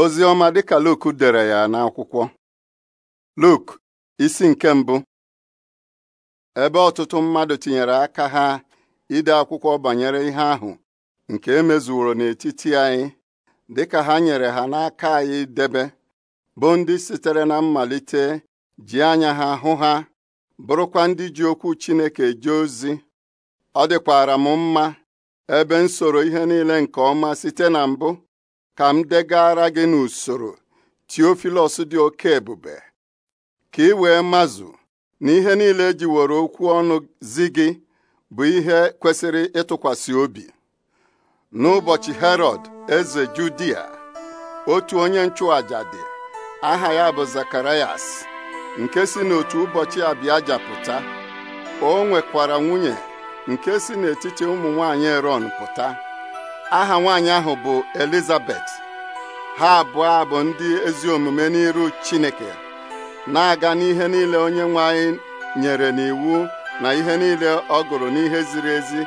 ozi ọma dịka Luk dere ya n'akwụkwọ Luk isi nke mbụ ebe ọtụtụ mmadụ tinyere aka ha ide akwụkwọ banyere ihe ahụ nke e mezuoro n'etiti anyị dịka ha nyere ha n'aka anyị debe bụ ndị sitere na mmalite ji anya ha hụ ha bụrụkwa ndị ji okwu Chineke eje ozi ọ dịkwara m mma ebe nsoro ihe niile nke ọma site na mbụ ka m ara gị n'usoro Teofilos dị oke ebube ka ị wee mazụ na ihe niile were okwu ọnụ zi gị bụ ihe kwesịrị ịtụkwasị obi n'ụbọchị Herọd eze Judia otu onye nchụaja dị aha ya bụ Zakarayas nke si n'otu ụbọchị abịa pụta o nwekwara nwunye nke si n'etiti ụmụ nwanyị pụta aha nwaanyị ahụ bụ Elizabeth ha abụọ bụ ndị ezi omume n'iru Chineke na-aga n'ihe niile onye nwe anyị nyere n'iwu na ihe niile ọ gụrụ n'ihe ziri ezi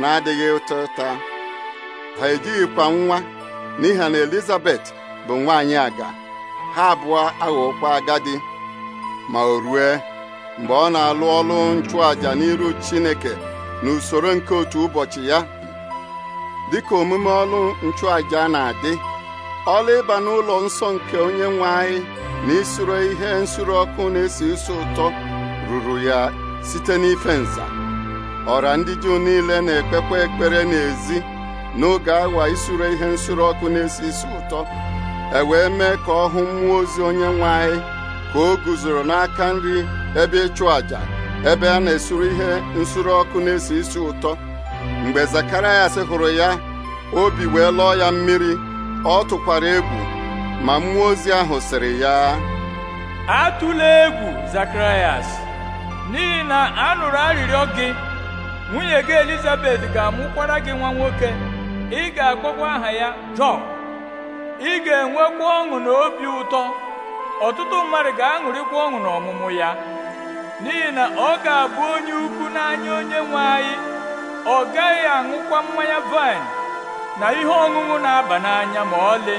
na-adịghị ụtọ ụta ha ejighịkwa nwa n'ihi na Elizabeth bụ nwaanyị aga ha abụọ aghọkwa agadi ma o rue mgbe ọ na-alụ ọlụ nchụàjà n'iru Chineke n'usoro nke otu ụbọchị ya dịka omume ọlụ nchụàjà na-adị ọlụ ịba n'ụlọ nsọ nke onye nwe anyị na isuro ihe nsure ọkụ na-esi isi ụtọ ruru ya site n'ife nza ọra ndị Juu niile na-ekpekwa ekpere ezi n'oge awa isuro ihe nsure ọkụ na-esi isi ụtọ e wee mee ka ọ hụ mmụọ ozi onye nwe anyị ka o guzoro n'aka nri ebe ịchụ àjà ebe a na esoro ihe nsure ọkụ na-esi isi ụtọ mgbe Zakarayas hụrụ ya obi wee lụọ ya mmiri ọ tụkwara egwu ma mmụọ ozi ahụ sịrị ya atụla egwu Zakarayas n'ihi na a nụrụ arịrịọ gị nwunye gị Elizabeth ga-amụkwara gị nwa nwoke ị ga-akpọkwa aha ya Jọn ị ga-enwekwa ọṅụ na obi ụtọ ọtụtụ mmadụ ga-aṅụrịkwa ọṅụ n'ọmụmụ ya n'ihi na ọ ga-abụ onye ukwu n'anya onye nwe anyị ọ gaghị aṅụkwa mmanya vaịn na ihe ọṅụṅụ na-aba n'anya ma ọlị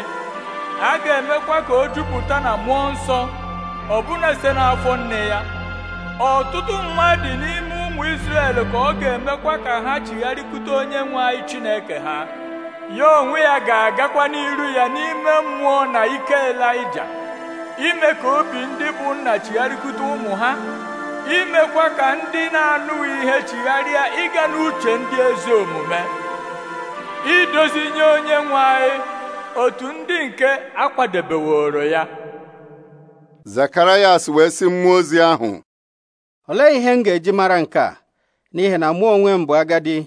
a ga-emekwa ka o jupụta na mmụọ nsọ ọbụna site n'afọ nne ya ọtụtụ mmadụ n'ime ụmụ Izrel ka ọ ga-emekwa ka ha chigharịkwute onye nwe anyị Chineke ha ya onwe ya ga-agakwa n'iru ya n'ime mmụọ na ike ime ka obi ndị bụ nna chigharịkwute ụmụ ha imekwa ka ndị na-anụghị ihe chigharịa ịga n'uche ndị ezi omume idozi nye onye nwe otu ndị nke akwadebeworo ya Zakarayas wee sị mmụọ ozi ahụ olee ihe m ga-eji mara nke a n'ihi na mụ onwe m bụ agadi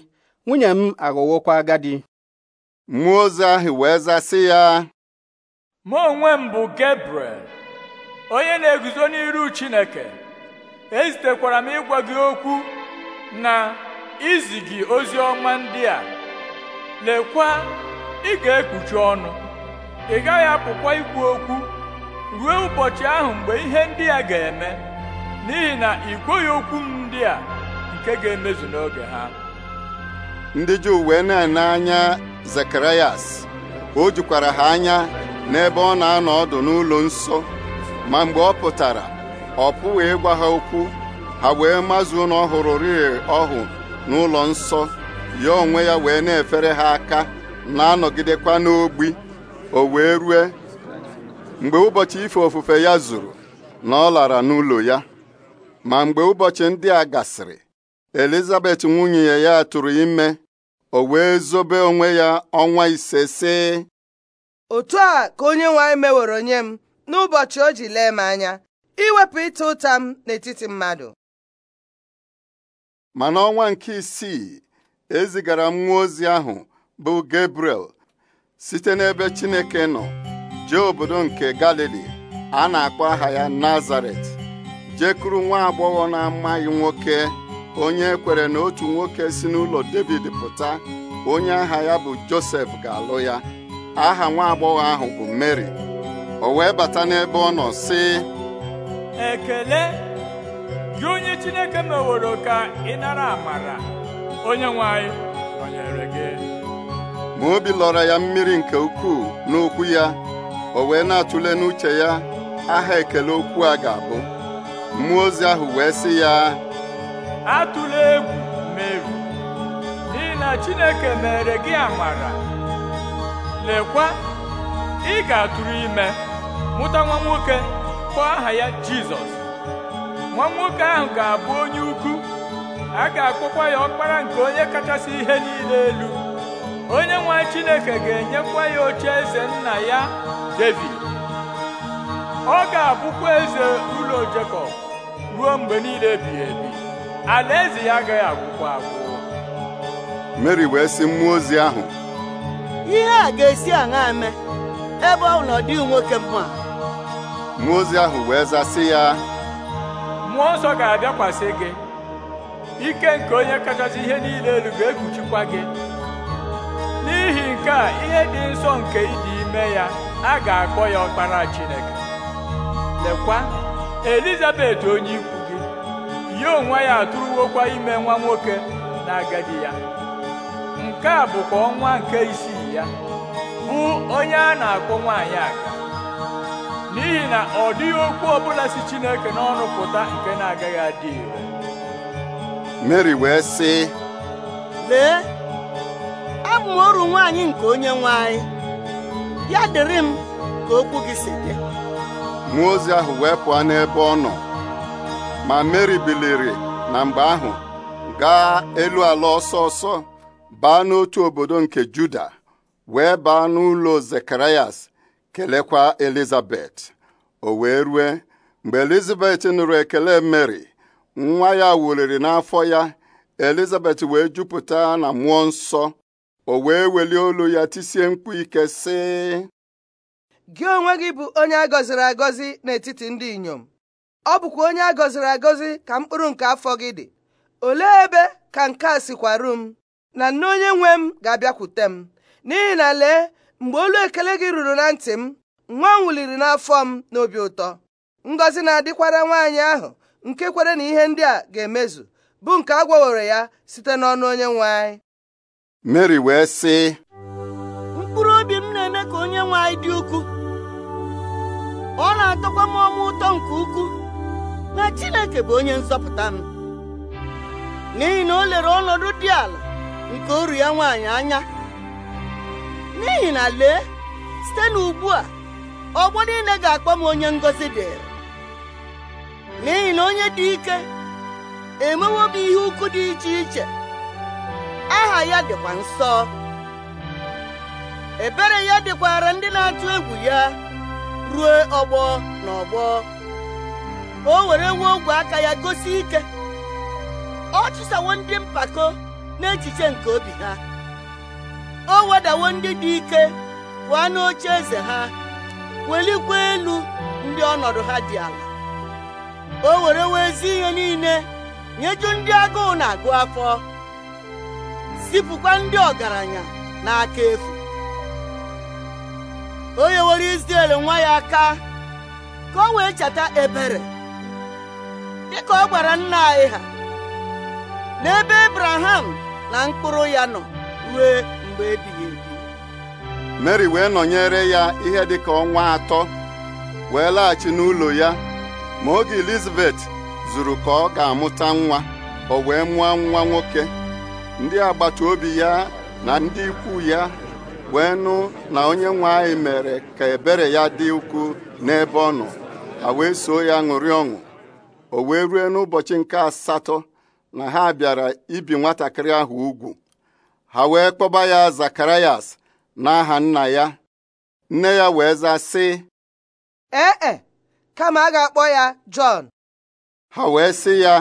nwunye m aghọwokwa agadi mmụọ ozi ahụ wee zasị ya mụ onwe m bụ Gabriel onye na-eguzo n'iru Chineke ezitekwara m ịgwa gị okwu na izi gị ozi ọma ndị a lekwa ị ga-ekpuchi ọnụ ị gaghị apụkwa ikwu okwu ruo ụbọchị ahụ mgbe ihe ndị a ga-eme n'ihi na ị kweghị okwu m ndị a nke ga-emezu n'oge ha ndị Juu wee na-ene anya Zekarayas o jukwara ha anya n'ebe ọ na-anọ ọdụ n'ụlọ nsọ ma mgbe ọ pụtara ọ pụghị ịgwa ha okwu ha wee mazuo na ọ hụrụ ọhụ n'ụlọ nsọ ya onwe ya wee na-efere ha aka na-anọgidekwa n'ogbi o wee rue mgbe ụbọchị ife ofufe ya zuru na ọ lara n'ụlọ ya ma mgbe ụbọchị ndị a gasịrị Elizabeth nwunye ya tụrụ ime o wee zobe onwe ya ọnwa ise sị otu a ka onye nwe anyị meworo nye m n'ụbọchị o ji lee m anya iwepụ ịta ụta m n'etiti mmadụ ma n'ọnwa nke isii ezigara nwa ozi ahụ bụ Gabriel site n'ebe Chineke nọ jee obodo nke Galili a na-akpọ aha ya Nazaret jekuru nwa agbọghọ na-amaghị nwoke onye kwere na otu nwoke si n'ụlọ David pụta onye aha ya bụ Josef ga-alụ ya aha nwa agbọghọ ahụ bụ Mary o wee bata n'ebe ọ nọ sị ekele gị onye chineke meworo ka ị nara amara onye nwe nọnyere gị ma obi lọrọ ya mmiri nke ukwuu n'okwu ya o wee na-atụle n'uche ya aha ekele okwu a ga-abụ mmụọ ozi ahụ wee sị ya atụla egwu Meri n'ihi na Chineke mere gị amara lekwa ị ga-atụrụ ime mụta nwa nwoke ga-akpọ aha ya jizọs nwa nwoke ahụ ga-abụ onye ukwu a ga-akpọkwa ya ọkpara nke onye kachasị ihe niile elu onye nwe chineke ga-enyekwa ya oche eze nna ya david ọ ga-abụkwa eze ụlọ jekọb ruo mgbe niile ebighị ebi alaeze ya agaghị agwụkwa agwụ mary wee sị mmụọ ozi ahụ ihe a ga-esi aṅa eme ebe ọ nọ dị nwoke mma mmụọ ozi ahụ wee zasị ya mmụọ nsọ ga-abịakwasị gị ike nke onye kachasị ihe niile elu ga-ekpuchikwa gị n'ihi nke a ihe dị nsọ nke ịdị ime ya a ga-akpọ ya ọkpara Chineke lekwa Elizabet onye ikwu gị ya onwe ya atụrụwokwa ime nwa nwoke na agadi ya nke a bụkwa ọnwa nke isii ya bụ onye a na-akpọ nwaanyị aga n'ihi na ọ dịghị okwu ọbụla si Chineke n'ọnụ pụta nke na-agaghị adị ire Mary wee sị lee abụ m oru nwaanyị nke onye nwaanyị, ya dịrị m ka okwu gị si dị Mụọ ozi ahụ wee pụọ n'ebe ọ nọ ma Mary biliri na mgbe ahụ gaa elu ala ọsọ ọsọ baa n'otu obodo nke Juda wee baa n'ụlọ Zekarayas kelekwa elizabet o wee rue mgbe elizabet nụrụ ekele mary nwa ya wuliri n'afọ ya elizabet wee jupụta na mmụọ nsọ o wee welie olu ya tisie mkpu ike sị gị onwe gị bụ onye a gọziri agọzi n'etiti ndị inyom ọ bụkwa onye a gọziri agọzi ka mkpụrụ nke afọ gị dị olee ebe ka nke a sikwaru m na nne onye nwe m ga-abịakwute m n'ihi na lee mgbe olu ekele gị ruru na ntị m nwa m wuliri n'afọ m n'obi ụtọ ngọzi na-adịkwara nwaanyị ahụ nke kwere na ihe ndị a ga-emezu bụ nke a gwawere ya site n'ọnụ onye nwe anyị Mary wee sị mkpụrụ obi m na-eme ka onye nwe anyị dị ukwuu ọ na-atọkwa m ọma ụtọ nke ukwuu na Chineke bụ onye nzọpụta m n'ihi na o lere ọnọdụ dị ala nke oru ya nwaanyị anya n'ihi na lee site n'ugbu a ọgbọ niile ga-akpọ m onye ngọzi dị n'ihi na onye dị ike emewo m ihe ukwu dị iche iche aha ya dịkwa nsọ ebere ya dịkwara ndị na-atụ egwu ya ruo ọgbọ na ọgbọ o were nwe ogwe aka ya gosi ike ọ chụsawo ndị mpako n'echiche nke obi ha o wedawo ndị dị ike pụọ n'oche eze ha welikwa elu ndị ọnọdụ ha dị ala o were wee ezi ihe niile nyeju ndị agụụ na-agụ afọ zipụkwa ndị ọgaranya n'aka efu o nyewere Izrel nwa ya aka ka o wee cheta ebere dịka ọ gwara nna anyị ha n'ebe Abraham na mkpụrụ ya nọ ruo mgbe wee nọnyere ya ihe dịka ọnwa atọ wee laghachi n'ụlọ ya ma oge Elizabeth zuru ka ọ ga-amụta nwa o wee mụọ nwa nwoke ndị agbata obi ya na ndị ikwu ya wee nụ na onye nwe anyị mere ka ebere ya dị ukwuu n'ebe ọ nọ ha wee soo ya ṅụrị ọṅụ o wee rue n'ụbọchị nke asatọ na ha bịara ibi nwatakịrị ahụ ugwu ha wee kpọba ya zakarayas n'aha nna ya nne ya wee zaa sị ee e, kama a ga-akpọ ya jọn ha wee sị ya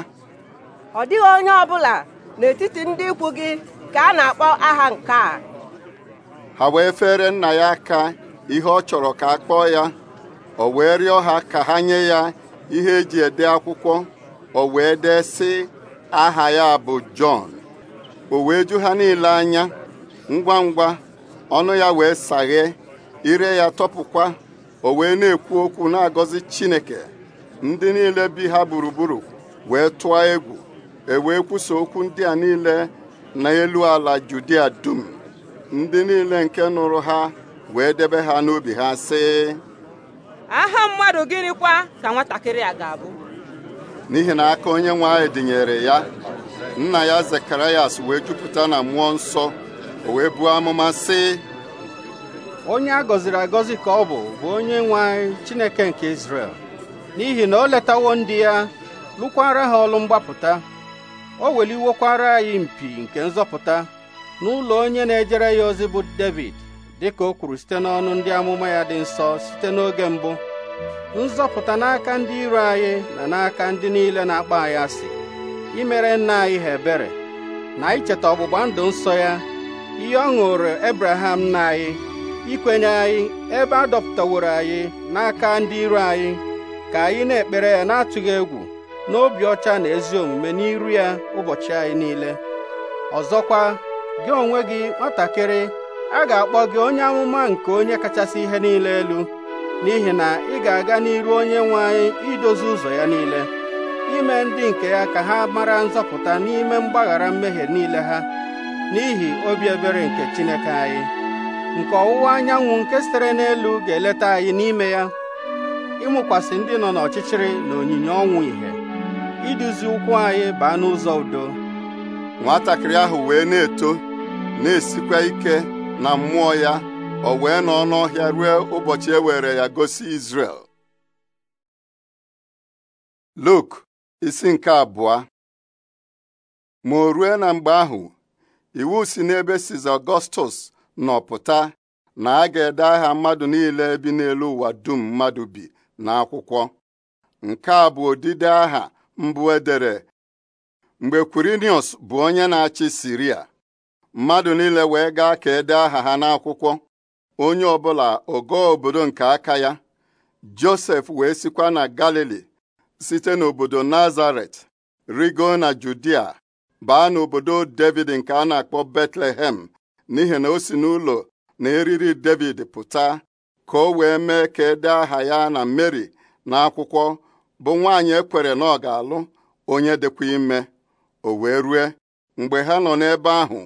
ọ dịghị onye ọbụla n'etiti ndị ikwu gị ka a na-akpọ aha nke a ha wee fere nna ya aka ihe ọ chọrọ ka a kpọọ ya ọ wee rịọ ha ka ha nye ya ihe eji ede akwụkwọ o wee dee sị aha ya bụ jọn o wee ju ha niile anya ngwa ngwa ọnụ ya wee saghee ire ya tọpụkwa o wee na-ekwu okwu na-agọzi Chineke ndị niile bi ha gburugburu wee tụọ egwu e wee okwu ndị a niile n'elu ala Judia dum ndị niile nke nụrụ ha wee debe ha n'obi ha sị aha mmadụ gịnịkwa ka nwatakịrị a ga-abụ n'ihi na aka onye nwe anyị dịnyere ya nna ya Zekarayas wee jupụta na mmụọ nsọ o wee buo amụma sị onye a gọziri agọzi ka ọ bụ bụ onye nwe anyị Chineke nke Izrel n'ihi na o letawo ndị ya lụkwara ha ọlụ mgbapụta o weliwokwara anyị mpi nke nzọpụta n'ụlọ onye na-ejere ya ozi bụ David dịka o kwuru site n'ọnụ ndị amụma ya dị nsọ site n'oge mbụ nzọpụta n'aka ndị iro anyị na n'aka ndị niile na-akpa anyị asị imere nna anyị ha ebere na icheta ọgbụgba ndụ nsọ ya ihe ọ ṅụrụ Ebraham nna anyị ikwenye anyị ebe a dọpụtaworo anyị n'aka ndị iro anyị ka anyị na-ekpere ya na-atụghị egwu n'obi ọcha na ezi omume n'iru ya ụbọchị anyị niile ọzọkwa gị onwe gị nwatakịrị a ga-akpọ gị onye amụma nke onye kachasị ihe niile elu n'ihi na ị ga-aga n'iru onye nwe anyị idozi ụzọ ya niile ime ndị nke ya ka ha mara nzọpụta n'ime mgbaghara mmehie niile ha n'ihi obi ebere nke Chineke anyị nke ọwụwa anyanwụ nke sitere n'elu ga-eleta anyị n'ime ya ịmụkwasị ndị nọ n'ọchịchịrị na onyinye ọnwụ ìhè iduzi ụkwụ anyị baa n'ụzọ udo nwatakịrị ahụ wee na-eto na-esikwa ike na mmụọ ya o wee nọ n'ọhịa ruo ụbọchị e were ya gosi Izrel Luk isi nke abụọ ma o rue na mgbe ahụ iwu si n'ebe siz Ọgọstus nọ pụta na a ga-ede aha mmadụ niile bi n'elu ụwa dum mmadụ bi n'akwụkwọ nke a bụ odide aha mbụ edere mgbe Quirinius bụ onye na-achị Siria mmadụ niile wee gaa ka ede aha ha n'akwụkwọ onye ọbụla ogo obodo nke aka ya Josef wee sikwa na Galili site n'obodo Nazaret rigo na Judia baa n'obodo David nke a na-akpọ Betlehem n'ihi na o si n'ụlọ na eriri David pụta ka o wee mee ka ede aha ya na Mary n'akwụkwọ bụ nwaanyị ekwere na ọ ga-alụ onye dịkwa ime o wee rue mgbe ha nọ n'ebe ahụ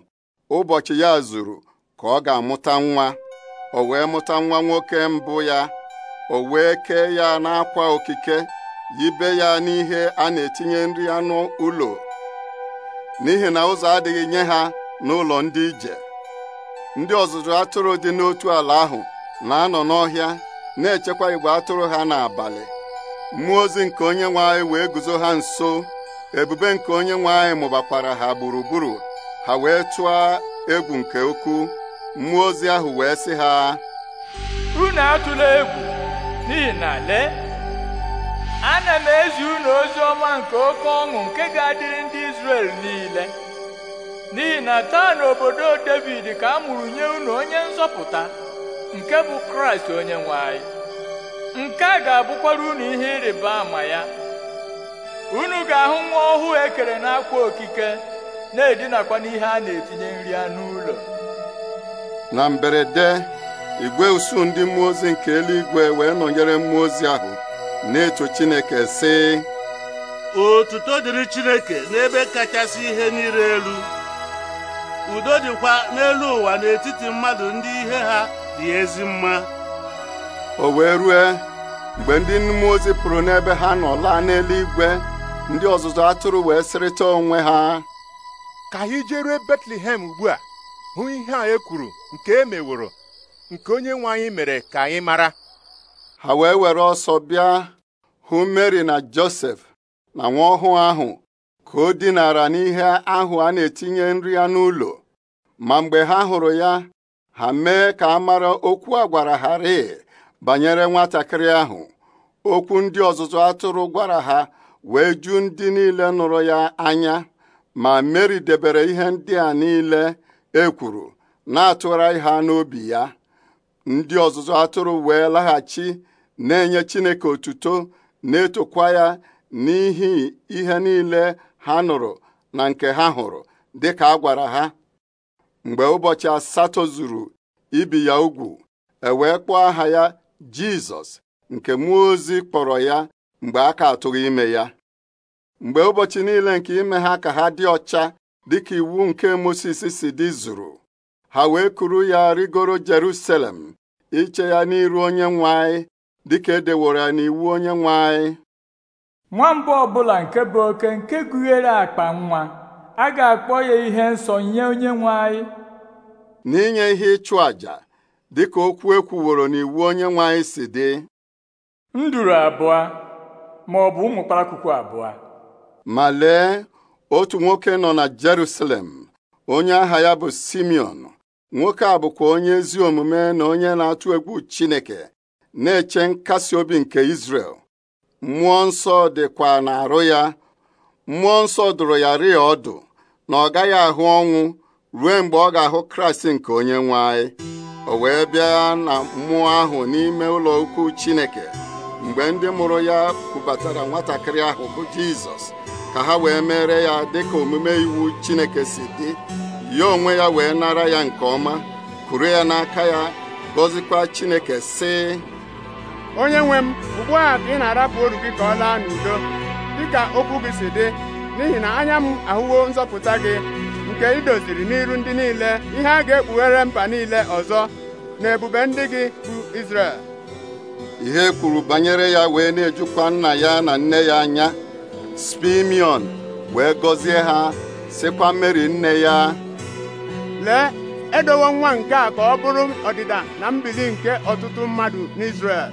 ụbọchị ya zuru ka ọ ga-amụta nwa o wee mụta nwa nwoke mbụ ya o wee kee ya n'akwa okike yibe ya n'ihe a na-etinye nri anụ ụlọ n'ihi na ụzọ adịghị nye ha n'ụlọ ndị ije ndị ọzụzụ atụrụ dị n'otu ala ahụ na-anọ n'ọhịa na-echekwa igwe atụrụ ha n'abalị mmụọ ozi nke onye nwe wee guzo ha nso ebube nke onye nwe mụbakwara ha gburugburu ha wee tụọ egwu nke ukwu mmụọ ozi ahụ wee sị ha unu atụla egwu n'ihi na lee ana m ezi unu ozi ọma nke oke ọṅụ nke ga-adịrị ndị Izrel niile n'ihi na taa n'obodo David ka a mụrụ nye unu onye nzọpụta nke bụ Kraịst onye nwe anyị nke a ga-abụkwara unu ihe ịrịba ama ya unu ga-ahụ nwa ọhụụ ekere n'akwa okike na-edinakwa n'ihe a na-etinye nri anụ ụlọ na mberede igwe usuu ndị mmụọ ozi nke eluigwe wee nọnyere mmụọ ozi ahụ na-eto Chineke sị otuto dịrị Chineke n'ebe kachasị ihe niile elu udo dịkwa n'elu ụwa n'etiti mmadụ ndị ihe ha dị ezi mma o wee rue mgbe ndị mmụọ ozi pụrụ n'ebe ha nọ laa n'eluigwe ndị ọzụzụ atụrụ wee sịrịta onwe ha ka anyị jerue Betlehem ugbu a hụ ihe a e kwuru nke e meworo nke onye nwe anyị mere ka anyị mara ha wee were ọsọ bịa hụ Mary na Joseph na nwa ọhụụ ahụ ka o dinara n'ihe ahụ a na-etinye nri ya n'ụlọ ma mgbe ha hụrụ ya ha mee ka a mara okwu a gwara ha rịị banyere nwatakịrị ahụ okwu ndị ọzụzụ atụrụ gwara ha wee ju ndị niile nụrụ ya anya ma Mary debere ihe ndị a niile e kwuru na atụwara ha n'obi ya ndị ọzụzụ atụrụ wee laghachi na-enye Chineke otuto na-etokwa ya n'ihi ihe niile ha nụrụ na nke ha hụrụ dịka a gwara ha mgbe ụbọchị asatọ zuru ibi ya ugwu ewee kpọọ aha ya Jizọs nke mmụọ ozi kpọrọ ya mgbe a ka atụghị ime ya mgbe ụbọchị niile nke ime ha ka ha dị ọcha dịka iwu nke Mosis si dị zuru ha wee kuru ya rigoro Jerusalem iche ya n'iru onye nwe dịka edeworo ya n'iwu onye nwe anyị nwamba ọbụla nke bụ oke nke gụnyere akpa nwa a ga-akpọ ya ihe nsọ nye onye nwe anyị n'inye ihe ịchụ àjà dịka okwu ekwuworo n'iwu onye nwe anyị si dị nduru abụọ ma ọ bụ ụmụ kpalakwukwu abụọ ma lee otu nwoke nọ na Jerusalem onye aha ya bụ Simeon nwoke a bụkwa onye ezi omume na onye na-atụ egwu Chineke na-eche nkasi obi nke isrel mmụọ nsọ dịkwa n'arụ ya mmụọ nsọ dụrụ ya rịa ọdụ na ọ gaghị ahụ ọnwụ ruo mgbe ọ ga-ahụ Kraịst nke onye nwe anyị o wee bịa na mmụọ ahụ n'ime ụlọ ukwu Chineke mgbe ndị mụrụ ya kwubatara nwatakịrị ahụ bụ Jizọs ka ha wee mere ya dịka omume iwu Chineke si dị ya onwe ya wee nara ya nke ọma kuru ya n'aka ya gọzikwa Chineke sị onye nwe m ugbu a ka ị na-arapụ oru gị ka ọ laa n'udo dịka okwu gị si dị n'ihi na anya m ahụwo nzọpụta gị nke idoziri doziri n'iru ndị niile ihe a ga-ekpughere mba niile ọzọ na ebube ndị gị bụ Izrel ihe kwuru banyere ya wee na-ejukwa nna ya na nne ya anya Spimion wee gọzie ha sịkwa Meri nne ya lee edowo nwa nke a ka ọ bụrụ ọdịda na mbili nke ọtụtụ mmadụ n'Izrel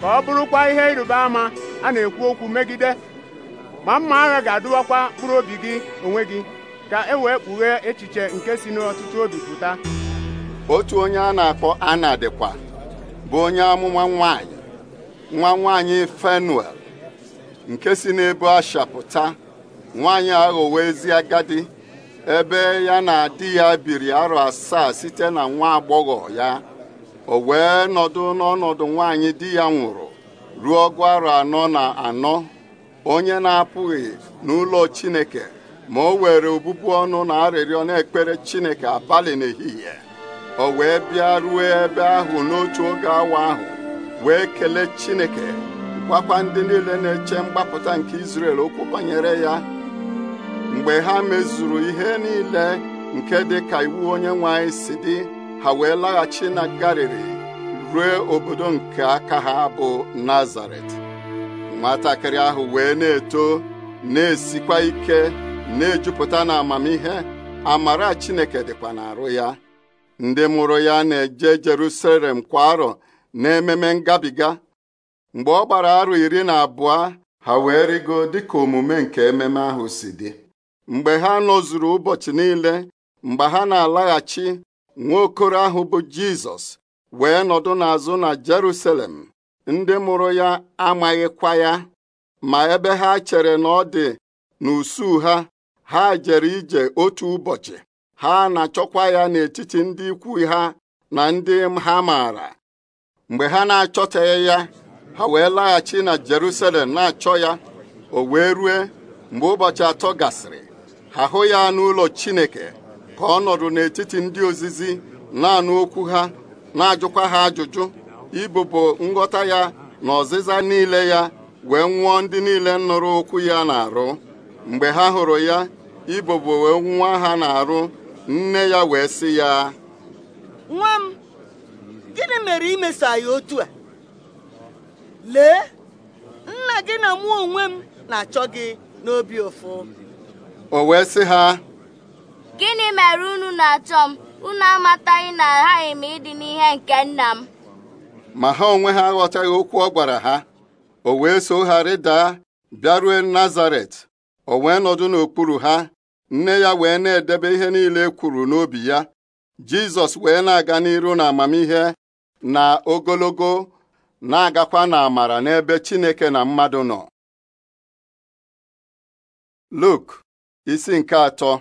ka ọ bụrụkwa ihe ịrịba ama a na-ekwu okwu megide ma mma agha ga-adụwakwa mkpụrụ obi gị onwe gị ka e wee kpughee echiche nke si n'ọtụtụ obi pụta otu onye a na-akpọ Ana dịkwa bụ onye amụma nwanyị nwa nwanyị Fenuel nke si n'ebe Asha pụta nwanyị aghọwo ezi agadi ebe ya na di ya biri arọ asaa site na nwa agbọghọ ya o wee nọdụ n'ọnọdụ nwaanyị di ya nwụrụ ruo ọgụ arọ anọ na anọ onye na-apụghị n'ụlọ Chineke ma o were obụbu ọnụ na arịrịọ na-ekpere Chineke abalị n'ehihie o wee bịa ruo ebe ahụ n'otu oge awa ahụ wee kelee Chineke gwakwa ndị niile na-eche mgbapụta nke Izrel okwu banyere ya mgbe ha mezuru ihe niile nke dị ka iwu onye nwe anyị si dị ha wee laghachi na Galili ruo obodo nke aka ha bụ Nazaret nwatakịrị ahụ wee na-eto na-esikwa ike na-ejupụta na amamihe amara Chineke dịkwa n'arụ ya ndị mụrụ ya na-eje Jerusalem kwa arọ na ememe ngabiga mgbe ọ gbara arụ iri na abụọ ha wee rigo dịka omume nke ememe ahụ si dị mgbe ha nọzuru ụbọchị niile mgbe ha na-alaghachi nwaokoro ahụ bụ Jizọs wee nọdụ n'azụ na Jerusalem ndị mụrụ ya amaghịkwa ya ma ebe ha chere na ọ dị n'usuu ha ha jere ije otu ụbọchị ha na-achọkwa ya n'etiti ndị ikwu ha na ndị ha maara mgbe ha na achọtaghị ya ha wee laghachi na Jerusalem na-achọ ya o wee rue mgbe ụbọchị atọ gasịrị ha hụ ya n'ụlọ Chineke ka ọ nọrọ n'etiti ndị ozizi na okwu ha na-ajụkwa ha ajụjụ ibubo nghọta ya na ọzịza niile ya wee nwụọ ndị niile nụrụ okwu ya na-arụ mgbe ha hụrụ ya ibobo wee nwa ha na-arụ nne ya wee sị ya nwa m gịnị mere imeso otu a lee nna gị na mụọ onwe m na-achọ gị n'obi ụfụ o wee sị ha gịnị mere unu na-achọ m unu amataghị na aghaghị m ịdị n'ihe nke nna m ma ha onwe ha aghọtaghị okwu ọ gwara ha o wee so ha rịdaa bịarue nazaret o wee nọdụ n'okpuru ha nne ya wee na-edebe ihe niile ekwuru kwuru n'obi ya jizọs wee na-aga n'iru na amamihe na ogologo na-agakwa na amara n'ebe chineke na mmadụ nọ Luk isi nke atọ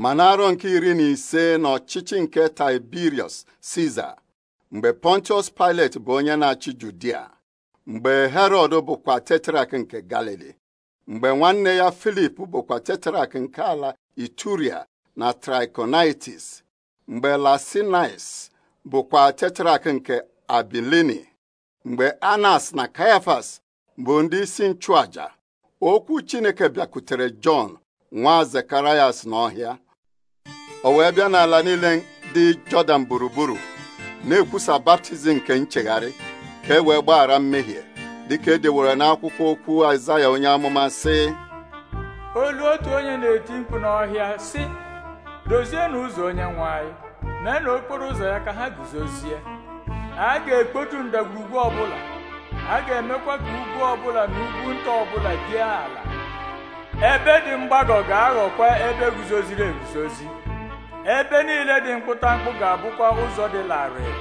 ma n'arọ nke iri na ise n'ọchịchị nke Tiberius Caesar mgbe Pontius Pilate bụ onye na-achị Judia mgbe Herod bụkwa tetrak nke Galili mgbe nwanne ya Filip bụkwa tetrak nke ala Ituria na Trichonitis; mgbe Lasinais bụkwa tetrak nke Abilini mgbe Anas na Caiaphas bụ ndị isi nchụaja okwu Chineke bịakwutere Jọn nwa zekarayas n'ọhịa o wee bịa n'ala niile dị jọdan gburugburu na-ekwusa baptizim nke nchegharị ka e wee gbaghara mmehie dịka e dewere n'akwụkwọ okwu aịzaya onye amụma sị olu otu onye na-eti mkpu n'ọhịa sị dozie n'ụzọ onye nwanyị mee na okporo ụzọ ya ka ha guzozie a ga-ekpotu ndagwurugwu ọbụla a ga-emekwa ka ugwu ọbụla na ugwu nta ọbụla dị ala ebe dị mgbagọ ga-aghọkwa ebe guzoziri eguzozi ebe niile dị mkpụtamkpụ ga-abụkwa ụzọ dị larịị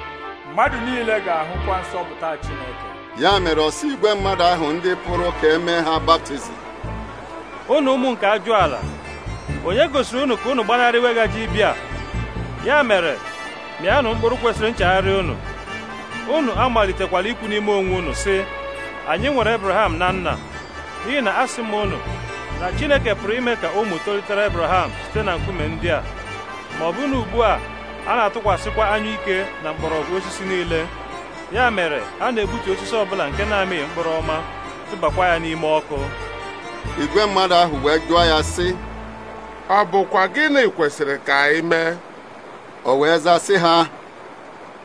mmadụ niile ga-ahụkwa nsọpụta Chineke ya mere ọsọ igwe mmadụ ahụ ndị pụrụ ka emee ha baptizim unu ụmụ nke ajụ ala onye gosiri unu ka unu gbanarị weghaji ibia ya mere mịanụ mkpụrụ kwesịrị nchegharị unu unu amalitekwala ikwu n'ime onwe unu sị anyị nwere Abraham na nna n'ihi na asị m unu na Chineke pụrụ ime ka ụmụ tolitere Abraham site na nkume ndị a ma ọ bụ na ugbu a a na-atụkwasịkwa anya ike na mgbọrọgwụ osisi niile ya mere a na-egbutu osisi ọbụla nke na-amịghị mkpụrụ ọma tụbakwa ya n'ime ọkụ igwe mmadụ ahụ wee jụọ ya sị ọ bụkwa gịnị kwesịrị ka anyị mee o wee sị ha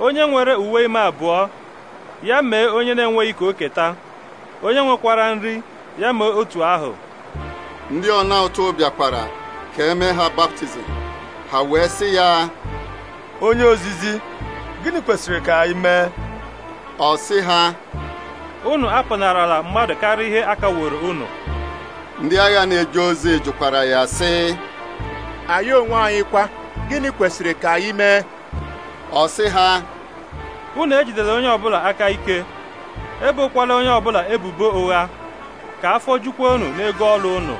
onye nwere uwe ime abụọ ya mee onye na-enweghị ka o keta onye nwekwara nri ya mee otu ahụ ndị ọna ụtụ bịakwara ka eme ha baptizim ha wee sị ya onye ozizi gịnị kwesịrị ka anyị mee ọ sị ha unu apụnarala mmadụ karịa ihe akaworo unu ndị agha na-eje ozi jụkwara ya sị anyị onwe anyị kwa gịnị kwesịrị ka anyị mee ọ sị ha unu ejidela onye ọbụla aka ike ebokwala onye ọbụla ebubo ụgha ka afọ jukwa unu n'ego ọrụ unu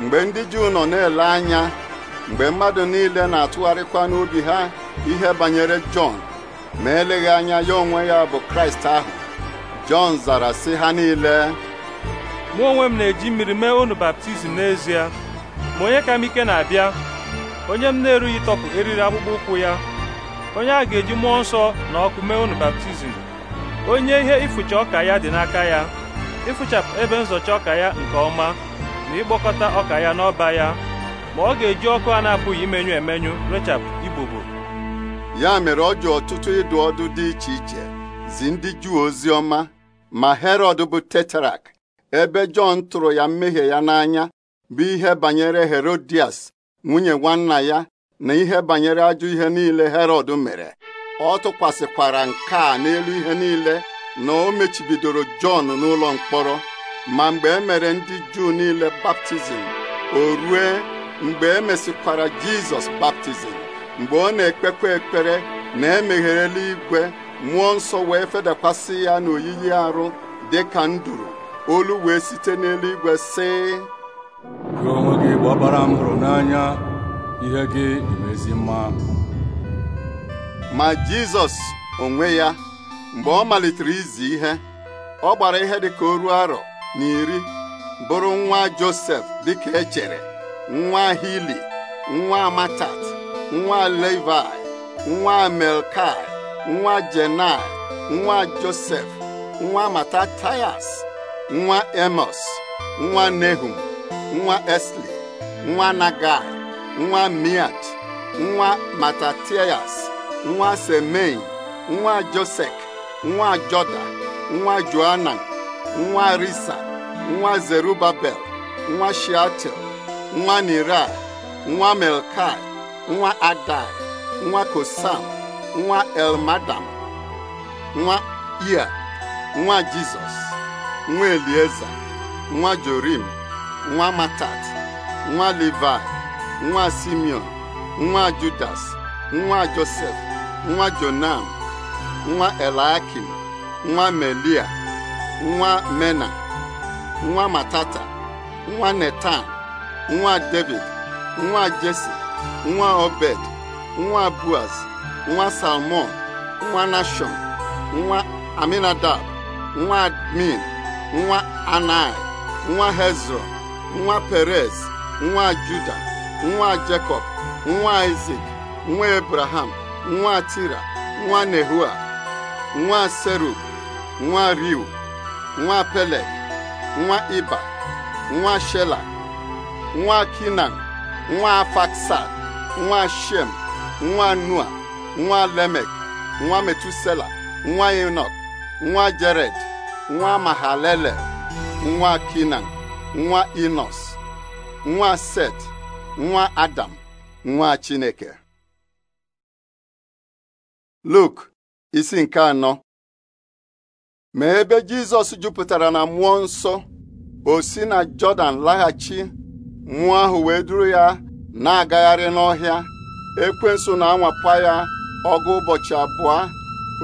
mgbe ndị Juu nọ na-ele anya mgbe mmadụ niile na-atụgharịkwa n'obi ha ihe banyere Jọn ma eleghị anya ya onwe ya bụ Kraịst ahụ Jọn zara si ha niile mụ onwe m na-eji mmiri mee unu baptizim n'ezie ma onye ka m ike na-abịa onye m na-erughị tọpụ eriri akpụkpọ ụkwụ ya onye a ga-eji mmụọ nsọ na ọkụ mee unu baptizim onye ihe ifucha ọka ya dị n'aka ya ịfụchapụ ebe nzọcha ọka ya nke ọma ma ịgbakọta ọka ya n'ọba ya ma ọ ga-eji ọkụ a na-apụghị imenyụ emenyụ rechapụ igbogbo ya mere ọ ji ọtụtụ ịdụ ọdụ dị iche iche zi ndị Juu ozi ọma ma Herọd bụ tetrak ebe Jọn tụrụ ya mmehie ya n'anya bụ ihe banyere Herodias nwunye nwanna ya na ihe banyere ajọ ihe niile Herọd mere ọ tụkwasịkwara nke a n'elu ihe niile na o mechibidoro Jọn n'ụlọ mkpọrọ ma mgbe e mere ndị juu niile baptizim o rue mgbe e mesikwara jizọs baptizim mgbe ọ na-ekpekwa ekpere na emeghere eluigwe mmụọ nsọ wee fedakwasị ya n'oyiyi arụ dị ka nduru olu wee site n'eluigwe si. gị gị gbabara m hụrụ n'anya ihe gị imezi ma jizọs onwe ya mgbe ọ malitere izi ihe ọ gbara ihe dị ka o ruo arọ N'iri bụrụ nwa Josef dịka echere nwa Hili nwa Matat, nwa Levi nwa Melkai nwa Jenai nwa Josef nwa Matatayas nwa Emos nwa Nehum nwa Esli nwa Nagai nwa Miat nwa Matataias, nwa semen nwa Josek nwa Joda nwa Joanan nwa risa nwa zerubabel nwa shiatel nwa nira nwa melkai nwa adai nwa kosam nwa elmadam nwa ia nwa jizọs nwa elieza nwa jorim nwa matat nwa livai nwa simeon nwa judas nwa josef nwa jonam nwa elakim nwa melia nwa mena nwa matata nwa netan nwa david nwa jesi nwa obed nwa buaz nwa salmon nwa nashon nwa aminadab nwa admin nwa anai nwa hezron nwa perez nwa juda nwa jacob nwa isak nwa abraham nwa tira nwa nehua nwa serub nwa riu nwa Pele, nwa Iba nwa Shela nwa Kinan nwa Faksad nwa Shem nwa Nua nwa Lemek nwa Metusela nwa Enok nwa Jared nwa mahalele nwa Kinan nwa Inos nwa Set nwa Adam nwa Chineke Luk isi nke anọ ma ebe Jizọs jupụtara na mmụọ nsọ o si na Jọdan laghachi nwa ahụ wee duru ya na-agagharị n'ọhịa ekwensu na -anwapụ ya ọgụ ụbọchị abụọ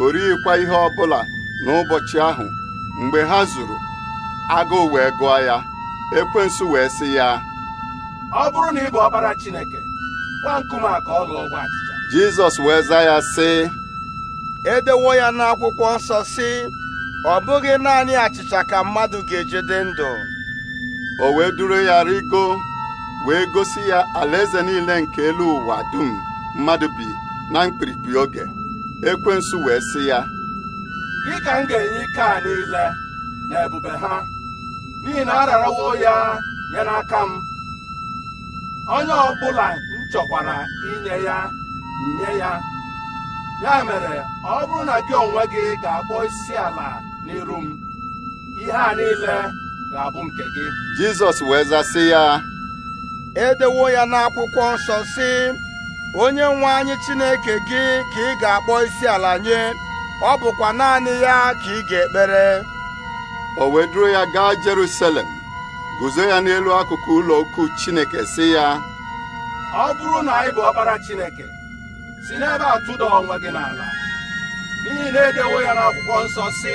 o ihe ihe ọbụla n'ụbọchị ahụ mgbe ha zuru agụụ wee gụọ ya ekwensu wee sị ya ọ bụrụ na ị bụ Chineke gwa ụgbọ achịcha. Jizọs wee zaa ya sị edewo ya n'akwụkwọ nsọ sị ọ bụghị naanị achịcha ka mmadụ ga-ejide ndụ o wee duru ya rigo wee gosi ya alaeze niile nke elu ụwa dum mmadụ bi na mkpirikpi oge ekwensu wee sị ya gị ka m ga-enye ike a niile na ebube ha n'ihi na ararawo ya nye n'aka m onye ọbụla m chọkwara inye ya nye ya ya mere ọ bụrụ na gị onwe gị ga-akpọ isi ala n'iru m ihe a niile ga-abụ nke gị jizọs wee zasị ya edewo ya n'akwụkwọ nsọ si, onye nwe anyị chineke gị ka ị ga-akpọ isi ala nye ọ bụkwa naanị ya ka ị ga-ekpere o wee ya gaa Jerusalem guzo ya n'elu akụkụ ụlọ ukwu Chineke si ya ọ bụrụ na ị bụ ọbara Chineke si n'ebe a tụda onwe gị n'ala n'ihi na edewo ya n'akwụkwọ nsọ si.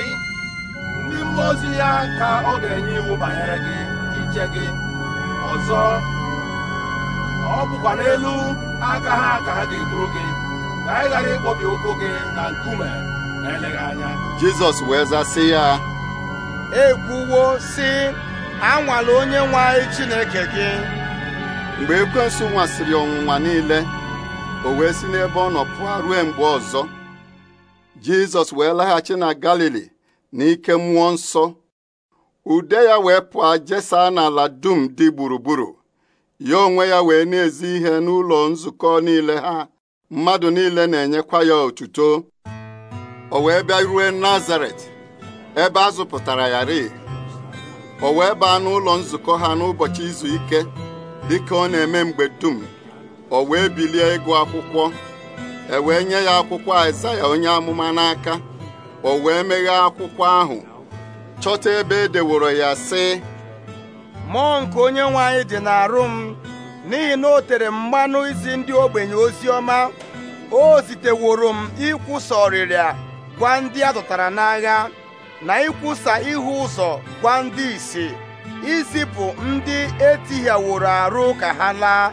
ndị mmụọ ozi ya ka ọ ga-enye iwu banyere gị iche gị ọzọ ọ bụkwa n'elu aka ha ka ha ga-eduru gị ka anyị ghara ịkpọbi ụkwụ gị na nkume na eleghị anya jizọs wee zaa sị ya ekwuwo sị anwala onye nwe anyị chineke gị mgbe ekwensu nwasịrị ọnwụnwa niile o wee si n'ebe ọ nọ pụọ ruo mgbe ọzọ jizọs wee laghachi na galili n'ike mmụọ nsọ ude ya wee pụọ jesaa n'ala dum dị gburugburu ya onwe ya wee na-ezi ihe n'ụlọ nzukọ niile ha mmadụ niile na-enyekwa ya otuto o wee bịa ruo Nazaret ebe a zụpụtara ya o wee baa n'ụlọ nzukọ ha n'ụbọchị izu ike ka ọ na-eme mgbe dum o wee bilie ịgụ akwụkwọ e wee nye ya akwụkwọ ya onye amụma n'aka o wee meghe akwụkwọ ahụ chọta ebe e deworo ya sị mmụọ nke onye nwe anyị dị n'arụ m n'ihi na o tere mmanụ izi ndị ogbenye ozi ọma o ziteworo m ikwusa ọrịrịa gwa ndị a zụtara n'agha na ikwusa ihu ụzọ gwa ndị isi izipụ ndị etighaworo arụ ka ha laa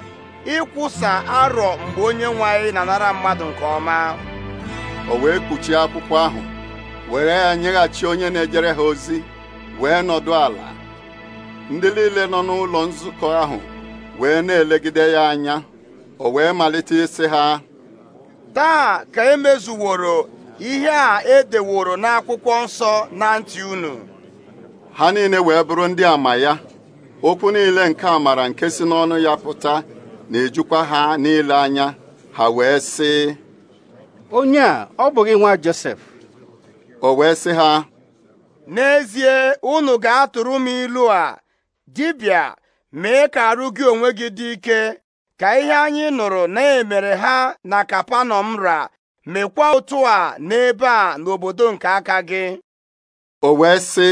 ịkwụsa arọ mgbe onye nwe anyị na-anara mmadụ nke ọma o wee kpuchie akwụkwọ ahụ were ya nyeghachi onye na-ejere ha ozi wee nọdụ ala ndị niile nọ n'ụlọ nzukọ ahụ wee na-elegide ya anya o wee malite isi ha taa ka emezuworo ihe a edeworo n'akwụkwọ nsọ na ntị unu ha niile wee bụrụ ndị ama ya okwu niile nke amara nke si n'ọnụ ya pụta na-ejukwa ha niile anya ha wee sị onye a ọ bụghị nwa Josef o wee sị ha n'ezie unu ga-atụrụ m ilu a dibịa mee ka arụ gị onwe gị dị ike ka ihe anyị nụrụ na-emere ha na m ra mekwa otu a n'ebe a n'obodo nke aka gị o wee sị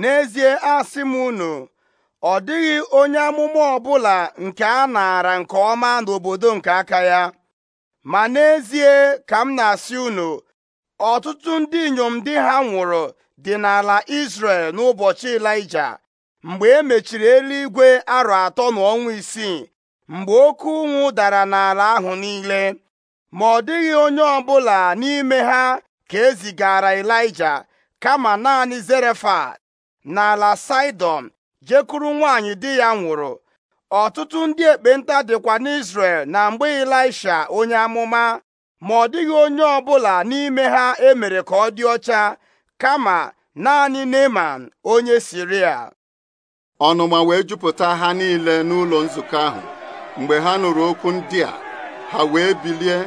n'ezie asị m unu ọ dịghị onye amụma ọbụla nke a nara nke ọma n'obodo nke aka ya ma n'ezie ka m na-asị unu ọtụtụ ndị inyom di ha nwụrụ dị n'ala isrel n'ụbọchị Ịlaịja mgbe e mechiri eluigwe arọ atọ na ọnwa isii mgbe oke ụnwụ dara n'ala ahụ niile ma ọ dịghị onye ọbụla n'ime ha ka e zigara Ịlaịja kama naanị Zerefat n'ala Saịdọn jekuru nwaanyị di ya nwụrụ ọtụtụ ndị ekpenta dịkwa n'Izrel na mgbe Ịlaisha onye amụma ma ọ dịghị onye ọ bụla n'ime ha emere ka ọ dị ọcha kama naanị Neman onye siri Siria ọnụma wee jupụta ha niile n'ụlọ nzukọ ahụ mgbe ha nụrụ okwu ndị a ha wee bilie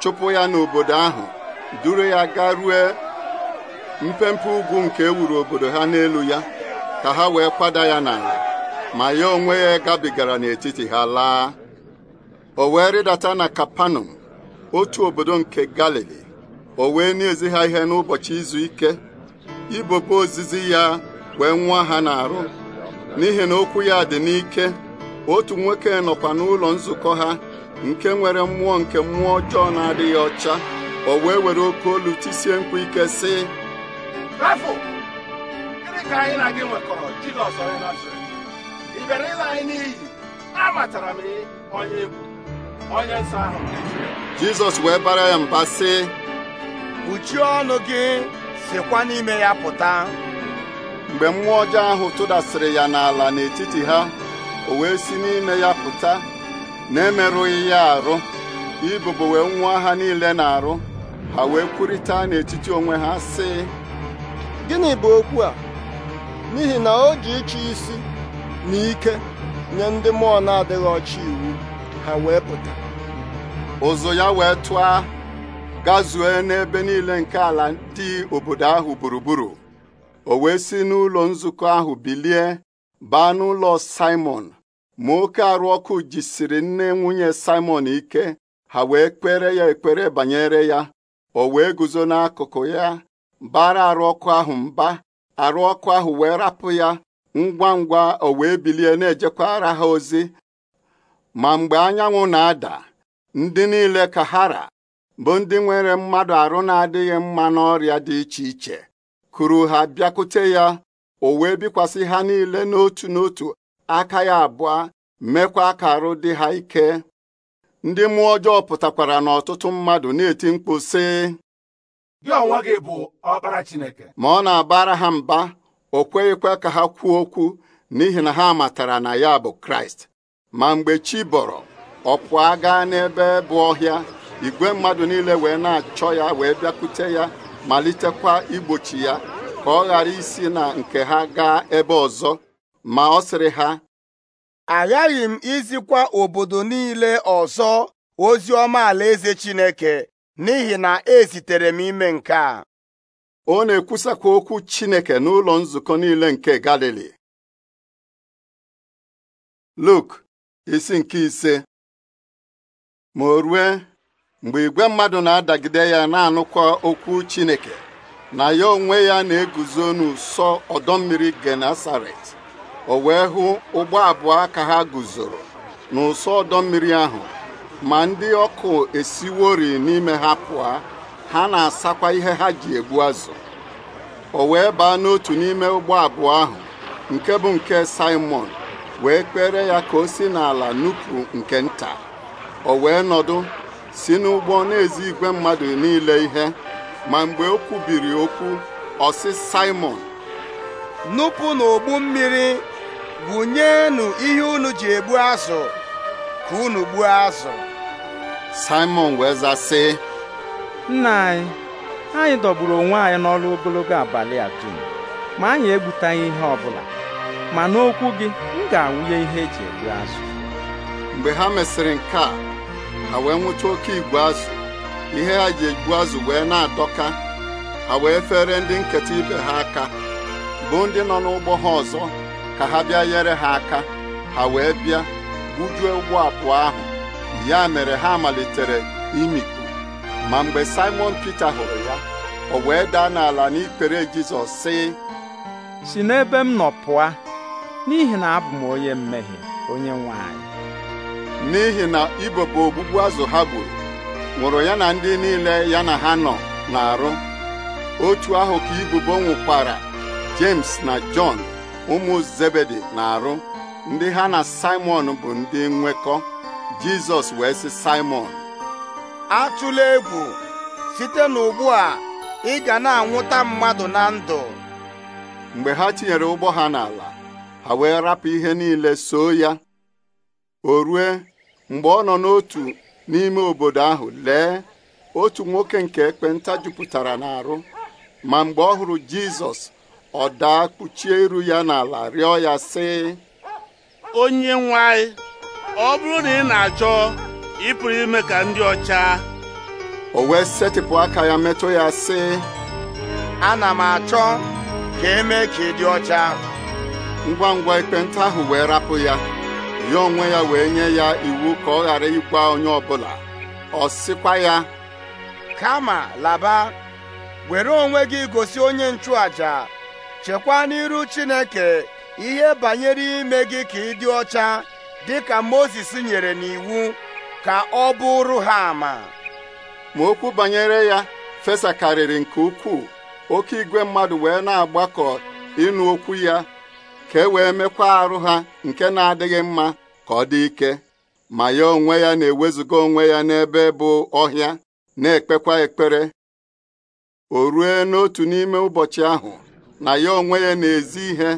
chụpụ ya n'obodo ahụ duru ya gaa ruo mpempe ugwu nke ewuru obodo ha n'elu ya ka ha wee kwada ya n'ala ma ya onwe ya gabigara n'etiti ha laa o wee rịdata na Kapanọm otu obodo nke galili o wee na ha ihe n'ụbọchị izu ike ibobe ozizi ya wee nwa ha na-arụ n'ihi na okwu ya dị n'ike otu nwoke nọkwa n'ụlọ nzukọ ha nke nwere mmụọ nke mmụọ ọjọọ na-adịghị ọcha o wee were oke olu tisie mkpu ike sị ịla anyị n'iyi amatara m onye egwu onye nsọ ahụ jizọs wee bara ya mba sị kpuchie ọnụ gị sikwa n'ime ya pụta mgbe mmụọ ọjọọ ahụ tụdasịrị ya n'ala n'etiti ha o wee si n'ime ya pụta na-emerụghị ya arụ ibubo wee nwụọ ha niile na-arụ ha wee kwurịta n'etiti onwe ha sị gịnị bụ okwu a n'ihi na o ji ịchụ isi na ike nye ndị mmụọ na-adịghị ọcha iwu ha ụzụ ya wee tụọ gazue n'ebe niile nke ala ndị obodo ahụ gburugburu o wee si n'ụlọ nzukọ ahụ bilie baa n'ụlọ Simon ma oke arụ ọkụ jisiri nne nwunye Simon ike ha wee kpere ya ekpere banyere ya o wee guzo n'akụkụ ya bara arụ ọkụ ahụ mba arụ ọkụ ahụ wee rapụ ya ngwa ngwa o wee bilie na-ejekwara ha ozi ma mgbe anyanwụ na-ada ndị niile kahara bụ ndị nwere mmadụ arụ na-adịghị mma n'ọrịa dị iche iche kuru ha bịakute ya o wee bikwasị ha niile n'otu n'otu aka ya abụọ mekwa ka arụ dị ha ike ndị mmụọ ọjọọ pụtakwara n'ọtụtụ mmadụ na-eti mkpu sị gị bụ ọkpara Chineke ma ọ na-abara ha mba o kweghịkwa ka ha kwuo okwu n'ihi na ha matara na ya bụ Kraịst ma mgbe chi bọrọ ọ pụọ gaa n'ebe bụ ọhịa igwe mmadụ niile wee na-achọ ya wee bịakwute ya malitekwa igbochi ya ka ọ ghara isi na nke ha gaa ebe ọzọ ma ọ sịrị ha aghaghị m izikwa obodo niile ọzọ ozi ọma eze Chineke n'ihi na ezitere m ime nke a ọ na-ekwusakwa okwu Chineke n'ụlọ nzukọ niile nke Galili Luk isi nke ise ma o rue mgbe igwe mmadụ na-adagide ya na-anụkwa okwu Chineke na ya onwe ya na-eguzo n'ụsọ ọdọ mmiri ọ o wee hụ ụgbọ abụọ ka ha guzoro n'ụsọ ọdọ mmiri ahụ ma ndị ọkụ esiwori n'ime ha pụọ ha na-asakwa ihe ha ji egbu azụ o wee baa n'otu n'ime ụgbọ abụọ ahụ nke bụ nke Simon wee kpere ya ka o si n'ala nupụ nke nta o wee nọdụ si n'ụgbọ na-ezi igwe mmadụ niile ihe ma mgbe o kwubiri okwu ọsị Simon nupụ n'ogbu mmiri gwụnyenụ ihe unu ji egbu azụ ka unu gbuo azụ Simon wee zasị nna anyị anyị dọgburu onwe anyị n'ọrụ ogologo abalị a ma anyị egbutaghị ihe bụla. ma n'okwu gị m ga-awụnye ihe eji egbu azụ mgbe ha mesịrị nke a ha wee nwụcha oke igwe azụ ihe ha ji egbu azụ wee na-adọka ha wee fere ndị nketa ibe ha aka bụ ndị nọ n'ụgbọ ha ọzọ ka ha bịa nyere ha aka ha wee bịa gbujuo ụgbọ abụọ ahụ ya mere ha malitere imikpu ma mgbe Simon Peter hụrụ ya o wee daa n'ala n'ikpere Jizọs sị si n'ebe m nọ pụa n'ihi na abụ m onye mmehie onye nwanyị. n'ihi na ibopụ ogbugbu azụ ha gburu nwụrụ ya na ndị niile ya na ha nọ na-arụ otu ahụ ka ibubo nwụkwara James na Jọn ụmụ Zebedi na-arụ ndị ha na Simon bụ ndị nwekọ Jizọs wee sị Simon atụla egwu site n'ugbu a ị ga na-anwụta mmadụ na ndụ mgbe ha tinyere ụgbọ ha n'ala ha wee rapụ ihe niile soo ya o rue mgbe ọ nọ n'otu n'ime obodo ahụ lee otu nwoke nke ekpenta jupụtara n'arụ ma mgbe ọ hụrụ Jizọs ọ daa kpuchie iru ya n'ala rịọ ya sị onye nwanyị, ọ bụrụ na ị na-achọ ịpụrụ ime ka ndị ọcha o wee setịpụ aka ya metụ ya sị ana m achọ ka eme ka ị dị ọcha ngwa ngwa ekpenta ahụ wee rapụ ya ya onwe ya wee nye ya iwu ka ọ ghara ịgwa onye ọbụla ọ sịkwa ya kama laba were onwe gị gosi onye nchụàjà chekwa n'iru Chineke ihe banyere ime gị ka ị dị ọcha dị ka Mozis nyere n'iwu ka ọ bụrụ ha ama ma okwu banyere ya fesakarịrị nke ukwuu oke igwe mmadụ wee na-agbakọ ịnụ okwu ya ka e wee mekwa arụ ha nke na-adịghị mma ka ọ dị ike ma ya onwe ya na-ewezuga onwe ya n'ebe bụ ọhịa na-ekpekwa ekpere o rue n'otu n'ime ụbọchị ahụ na ya onwe ya na-ezi ihe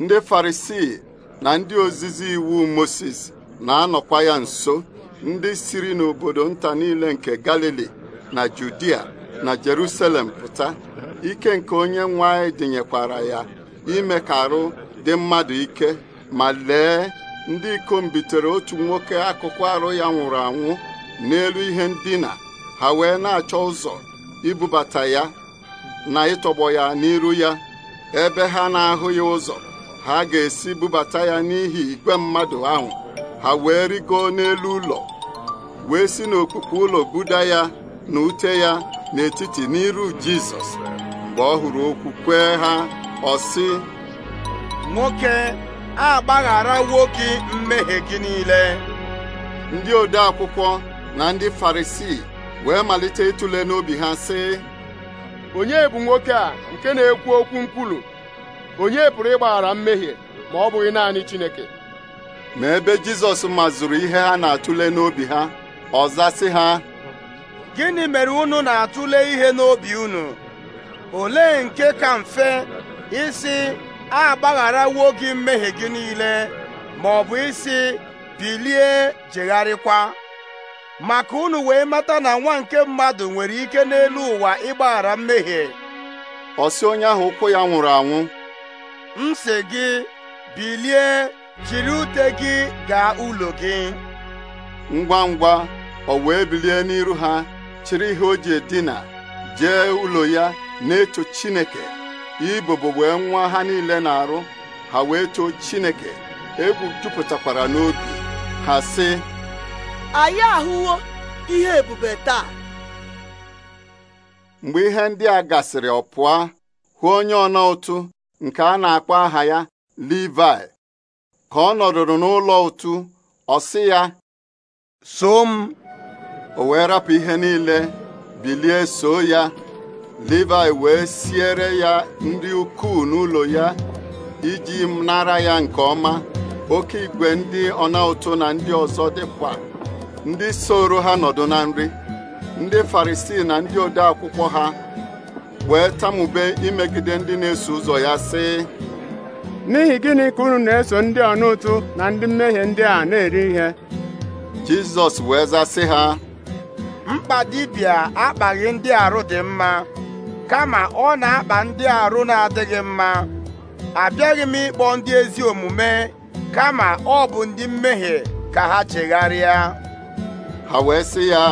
ndị farisii na ndị ozizi iwu Moses na-anọkwa ya nso ndị siri n'obodo nta niile nke Galili na Judia na jeruselem pụta ike nke onye nwanyị dịnyekwara ya ime ka arụ dị mmadụ ike ma lee ndị ikom bitere otu nwoke akụkụ arụ ya nwụrụ anwụ n'elu ihe ndina ha wee na-achọ ụzọ ibubata ya na ịtọgbọ ya n'iru ya ebe ha na-ahụ ya ụzọ ha ga-esi bubata ya n'ihi igwe mmadụ ahụ ha wee rigoo n'elu ụlọ wee si n'okpukpe ụlọ buda ya na ute ya n'etiti n'iru Jizọs mgbe ọ hụrụ okwu kwee ha ọ nwoke a agbagharawo nwoke mmehie gị niile ndị ode akwụkwọ na ndị farisii wee malite ịtụle n'obi ha sị onye bụ nwoke a nke na-ekwu okwu nkwulu onye pụrụ ịgbaghara mmehie ma ọ bụghị naanị Chineke ma ebe Jizọs mazụrụ ihe ha na-atụle n'obi ha ọ zasị ha gịnị mere unu na-atụle ihe n'obi unu olee nke ka mfe isi a gị mmehie gị niile ma ọ bụ isi bilie jegharịkwa maka unu wee mata na nwa nke mmadụ nwere ike n'elu ụwa ịgbaghara mmehie ọ onye ahụ ụkwụ ya nwụrụ anwụ m si gị bilie jiri ute gị gaa ụlọ gị ngwa ngwa ọ wee bilie n'iru ha chịrị ihe o ji edina jee ụlọ ya na-eto Chineke ibobo wee nwa ha niile na-arụ ha wee too chineke egwu jupụtakwara n'obi ha sị anyị ahụwo ihe ebube taa mgbe ihe ndị a gasịrị ọ pụọ hụ onye ọna ụtụ nke a na-akpọ aha ya Livai ka ọ nọdụrụ n'ụlọ ụtụ ọ sị ya soo m o wee rapụ ihe niile bilie soo ya Livayị wee siere ya ndị ukwuu n'ụlọ ya iji nara ya nke ọma oke igwe ndị ọna ụtụ na ndị ọzọ dịkwa ndị soro ha nọdụ na nri ndị Farisii na ndị ode akwụkwọ ha wee tamube imegide ndị na-eso ụzọ ya sị n'ihi gịnị ka unu na-eso ndị ọna ụtụ na ndị mmehie ndị a na-eri ihe Jizọs wee zasị ha mkpa dibịa akpaghị ndị arụ dị mma kama ọ na-akpa ndị arụ na-adịghị mma abịaghị m ịkpọ ndị ezi omume kama ọ bụ ndị mmehie ka ha chegharịa ha wee sị ya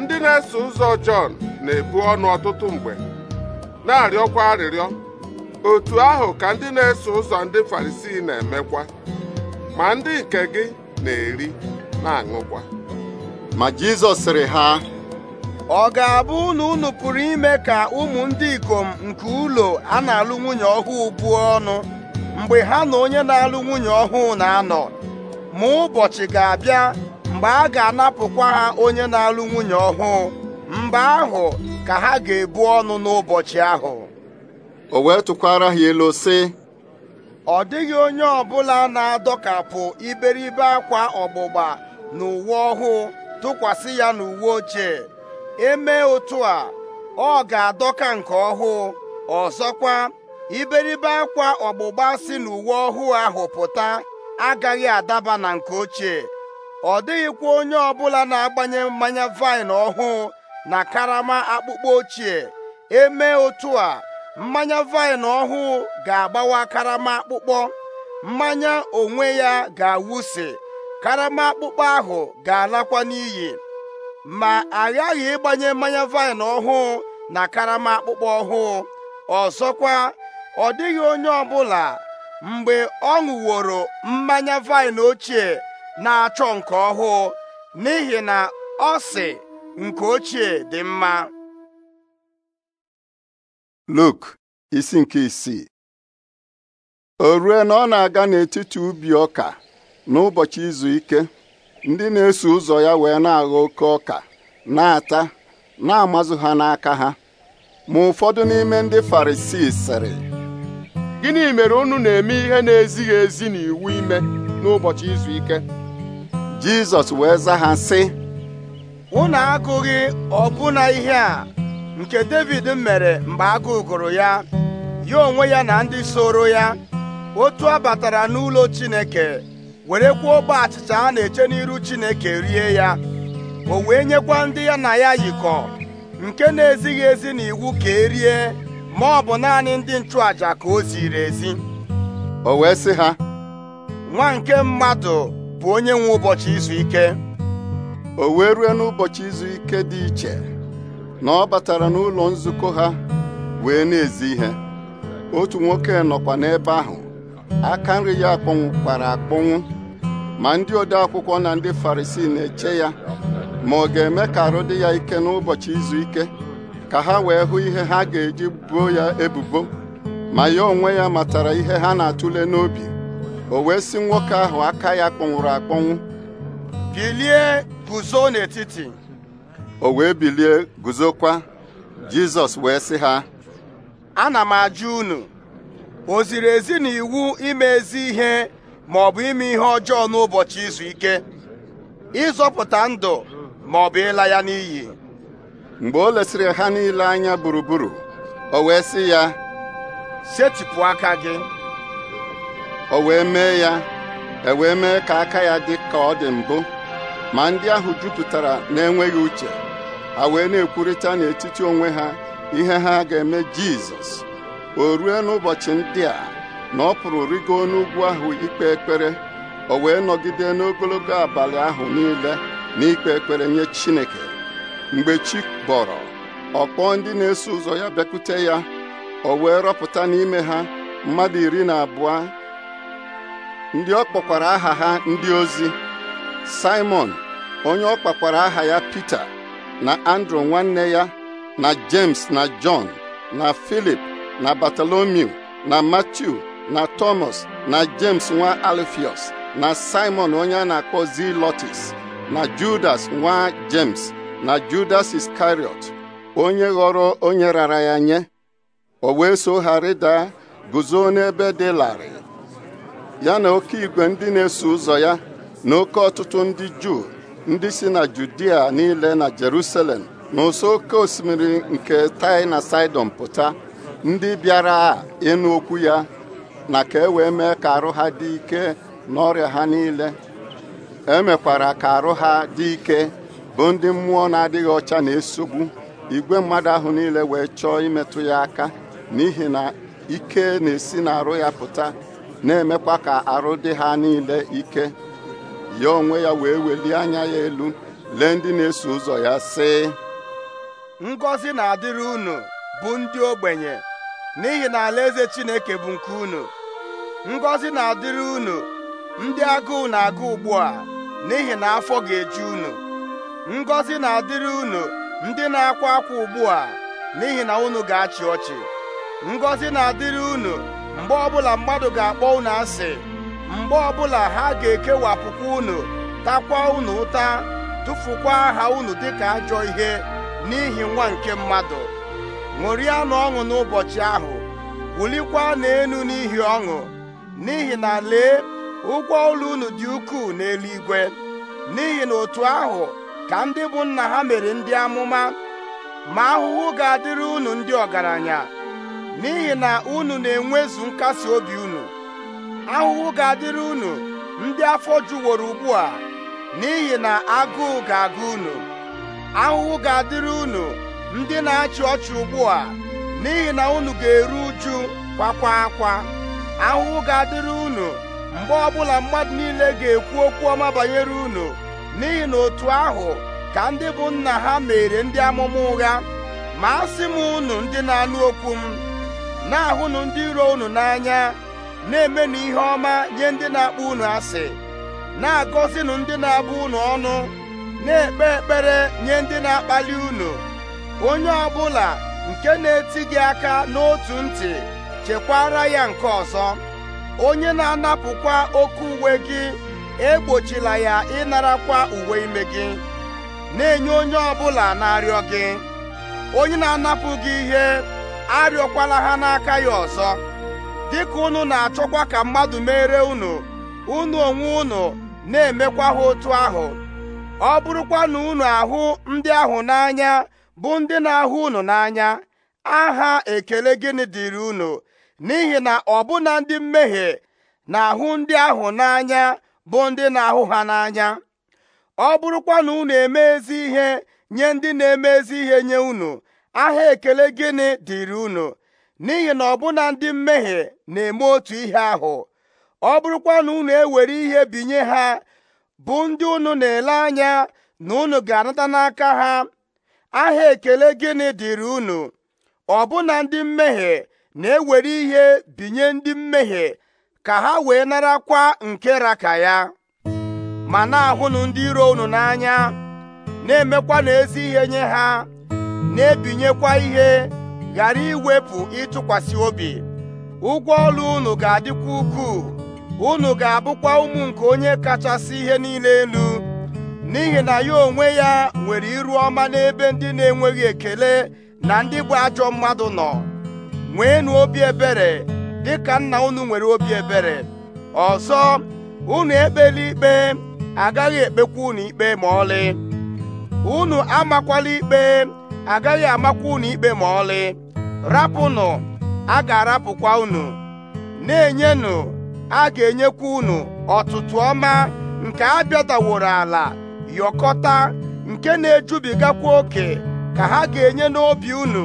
ndị na-eso ụzọ Jọn na-ebu ọnụ ọtụtụ mgbe na-arịọkwa arịrịọ otu ahụ ka ndị na-eso ụzọ ndị Farisii na-emekwa ma ndị nke gị na-eri na-aṅụkwa ma Jizọs sịrị ha ọ ga-abụ na unu pụrụ ime ka ụmụ ndị ikom nke ụlọ a na-alụ nwunye ọhụụ buo ọnụ mgbe ha na onye na-alụ nwunye ọhụụ na-anọ ma ụbọchị ga-abịa mgbe a ga-anapụkwa ha onye na-alụ nwunye ọhụụ mgbe ahụ ka ha ga-ebu ọnụ n'ụbọchị ahụ o wee tụkwara ha ilu sị ọ dịghị onye ọbụla na-adọkapụ iberibe akwa ọgbụgba na uwe ọhụụ tụkwasị ya n'uwe ochie Eme otu a ọ ga-adọka nke ọhụụ ọzọkwa iberibe akwa ọgbụgba si n'uwe ọhụụ ahụ pụta agaghị adaba na nke ochie ọ dịghịkwa onye ọbụla na-agbanye mmanya vaịn ọhụụ na karama akpụkpọ ochie Eme otu a mmanya vaịn ọhụụ ga-agbawa karama akpụkpọ mmanya onwe ya ga-awụsi karama akpụkpọ ahụ ga-alakwa n'iyi ma agaghị ịgbanye mmanya vaịn ọhụụ na karama akpụkpọ ọhụụ ọzọkwa ọ dịghị onye ọbụla mgbe ọ ṅụworo mmanya vaịn ochie na-achọ nke ọhụụ n'ihi na ọ sị nke ochie dị mma Luk isi nke isii o rue na ọ na-aga n'etiti ubi ọka n'ụbọchị izu ike ndị na-eso ụzọ ya wee na-agha oke ọka na-ata na-amazụ ha n'aka ha ma ụfọdụ n'ime ndị farisii sịrị gịnị mere unu na-eme ihe na-ezighị ezi n'iwu ime n'ụbọchị izu ike jizọs wee zaa ha sị unu agụghị ọbụna ihe a nke david mere mgbe agụụ gụrụ ya ya onwe ya na ndị soro ya otu a batara n'ụlọ chineke were werekwa ogbe achịcha a na-eche n'iru Chineke rie ya o wee nyekwa ndị ya na ya yikọ nke na-ezighị ezi na iwu ka erie ma ọ bụ naanị ndị nchụàjà ka o ziri ezi o wee sị ha nwa nke mmadụ bụ onye nwe ụbọchị izu ike o wee rue n'ụbọchị izu ike dị iche na ọ batara n'ụlọ nzukọ ha wee na-ezi ihe otu nwoke nọkwa n'ebe ahụ aka nri ya kpara akpọnwụ ma ndị ode akwụkwọ na ndị farisii na-eche ya ma ọ ga-eme ka arụ dị ya ike n'ụbọchị izu ike ka ha wee hụ ihe ha ga-eji buo ya ebubo ma ya onwe ya matara ihe ha na-atụle n'obi o wee si nwoke ahụ aka ya kpọnwụrụ akpọnwụ bilie guzo n'etiti o wee bilie guzokwa jizọs wee sị ha ana m ajụ unu oziri ziri ezi na iwu ime ezi ihe ma ọ bụ ime ihe ọjọọ n'ụbọchị izu ike ịzọpụta ndụ ma ọ bụ ịla ya n'iyi mgbe o lesịrị ha niile anya gburugburu o wee sị ya setịpụ aka gị o wee mee ya e wee mee ka aka ya dị ka ọ dị mbụ ma ndị ahụ jupụtara na-enweghị uche ha wee na-ekwurịta n'etiti onwe ha ihe ha ga-eme Jizọs o rue n'ụbọchị ndị a na ọ pụrụ rigo n'ugwu ahụ ikpe ekpere o wee nọgide n'ogologo abalị ahụ niile n'ikpe ekpere nye Chineke mgbe chi bọrọ ọ kpọọ ndị na-eso ụzọ ya bịakwute ya o wee rọpụta n'ime ha mmadụ iri na abụọ ndị ọ kpọkwara aha ha ndị ozi Simon onye ọ kpakwara aha ya Pita na Andrew nwanne ya na James na John na Philip na Bartolomew na Matiu na Thomas na James nwa Alfios na Simon onye a na-akpọ zilọtis na Judas nwa James na Judas Iscariot onye ghọrọ onye rara ya nye o wee so ha rịda guzo n'ebe dị larịị ya na oke igwe ndị na-eso ụzọ ya na oke ọtụtụ ndị Juu ndị si na Judia niile na Jerusalem na ụsọ oke osimiri nke Tai na Saịdọn pụta ndị bịara ịnụ okwu ya na ka e wee mee ka arụ ha dị ike n'ọrịa ha niile emekwara ka arụ ha dị ike bụ ndị mmụọ na-adịghị ọcha na-esogbu igwe mmadụ ahụ niile wee chọọ imetụ ya aka n'ihi na ike na-esi na arụ ya pụta na-emekwa ka arụ dị ha niile ike ya onwe ya wee welie anya ya elu lee ndị na-eso ụzọ ya sị ngọzi na-adịrị unu bụ ndị ogbenye n'ihi na alaeze Chineke bụ nke unu ngọzi na-adịrị unu ndị agụụ na-agụ ugbu a n'ihi na afọ ga-eju unu ngọzi na-adịrị unu ndị na-akwa akwa ugbu a n'ihi na unu ga-achị ọchị ngọzi na-adịrị unu mgbe ọbụla mmadụ ga-akpọ unu asị mgbe ọbụla ha ga-ekewapụkwa unu takwa unu ụta tụfukwa aha unu dịka ajọ ihe n'ihi nwa nke mmadụ ṅụrịa na ọṅụ n'ụbọchị ahụ wulikwa n'elu n'ihi ọṅụ n'ihi na lee ụgwọ ụlọ unu dị ukwuu n'eluigwe n'ihi na otu ahụ ka ndị bụ nna ha mere ndị amụma ma ahụhụ ga-adịrị unu ndị ọgaranya n'ihi na unu na-enwezu nkasi obi unu ahụhụ ga-adịrị unu ndị afọ juworo ugbu a n'ihi na agụụ ga-agụ unu ahụhụ ga-adịrị unu ndị na-achị ọchị ugbu a n'ihi na unu ga-eru uju kwakwa akwa ahụhụ ga-adịrị unu mgbe ọbụla mmadụ niile ga-ekwu okwu ọma banyere unu n'ihi na otu ahụ ka ndị bụ nna ha mere ndị amụma ụgha ma a sị m unu ndị na-anụ okwu m na-ahụnụ ndị iro unu n'anya na-emenụ ihe ọma nye ndị na-akpọ unu asị na-agọzinụ ndị na-abụ unu ọnụ na-ekpe ekpere nye ndị na-akpali unu onye ọ bụla nke na-eti gị aka n'otu ntị chekwara ya nke ọzọ onye na-anapụkwa oke uwe gị egbochila ya ịnara kwa uwe ime gị na-enye onye ọ bụla na-arịọ gị onye na-anapụ gị ihe arịọkwala ha n'aka ya ọzọ dịka unu na-achọkwa ka mmadụ mere unu unu onwe unu na-emekwa ha otu ahụ ọ bụrụkwa na unu ahụ ndị ahụ n'anya bụ ndị na-ahụ unu n'anya aha ekele gịnị dịrị unu n'ihi na ọbụna ndị mmehie na-ahụ ndị ahụ n'anya bụ ndị na-ahụ ha n'anya ọ bụrụkwa na unu eme ezi ihe nye ndị na-eme ezi ihe nye unu aha ekele gịnị dịrị unu n'ihi na ọbụna ndị mmehie na-eme otu ihe ahụ ọ bụrụkwa na unu ewere ihe binye ha bụ ndị unu na-ele anya na unu ga-anata n'aka ha aha ekele gịnị dịrị unu ọbụna ndị mmehie na-ewere ihe binye ndị mmehie ka ha wee narakwa nke raka ya ma na-ahụnụ ndị iro unu n'anya na-emekwa n'ezi ihe nye ha na-ebinyekwa ihe ghara iwepụ ịtụkwasị obi ụgwọ ọrụ unu ga-adịkwa ukwuu unu ga-abụkwa ụmụ nke onye kachasị ihe niile elu n'ihi na ya onwe ya nwere iru ọma n'ebe ndị na-enweghị ekele na ndị bụ ajọ mmadụ nọ nweenụ obi ebere dịka nna unu nwere obi ebere ọzọ unu ekpela ikpe agaghị ekpekwa unu ikpe ma ọlị unu amakwala ikpe agaghị amakwa unu ikpe ma ọlị rapụnụ a ga-arapụkwa unu na-enyenụ a ga-enyekwa unu ọtụtụ ọma nke a bịadaworo ala yọkọta nke na-ejubigakwa oke ka ha ga-enye n'obi unu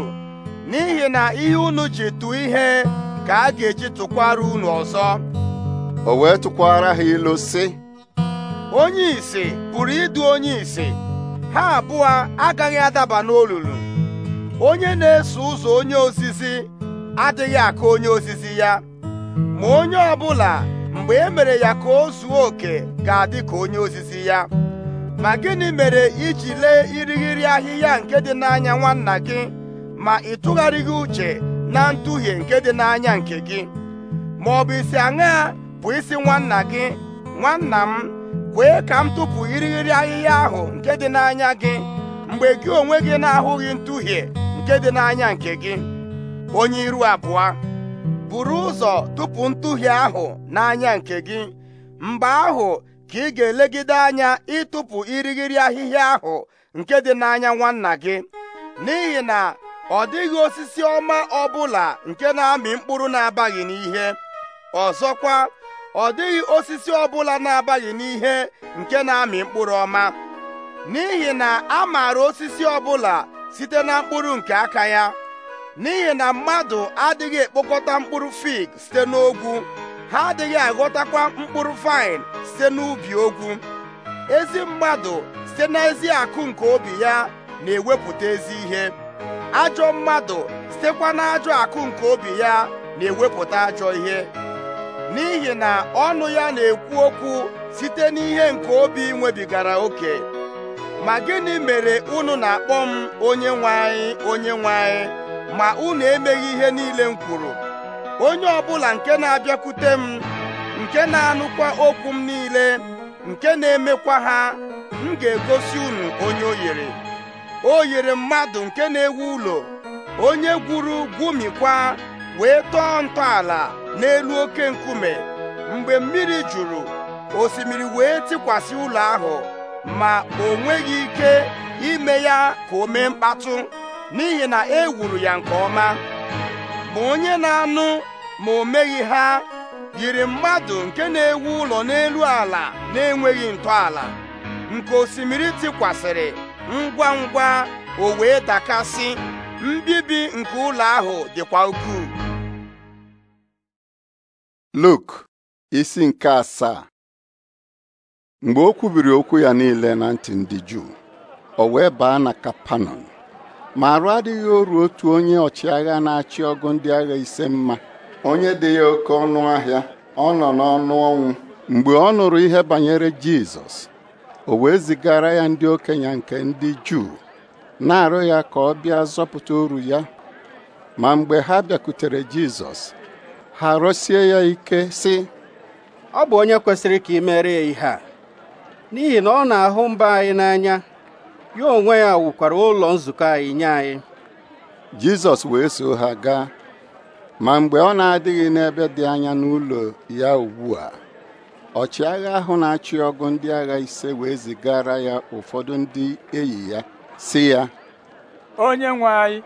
n'ihi na ihe unu ji tụọ ihe ka a ga-eji tụkwara unu ọzọ o wee tụkwara ha ilu sị onye ise pụrụ ịdụ onye ise ha abụọ agaghị adaba n'olulu onye na-eso ụzọ onye ozizi adịghị aka onye ozizi ya ma onye ọ bụla mgbe e mere ya ka o zuo oke ga-adị ka onye ozizi ya ma gịnị mere i ji lee irighiri ahịhịa nke dị n'anya nwanna gị ma ị tụgharịghị uche na ntuhie nke dị n'anya nke gị ma ọ bụ isi aṅaa bụ isi nwanna gị nwanna m kwee ka m tụpụ irighiri ahịhịa ahụ nke dị n'anya gị mgbe gị onwe gị na-ahụghị ntuhie nke dị n'anya nke gị onye iru abụọ buru ụzọ tụpụ ntuhie ahụ n'anya nke gị mgbe ahụ ka ị ga-elegide anya ịtụpụ irighiri ahịhịa ahụ nke dị n'anya nwanna gị n'ihi na ọ dịghị osisi ọma ọbụla nke na-amị mkpụrụ na-abaghị n'ihe ọzọkwa ọ dịghị osisi ọbụla na-abaghị n'ihe nke na-amị mkpụrụ ọma n'ihi na a maara osisi ọbụla site na mkpụrụ nke aka ya n'ihi na mmadụ adịghị ekpokọta mkpụrụ fig site n'ogwu ha adịghị aghọtakwa mkpụrụ fine site n'ubi okwu ezi mmadụ site n'ezi akụ nke obi ya na-ewepụta ezi ihe ajọ mmadụ sitekwa n'ajọ akụ nke obi ya na-ewepụta ajọ ihe n'ihi na ọnụ ya na-ekwu okwu site n'ihe nke obi nwebigara oke ma gịnị mere unu na-akpọ m onye nwe anyị onye nwe anyị ma unu emeghị ihe niile m kwuru onye ọbụla nke na-abịakwute m nke na-anụkwa okwu m niile nke na-emekwa ha m ga-egosi unu onye oyere yere o yere mmadụ nke na-ewu ụlọ onye gwuru gwumikwa wee tọọ ntọala n'elu oke nkume mgbe mmiri juru osimiri wee tikwasị ụlọ ahụ ma o nweghị ike ime ya ka o mee mkpatụ n'ihi na e wuru ya nke ọma Ma onye na-anụ ma o meghị ha yiri mmadụ nke na-ewu ụlọ n'elu ala na-enweghị ntọala nke osimiri tikwasịrị ngwa ngwa o wee dakasị mbibi nke ụlọ ahụ dịkwa ukwuu Luk isi nke asaa mgbe o kwubiri okwu ya niile na ntị ndị Juu o wee baa na Kapanọm ma arụ adịghị oru otu onye ọchịagha na-achị ọgụ ndị agha ise mma onye dị ya oke ọnụ ahịa ọ nọ n'ọnụ ọnwụ mgbe ọ nụrụ ihe banyere Jizọs o wee zigara ya ndị okenye nke ndị Juu na-arụ ya ka ọ bịa zọpụta oru ya ma mgbe ha bịakutere Jizọs ha rụsie ya ike sị ọ bụ onye kwesịrị ka ị mere ya ihe a n'ihi na ọ na-ahụ mba anyị n'anya ya onwe ya wukwara ụlọ nzukọ anyị nye anyị Jizọs wee so ha gaa ma mgbe ọ na-adịghị n'ebe dị anya n'ụlọ ya ugbu a ọchịagha ahụ na-achị ọgụ ndị agha ise wee zigara ya ụfọdụ ndị enyi ya sị ya onye nwe anyị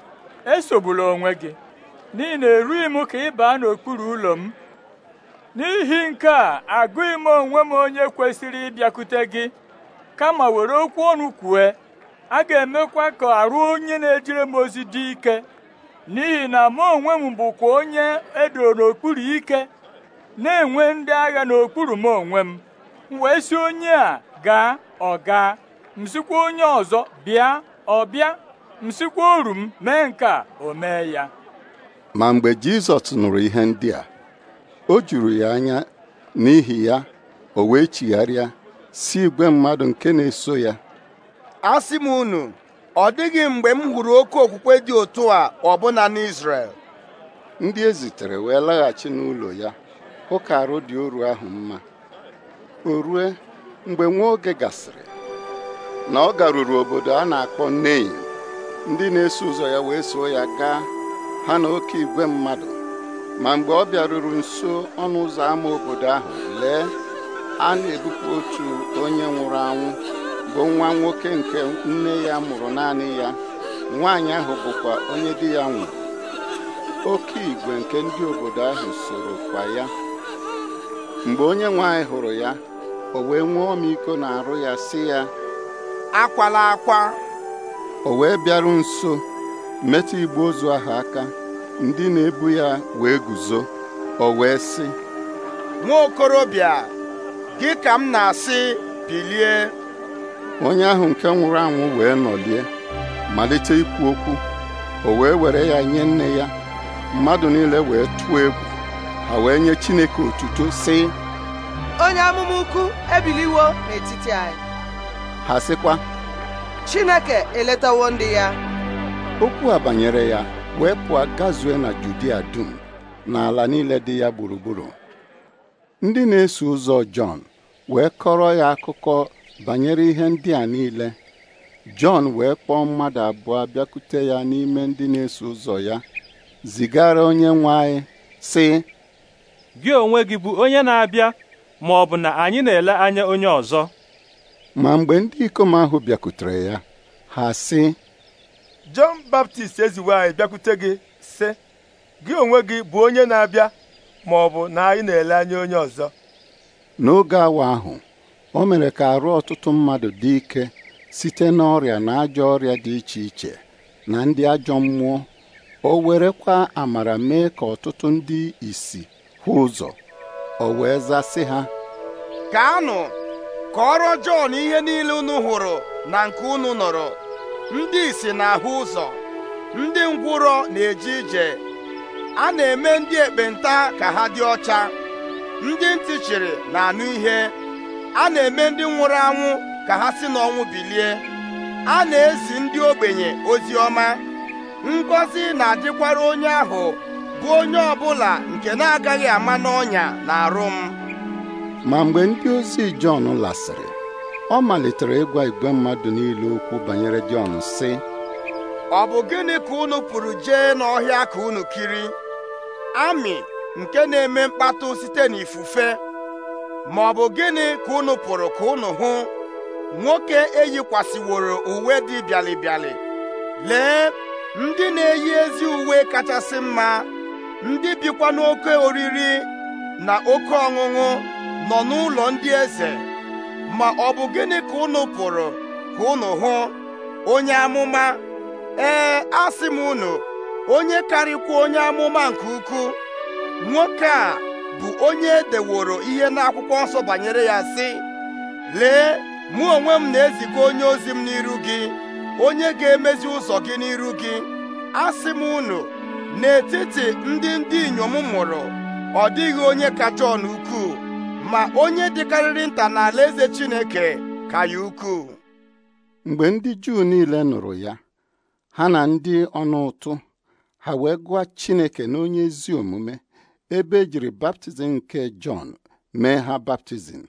esogbula onwe gị n'ihi na erughị m ka ị baa n'okpuru ụlọ m n'ihi nke a agụghị m onwe m onye kwesịrị ịbịakwute gị kama were okwu ọnụ kwue a ga-emekwa ka arụ onye na ejere m ozi dị ike n'ihi na mụ onwe m bụkwa onye edoro n'okpuru ike na-enwe ndị agha n'okpuru m onwe m wee si onye a gaa ọ gaa m onye ọzọ bịa ọ bịa m oru m mee nke a o mee ya ma mgbe Jizọs nụrụ ihe ndị a o juru ya anya n'ihi ya o wee chigharịa si igwe mmadụ nke na-eso ya asị m unu ọ dịghị mgbe m hụrụ oke okwukwe dị otu a ọbụna n'Israel ndị ezitere wee laghachi n'ụlọ ya hụ ka arụ dị oru ahụ mma o rue mgbe nwa oge gasịrị na ọ garuru obodo a na-akpọ nneyi ndị na-eso ụzọ ya wee soo ya gaa ha na oke igwe mmadụ ma mgbe ọ bịaruru nso ọnụ ụzọ ámá obodo ahụ lee a na-ebupụ otu onye nwụrụ anwụ bụ nwa nwoke nke nne ya mụrụ naanị ya nwaanyị ahụ bụkwa onye di ya nwụrụ oke igwe nke ndị obodo ahụ soro kwa ya mgbe onye nwanyị hụrụ ya o wee nwee ọmịiko na-arụ ya sị ya akwala akwa o wee bịaru nso metụ igbe ozu ahụ aka ndị na-ebu ya wee guzo o wee sị nwa gị ka m na-asị bilie onye ahụ nke nwụrụ anwụ wee nọlie malite ikwu okwu o wee were ya nye nne ya mmadụ niile wee tụọ egwu ha wee nye Chineke otuto si onye amụma ukwu ebiliwo n'etiti anyị ha sịkwa Chineke eletawo ndị ya okwu a banyere ya wee pụọ gazue na Judia dum na ala niile dị ya gburugburu ndị na-eso ụzọ Jọn wee kọrọ ya akụkọ banyere ihe ndị a niile Jọn wee kpọọ mmadụ abụọ bịakwute ya n'ime ndị na-eso ụzọ ya zigara onye nwe anyị sị gị onwe gị bụ onye na-abịa ma ọ bụ na anyị na-ele anya onye ọzọ ma mgbe ndị ikom ahụ bịakwutere ya ha sị Jọn Baptist eziwe anyị bịakwute gị sị gị onwe gị bụ onye na-abịa ma ọ bụ na anyị na-ele anya onye ọzọ n'oge awa ahụ o mere ka arụ ọtụtụ mmadụ dị ike site na ọrịa na ajọ ọrịa dị iche iche na ndị ajọ mmụọ o werekwa amara mee ka ọtụtụ ndị isi hụ ụzọ o wee zasị ha gaanụ ọrụ Jọn ihe niile unu hụrụ na nke unu nọrọ ndị isi na-ahụ ụzọ ndị ngwụrọ na-eje ije a na-eme ndị ekpenta ka ha dị ọcha ndị ntị chịrị na-anụ ihe a na-eme ndị nwụrụ anwụ ka ha si n'ọnwụ bilie a na-ezi ndị ogbenye ozi ọma ngọzi na-adịkwara onye ahụ bụ onye ọbụla nke na-agaghị ama n'ọnya na arụ m ma mgbe ndị ozi Jọn lasịrị ọ malitere ịgwa igwe mmadụ niile okwu banyere Jọn sị ọ bụ gịnị ka unu pụrụ jee n'ọhịa ka unu kiri amị nke na-eme mkpatụ site n'ifufe ma ọ bụ gịnị ka unu pụrụ ka unu hụ nwoke eyikwasịworo uwe dị bịalịbịalị lee ndị na-eyi ezi uwe kachasị mma ndị bikwa n'oke oriri na oke ọṅụṅụ nọ n'ụlọ ndị eze ma ọ bụ gịnị ka unu pụrụ ka unu hụ onye amụma ee asị m unu onye karịkwa onye amụma nke ukwuu nwoke a bụ onye e deworo ihe n'akwụkwọ nsọ banyere ya sị lee mụ onwe m na-eziga onye ozi m n'iru gị onye ga-emezi ụzọ gị n'iru gị asị m unu n'etiti ndị ndị inyom mụrụ ọ dịghị onye kacha ọnụ ukwuu ma onye dịkarịrị nta n'ala eze Chineke ka ya ukwuu mgbe ndị Juu niile nụrụ ya ha na ndị ọnụ ụtụ ha wee gụọ Chineke n'onye ezi omume ebe ejiri baptizim nke Jọn mee ha baptizim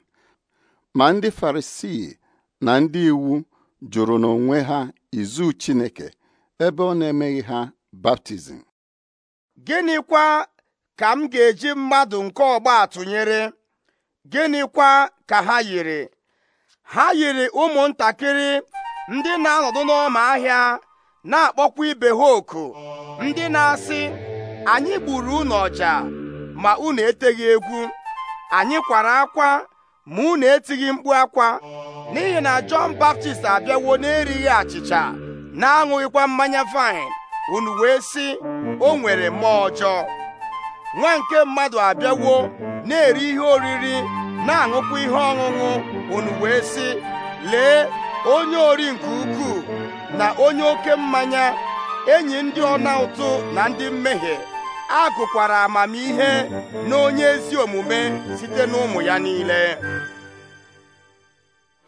ma ndị Farisii na ndị iwu jụrụ n'onwe ha izu Chineke ebe ọ na-emeghị ha baptizim gịnịkwa ka m ga-eji mmadụ nke ọgba tụnyere gịnịkwa ka ha yiri ha yiri ụmụntakịrị ndị na-anọdụ n'ọma ahịa na-akpọkwa ibe ha oku ndị na-asị anyị gburu ụnọ ọja ma unu eteghị egwu anyị kwara akwa ma unu etighị mkpu akwa n'ihi na Jọn Baptist abịawo na-erighị achịcha na-aṅụghịkwa mmanya vaịn unu wee si, o nwere mmụọ ọjọọ nwa nke mmadụ abịawo na-eri ihe oriri na-aṅụkwa ihe ọṅụṅụ unu wee si, lee onye ori nke ukwuu na onye oke mmanya enyi ndị ọna ụtụ na ndị mmehie a gụkwara amamihe na onye ezi omume site n'ụmụ ya niile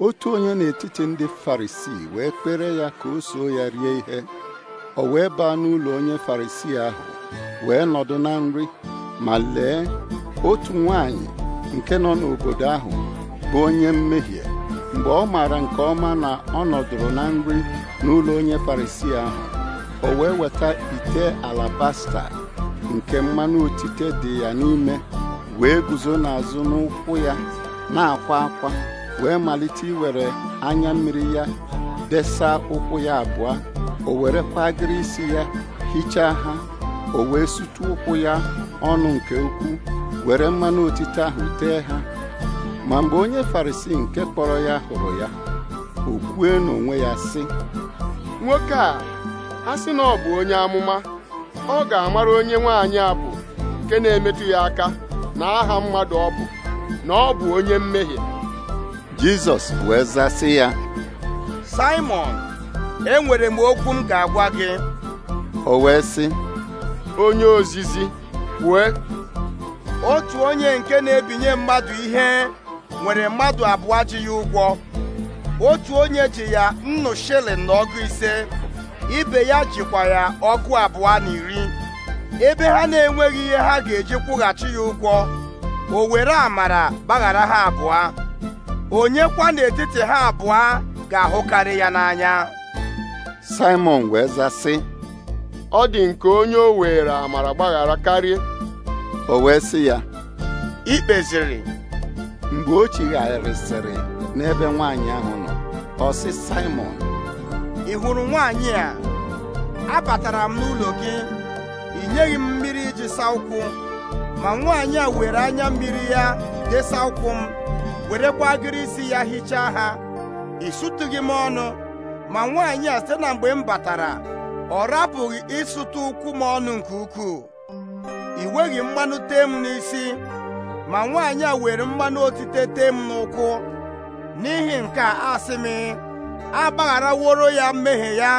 otu onye n'etiti ndị farisii wee kpere ya ka o soo ya rie ihe o wee baa n'ụlọ onye farisii ahụ wee nọdụ na nri ma lee otu nwanyị nke nọ n'obodo ahụ bụ onye mmehie mgbe ọ maara nke ọma na ọ nọdụrụ na nri n'ụlọ onye farisii ahụ o wee weta ite alabasta nke mmanụ otite dị ya n'ime wee guzo n'azụ n'ụkwụ ya na-akwa akwa wee malite iwere anya mmiri ya desa ụkwụ ya abụọ o were kwagịrị isi ya hichaa ha o wee sutu ụkwụ ya ọnụ nke ukwuu were mmanụ otite ahụ tee ha ma mgbe onye farisi nke kpọrọ ya hụrụ ya o kwue n'onwe ya sị nwoke a a sị na ọ bụ onye amụma ọ ga-amara onye nwaanyị bụ nke na-emetụ ya aka na aha mmadụ ọ bụ na ọ bụ onye mmehie Jizọs wee zasị ya Simon enwere m okwu m ga-agwa gị o wee sị onye ozizi kwue otu onye nke na-ebinye mmadụ ihe nwere mmadụ abụọ ji ya ụgwọ otu onye ji ya nnu shilling na ise ibe ya jikwa ya ọgụ abụọ na iri ebe ha na-enweghị ihe ha ga-eji kwụghachi ya ụgwọ o were amara gbaghara ha abụọ Onyekwa kwa n'etiti ha abụọ ga-ahụkarị ya n'anya Simon wee zaa sị ọ dị nke onye o were amara gbaghara karịa o wee sị ya ikpeziri mgbe o chigharịsịrị n'ebe nwaanyị ahụ nọ ọ Simon ị hụrụ nwaanyị a abatara m n'ụlọ gị ị nyeghị m mmiri iji saa ụkwụ ma nwaanyị a were anya mmiri ya desa ụkwụ m werekwa agịrị isi ya hichaa ha ị sụtụghị m ọnụ ma nwaanyị a site na mgbe m batara ọ rapụghị ịsụtụ ụkwụ m ọnụ nke ukwuu ị nweghị mmanụ tee m n'isi ma nwaanyị a were mmanụ otite tee m n'ụkwụ n'ihi nke a asị m agbagharaworo ya mmehie ya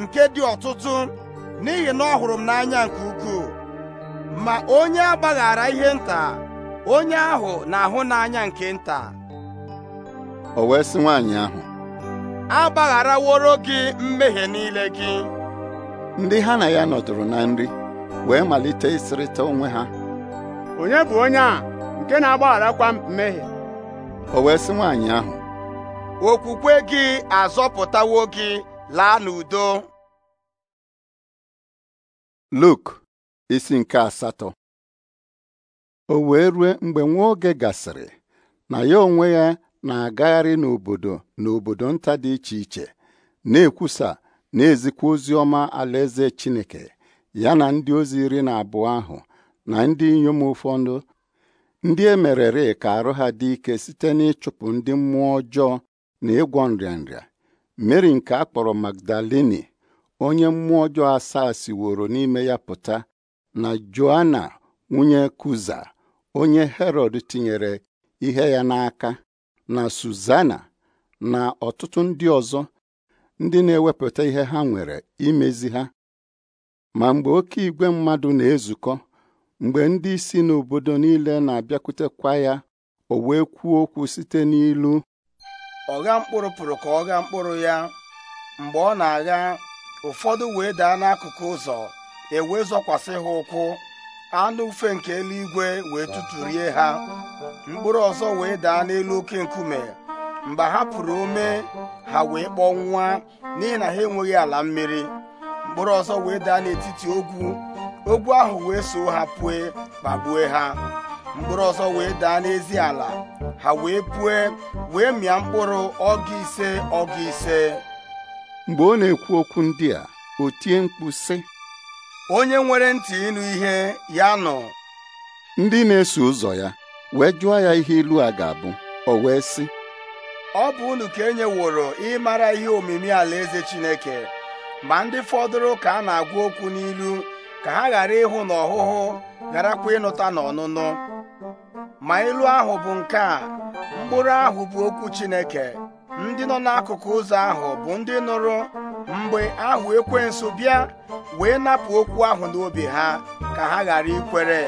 nke dị ọtụtụ n'ihi na ọ hụrụ m n'anya nke ukwuu ma onye agbaghara ihe nta onye ahụ na-ahụ n'anya nke nta o wee sị nwaanyị ahụ agbagharaworo gị mmehie niile gị ndị ha na ya nọdụrụ na nri wee malite ịsịrịta onwe ha onye bụ onye a nke na-agbagharakwa mmehie o wee sị nwaanyị ahụ okwukwe gị azọpụtawo gị laa n'udo Luk isi nke asatọ o wee rue mgbe nwa oge gasịrị na ya onwe ya na-agagharị n'obodo na obodo nta dị iche iche na-ekwusa na-ezikwa ozi ọma alaeze Chineke ya na ndị ozi iri na abụọ ahụ na ndị inyom ụfọdụ ndị emerere ka arụ ha dị ike site n'ịchụpụ ndị mmụọ ọjọọ na ịgwọ nrịanrịa mary nke a kpọrọ magdaleni onye mmụọ ọjọọ asaa siworo n'ime ya pụta na joana nwunye kuza onye herọd tinyere ihe ya n'aka na suzana na ọtụtụ ndị ọzọ ndị na-ewepụta ihe ha nwere imezi ha ma mgbe oke igwe mmadụ na-ezukọ mgbe ndị isi n'obodo niile na-abịakwutekwa ya o wee kwuo okwu site n'ilu ọgha mkpụrụ pụrụ ka ọ ghaa mkpụrụ ya mgbe ọ na-agha ụfọdụ wee daa n'akụkụ ụzọ ewee zọkwasị ha ụkwụ anụ ufe nke eluigwe wee tụtụrie ha mkpụrụ ọzọ wee daa n'elu oke nkume mgbe ha pụrụ ome ha wee kpọnwụa n'ihi na ha enweghị ala mmiri mkpụrụ ọzọ wee daa n'etiti ogwu ogwu ahụ wee so ha pụe kpagbue ha mkpụrụ ọzọ wee daa n'ezi ala ha wee pue wee mịa mkpụrụ ọgụ ise ọgụ ise mgbe ọ na-ekwu okwu ndị a o tie mkpu sị onye nwere ntị ịnụ ihe ya nọ ndị na-eso ụzọ ya wee jụọ ya ihe ilu a ga-abụ o wee sị ọ bụ unu ka e nyeworo ịmara ihe omimi alaeze Chineke ma ndị fọdụrụ ka a na-agwa okwu n'ilu ka ha ghara ịhụ n'ọhụhụ gharakwa ịnụta na ọnụnụ ma ilu ahụ bụ nke a mkpụrụ ahụ bụ okwu Chineke ndị nọ n'akụkụ ụzọ ahụ bụ ndị nụrụ mgbe ahụ nso bịa wee napụ okwu ahụ n'obi ha ka ha ghara ikwere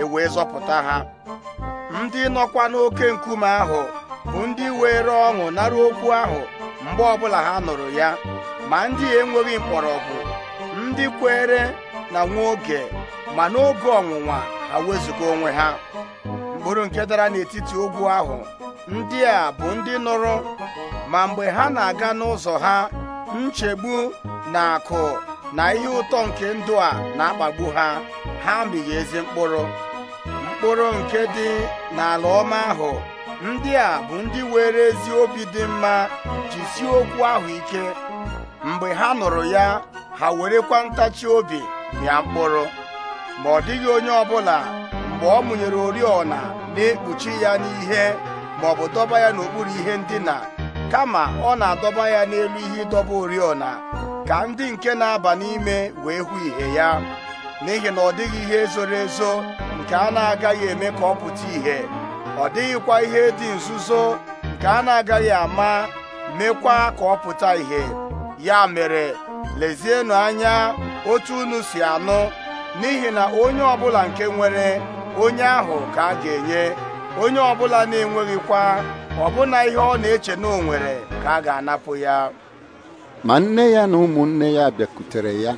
e wee zọpụta ha ndị nọkwa n'oke nkume ahụ bụ ndị were ọṅụ nara okwu ahụ mgbe ọbụla ha nụrụ ya ma ndị enweghị mkpọrọgwụ ndị kwere na nwa oge ma n'oge ọnwụnwa ha wezụga onwe ha mkpụrụ nke dara n'etiti ogwu ahụ ndị a bụ ndị nụrụ ma mgbe ha na-aga n'ụzọ ha nchegbu na akụ na ihe ụtọ nke ndụ a na-akpagbu ha ha mighị ezi mkpụrụ mkpụrụ nke dị n'ala ọma ahụ ndị a bụ ndị were ezi obi dị mma jisie okwu ahụ ike mgbe ha nụrụ ya ha werekwa ntachi obi mịa mkpụrụ ma ọ dịghị onye ọbụla mgbe ọ mụnyere oriọna na-ekpuchi ya n'ihe ma ọ bụ dọba ya n'okpuru ihe ndina kama ọ na-adọba ya n'elu ihe ịdọba oriọna ka ndị nke na-aba n'ime wee hụ ihe ya n'ihi na ọ dịghị ihe zoro ezo nke a na-agaghị eme ka ọ pụta ìhè ọ dịghịkwa ihe dị nzuzo nke a na-agaghị ama mekwa ka ọ pụta ìhè ya mere lezienụ anya otu unu si anụ n'ihi na onye ọbụla nke nwere onye ahụ ka a ga-enye onye ọbụla na-enweghịkwa ọbụna ihe ọ na-eche na o ka a ga-anapụ ya ma nne ya na ụmụnne ya bịakutere ya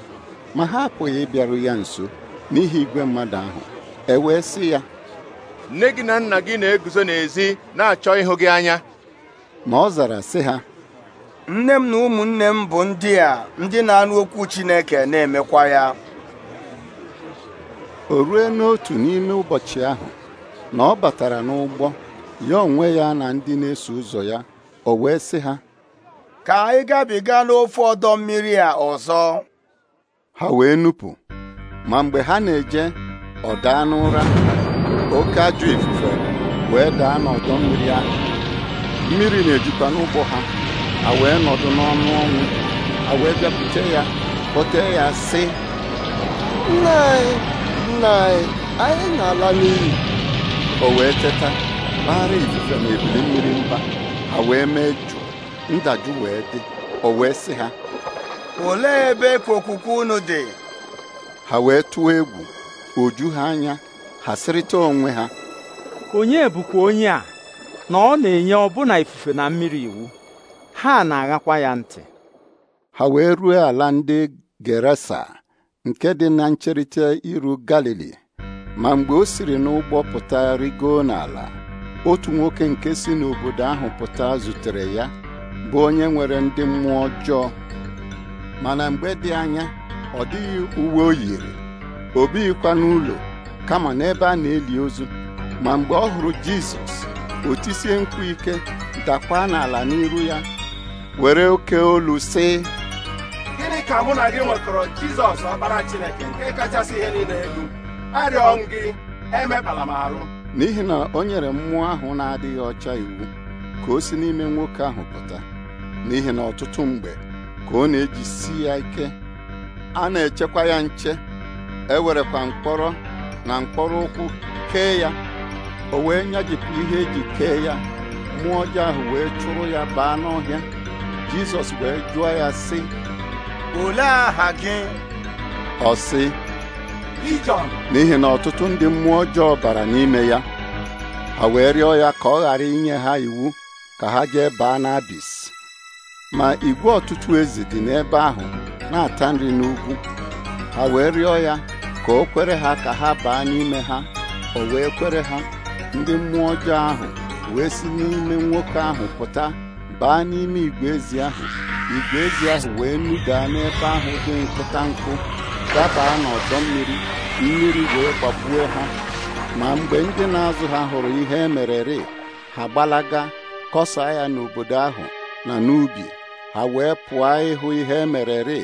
ma ha apụghị ịbịaru ya nso n'ihi igwe mmadụ ahụ e wee sị ya nne gị na nna gị na-eguzo n'ezi na-achọ ịhụ gị anya ma ọ zara sị ha nne m na ụmụnne m bụ ndị a ndị na-anụ okwu Chineke na-emekwa ya o rue n'otu n'ime ụbọchị ahụ na ọ batara n'ụgbọ ya onwe ya na ndị na-eso ụzọ ya o wee sị ha ka anyị gabiga n'ofe ọdọ mmiri a ọzọ ha wee nupụ ma mgbe ha na-eje ọ daa n'ụra oke ajọ ifufe wee daa n'ọdọ mmiri ahụ mmiri na-ejikwa n'ụgbọ ha a wee nọdụ n'ọnụ ọnwụ wee ya kpọtee ya sị nne na anyị na-ala n'iyi o wee teta kpaghara ifufe na ebili mmiri mba ha wee mee jụụ ndajụ wee dị o wee sị ha olee ebe okwukwe unu dị ha wee tụọ egwu oju ha anya ha sịrịta onwe ha onye bụkwa onye a na ọ na-enye ọbụna ifufe na mmiri iwu ha na-aghakwa ya ntị ha wee ruo ala ndị Gerasa nke dị na ncherịta iru galili ma mgbe o siri n'ụgbọ pụta rigoo n'ala otu nwoke nke si n'obodo ahụ pụta zutere ya bụ onye nwere ndị mmụọ ọjọọ mana mgbe dị anya ọ dịghị uwe o yiri o bighịkwa n'ụlọ kama n'ebe a na-eli ozu ma mgbe ọ hụrụ Jizọs o tisie ike dakwa n'ala n'iru ya were oke olu sị gịnị ka mụ na gị nwekọrọ jizọs ọkpara chineke nke kachasị ihe niile elu arịọ m gị emekpala m arụ n'ihi na o nyere mmụọ ahụ na-adịghị ọcha iwu ka o si n'ime nwoke ahụ pụta n'ihi na ọtụtụ mgbe ka ọ na-ejisi ya ike a na-echekwa ya nche ewerekwa mkpọrọ na mkpọrọ ụkwụ kee ya o wee nyajipụ ihe eji kee ya mmụọ ọjọọ ahụ wee chụrụ ya baa n'ọhịa jizọs wee jụọ ya sị olee aha gị ọ sị n'ihi na ọtụtụ ndị mmụọ ọjọọ bara n'ime ya A wee rịọ ya ka ọ ghara inye ha iwu ka ha jee baa n'abis ma igwe ọtụtụ ezi dị n'ebe ahụ na-ata nri n'ugwu ha wee rịọ ya ka o kwere ha ka ha baa n'ime ha o wee kwere ha ndị mmụọ ọjọọ ahụ wee si n'ime nwoke ahụ pụta baa n'ime igwe ezi ahụ igwe ezi ahụ wee nudaa n'ebe ahụ dị nkụta nkụ dabaa n'ọdọ mmiri mmiri wee kwapụọ ha ma mgbe ndị na-azụ ha hụrụ ihe emerere ha gbalaga kọsaa ya n'obodo ahụ na n'ubi ha wee pụọ ịhụ ihe emerere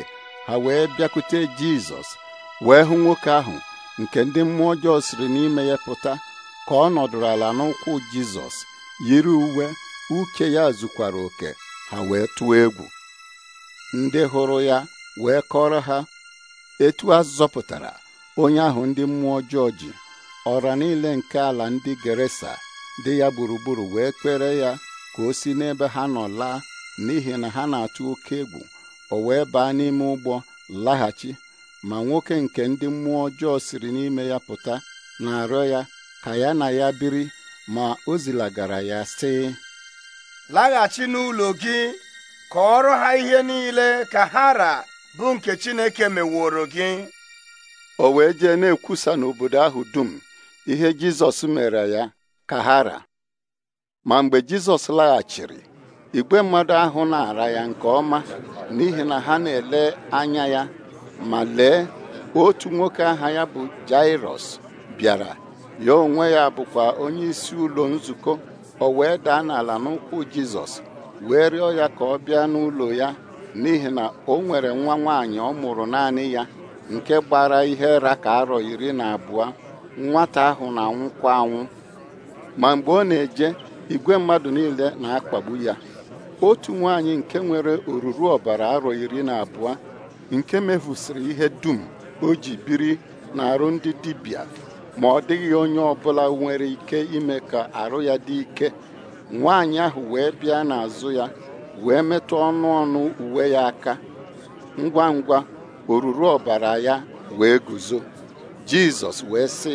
ha wee bịakwute Jizọs wee hụ nwoke ahụ nke ndị mmụọ ọjọọ siri n'ime ya pụta ka ọ nọdụrụ ala n'ụkwụ Jizọs yiri uwe Uke ya zukwara oke ha wee tụọ egwu ndị hụrụ ya wee kọrọ ha etu a zọpụtara onye ahụ ndị mmụọ ọjọọ ji ọra niile nke ala ndị Geresa dị ya gburugburu wee kpere ya ka o si n'ebe ha nọ laa n'ihi na ha na-atụ oke egwu o wee baa n'ime ụgbọ laghachi ma nwoke nke ndị mmụọ ọjọọ siri n'ime ya pụta na-arịọ ya ka ya na ya biri ma o zilagara ya sị laghachi n'ụlọ gị kọọrọ ha ihe niile ka hara bụ nke Chineke meworo gị o wee jee na-ekwusa n'obodo ahụ dum ihe Jizọs mere ya ka hara ma mgbe Jizọs laghachiri igwe mmadụ ahụ na-ara ya nke ọma n'ihi na ha na-ele anya ya ma lee otu nwoke aha ya bụ Jairọs bịara ya onwe ya bụkwa onye ụlọ nzukọ o wee daa n'ala n'ụkwụ Jizọs wee rịọ ya ka ọ bịa n'ụlọ ya n'ihi na o nwere nwa nwaanyị ọ mụrụ naanị ya nke gbara ihe raka arọ iri na abụọ nwata ahụ na-anwụkwa anwụ ma mgbe ọ na-eje igwe mmadụ niile na-akpagbu ya otu nwaanyị nke nwere oruru ọbara arọ iri na abụọ nke mefusịrị ihe dum o ji biri na arụ ndị dibịa ma ọ dịghị onye ọbụla nwere ike ime ka arụ ya dị ike nwaanyị ahụ wee bịa n'azụ ya wee metụ ọnụ ọnụ uwe ya aka ngwa ngwa oruru ọbara ya wee guzo jizọs wee sị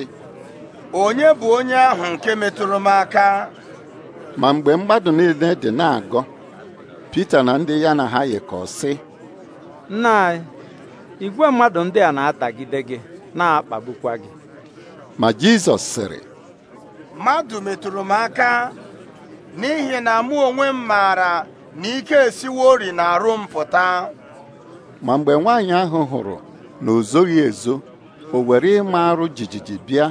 onye bụ onye ahụ nke metụrụ m aka ma mgbe mmadụ niile dị na-agọ Pita na ndị ya na ha yikọọ nna igwe mmadụ ndị a na-atagide gị na-akpagbukwa gị ma Jizọs sịrị mmadụ metụrụ m aka n'ihi na mụ onwe m maara na ike ori na arụ m pụta ma mgbe nwaanyị ahụ hụrụ na o ezo o were ịma arụ jijiji bịa